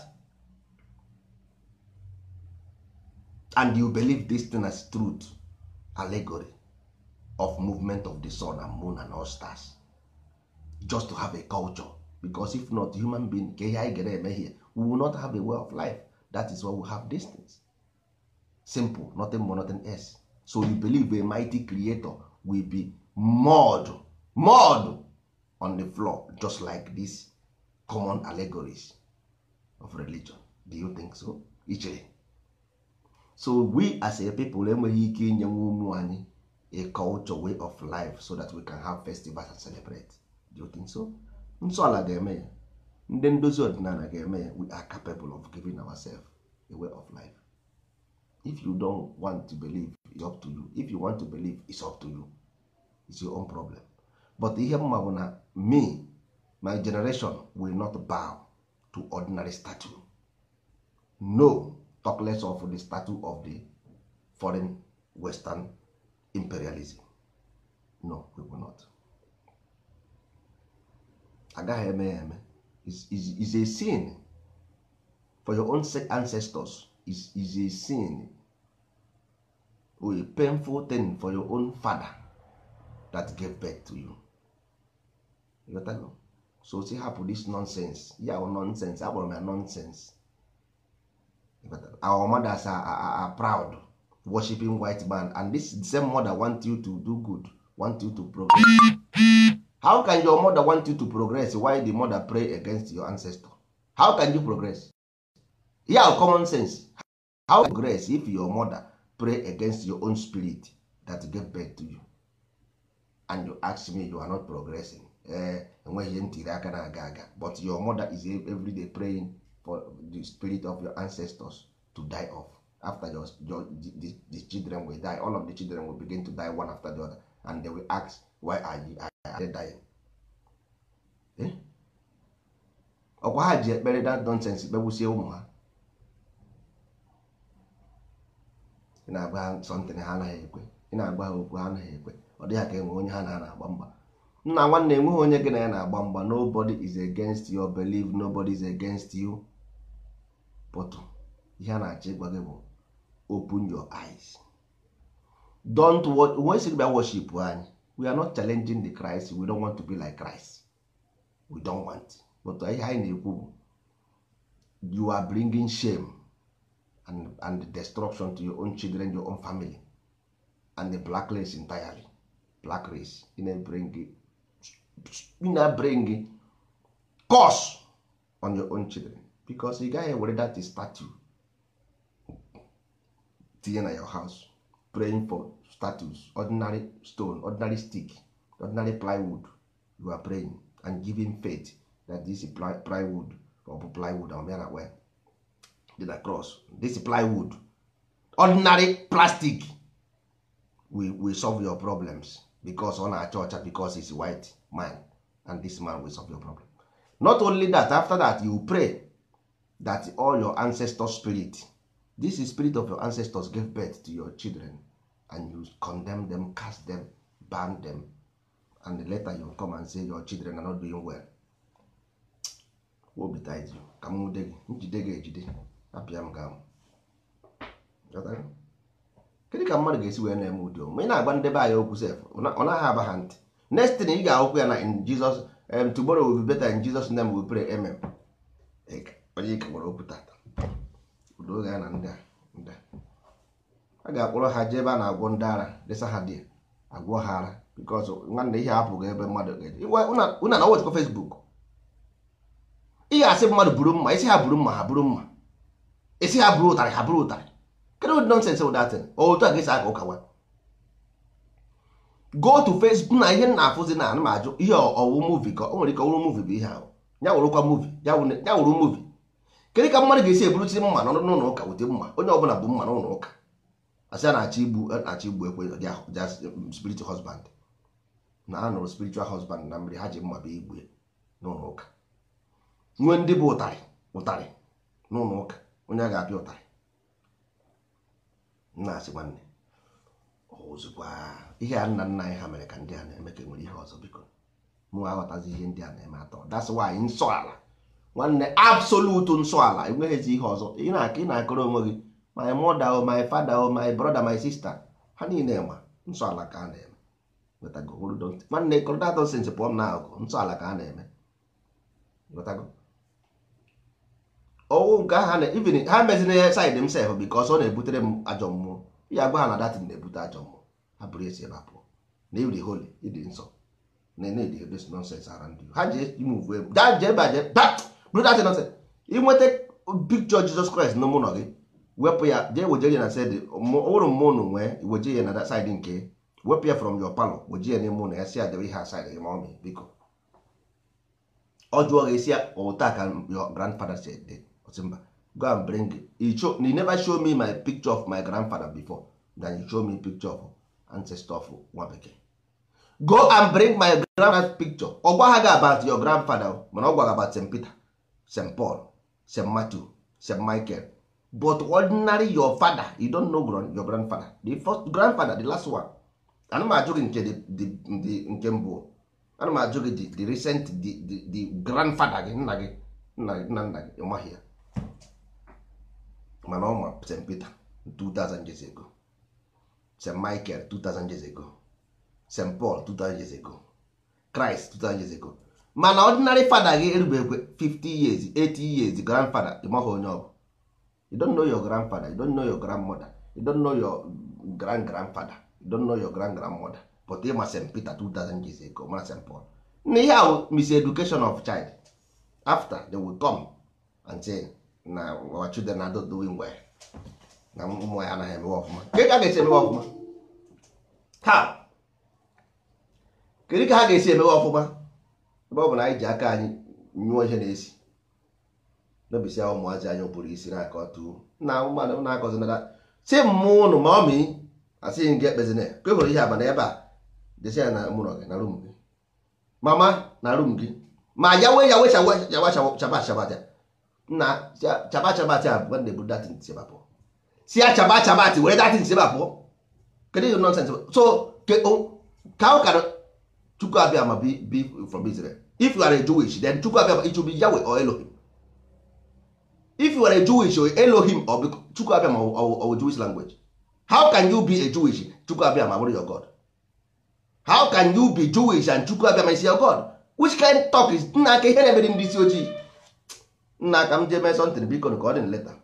and you believe this thing as truth allegory of movement of the sun and moon and all stars just to have a culture because if not human being ke ihe anyị eme here we will not have a way of life that is why we have distance simple nothing more nothing else so you believe a mighty creator will be mud mud on the floor just like these common allegories of religion do you think so ichere so we as a people enweghị ike inye nwa ụmụ anyị a culture way of life so that we can have festivals and celebrate do you think so Nsọala ala ga-eme ya ndị ndozi ọdịnala ga-eme ya we are capable of giving ourselves a way of life if you don't want to believe it's up to you if you want to believe it's up to you it's your own problem but ihe mma bụ na me my generation will not bow to ordinary statue no talk of the statue of the foreign western imperialism no we will not agaghị eme ya eme is a sin for your own ancestors is, is a sin or a painful thing for your own father that gave birth to you you got that? so si hapụ this nonsense ya yeah, nonsense akpọrọ m nonsense our mothers are, are, are proud worshiping white man and this same mother want you to do good want you to progress how can your mother want you to progress while the mother pray against your ancestor how can you progress yeah common sense how can you progress if your mother pray against your own spirit that get back to you and you ask me you are not progressing eh, enweghị ntiri aka na aga aga but your mother is everyday praying for the spirit of your ancestors to die off after your, your the, the children will die all of the children will begin to die one after the other and they will ask why are you are they dying eh? ọkwa ha ji ekpere that nonsense kpegbusie ụmụ ha ị na-agba ha sọntịn ha anaghị ekwe ị na-agba ha okwu ha anaghị ekwe ọ dịghị ka enwe onye ha na na-agba mgba nna nwanne enweghị onye gị na ya na-agba mgba nobody is against your belief nobody is against you pụtụ ihe a na-achọ ịgwa gị bụ open your eyes don't watch when sị bịa worship anyị we are not challenging the Christ we don't want to be like Christ we don't want but ihe anyị na-ekwu bụ you are bringing shame and, and destruction to your own children your own family and the black race entirely black race ị na-bring curse on your own children bikos ị gaghị ewere dat statu tinye na your house praying for status ordinary stone ordinary stick ordinary plywood you are praying and giving faith that this plywood or bụ plywood ọmịa na well did I cross this plywood ordinary plastic we, we solve your problems because ọ na-acha ọcha because it's white man and this man will solve your problem not only that after that you pray that all your ancestor spirit this is spirit of your ancestors gave birth to your children and you condemn them cast them ban them and later you come and say your children are not doing well obi tight you ka m nwude gị njide gị ejide apịa m ga kedu ka mmadụ ga-esi wee na-eme ụdị ma ị na-agba ndebe anyị okwu sef ọ naghị aba ha ntị next thing ị ga-ahụkwu ya na in Jesus um, tomorrow will be better in Jesus name we pray amen. onye ike gwara okwu tata oge a na ndị a ndị a ga-akpọrọ ha jee ebe a na-agwọ ndị ara desa ha dị agwọ ha ara bikọz nwanne ihe apụghị ebe mmadụ una na wechekwa fesbuk ị ga-asị mmadụ buru mma isi ha buru mma ha buru mma isi ha buru ụtarị ha buru ụtarị kedụ ụdị nọnsensị ụdatin otu a ga-esi aka ụka nwa go to facebook na ihe na-afụzi na anụ m ajụ ihe ọwụ muvi ka o nwere ike ọwụrụ muvi bụ ihe ahụ ya wụrụkwa muvi ya wụrụ muvi kedu ka mmadụ ga-esi eburụchi mma n'ụlọ ụka ụdị mma onye bụla bụ mma n'ụlọ ụka asị a na-achọ igbu na-achọ igbu ekwe um, spiritual husband na a nụrụ spiritual husband na mmiri ha ji mma bụ igbu n'ụlọ ụka nwee ndị bụ ụtarị ụtarị n'ụlọ ụka onye a ga-apịa ụtarị na-asị nwanne ozugbo ihe a nna nna anyị ha mere ka ndị a na-eme ka enwere ihe ọzọ biko mụ aghọtazi ihe ndị a na-eme atọ that's why nsọ ala nwanne absolute nsọala enweghịzi ihe ọzọ ị na-aka ị na-akọrọ onwe gị my mother my father o my brother my sister ha niile ma nsọala ka a na-eme nwanne kọrọdatọsins pụọ m agụ nsọala ka a na-eme ọnwụ nke ha na even ha mezina ya said m sef bikos ọ na-ebutere m ajọ mmụọ ya gwa ha na datin na-ebute ajọ mmụọ ha bụrụ esi ebe apụọ na ịdị holi ịdị nsọ na na-edi ebe nonsens ara ndị ha ji move ebe brother nothing inweta picture Jesus Christ na ụlọ gị wepụ ya jee weje ya na side ụrụ mmụọ unu nwee weje ya na side nke wepụ ya from your palọ weje ya n'ime ụlọ ya si ya debe ihe aside gị ma ọ biko ọ jụọ gị si ya ụta ka your grandfather eh, si ede mba go and bring it show you never show me my picture of my grandfather before then you show me picture of ancestor of nwa bekee go and bring my grandfather picture ọ gwa ha gị about your grandfather mana ọ gwa gị about St. Peter st paul st matthew st michael but ordinary your father you don't know your grandfather the first grandfather the last one ana m ajụ gị nke nke mbụ ana m ajụ gị the recent the grandfather gị nna gị nna nna gị ịmaghị ya mana ọ st peter 2000 years ago st michael 2000 years ago st paul 2000 years ago christ 2000 years ago mana ọdịnarị fada gị erubekwe 50 years 80 years grandfather ịmaghị onye ọbụ. bụ don't know your grandfather you don't know your grandmother you don't know your grand grandfather you don't know your grand grandmother but ịma st peter 2000 years ago ma st paul na ihe ahụ education of child after they will come and say na our children are not doing well na ụmụ ya anaghị emewe ọfụma nke ka a ga-esi emewe ọfụma ha kedu ka ha ga-esi emewe ọfụma ebe bụ na anyị ji aka anyị nyụọ ihe na-esi n'obisi ahụ ụmụazị anyị pụrụ isi na aka ọtụ na mmadụ na-akọzinara si mmụ ụnụ ma ọ mi asịghị m gị ekpezina ka e hụrụ ihe abana ebe a desi ya na mụrọ gị na rum gị mama na rum gị ma ya wee ya wee chaba chabata na chaba chabata a bụ na-ebu datin sebapụ si ya chaba chabati were datin sebapụ kedu ihe nọnsens so ka ọ kara chukwu abịa ma bi from Israel if you are a jewish then chukwu abịa it should be yahweh or elohim if you are a jewish or elohim or chukwu abịa ma or jewish language how can you be a jewish chukwu abịa ma your god how can you be jewish and chukwu abịa ma is your god which kind talk is nna aka ihe na-emere ndị isi ojii nna aka m jee mee something biko ka ọ dị leta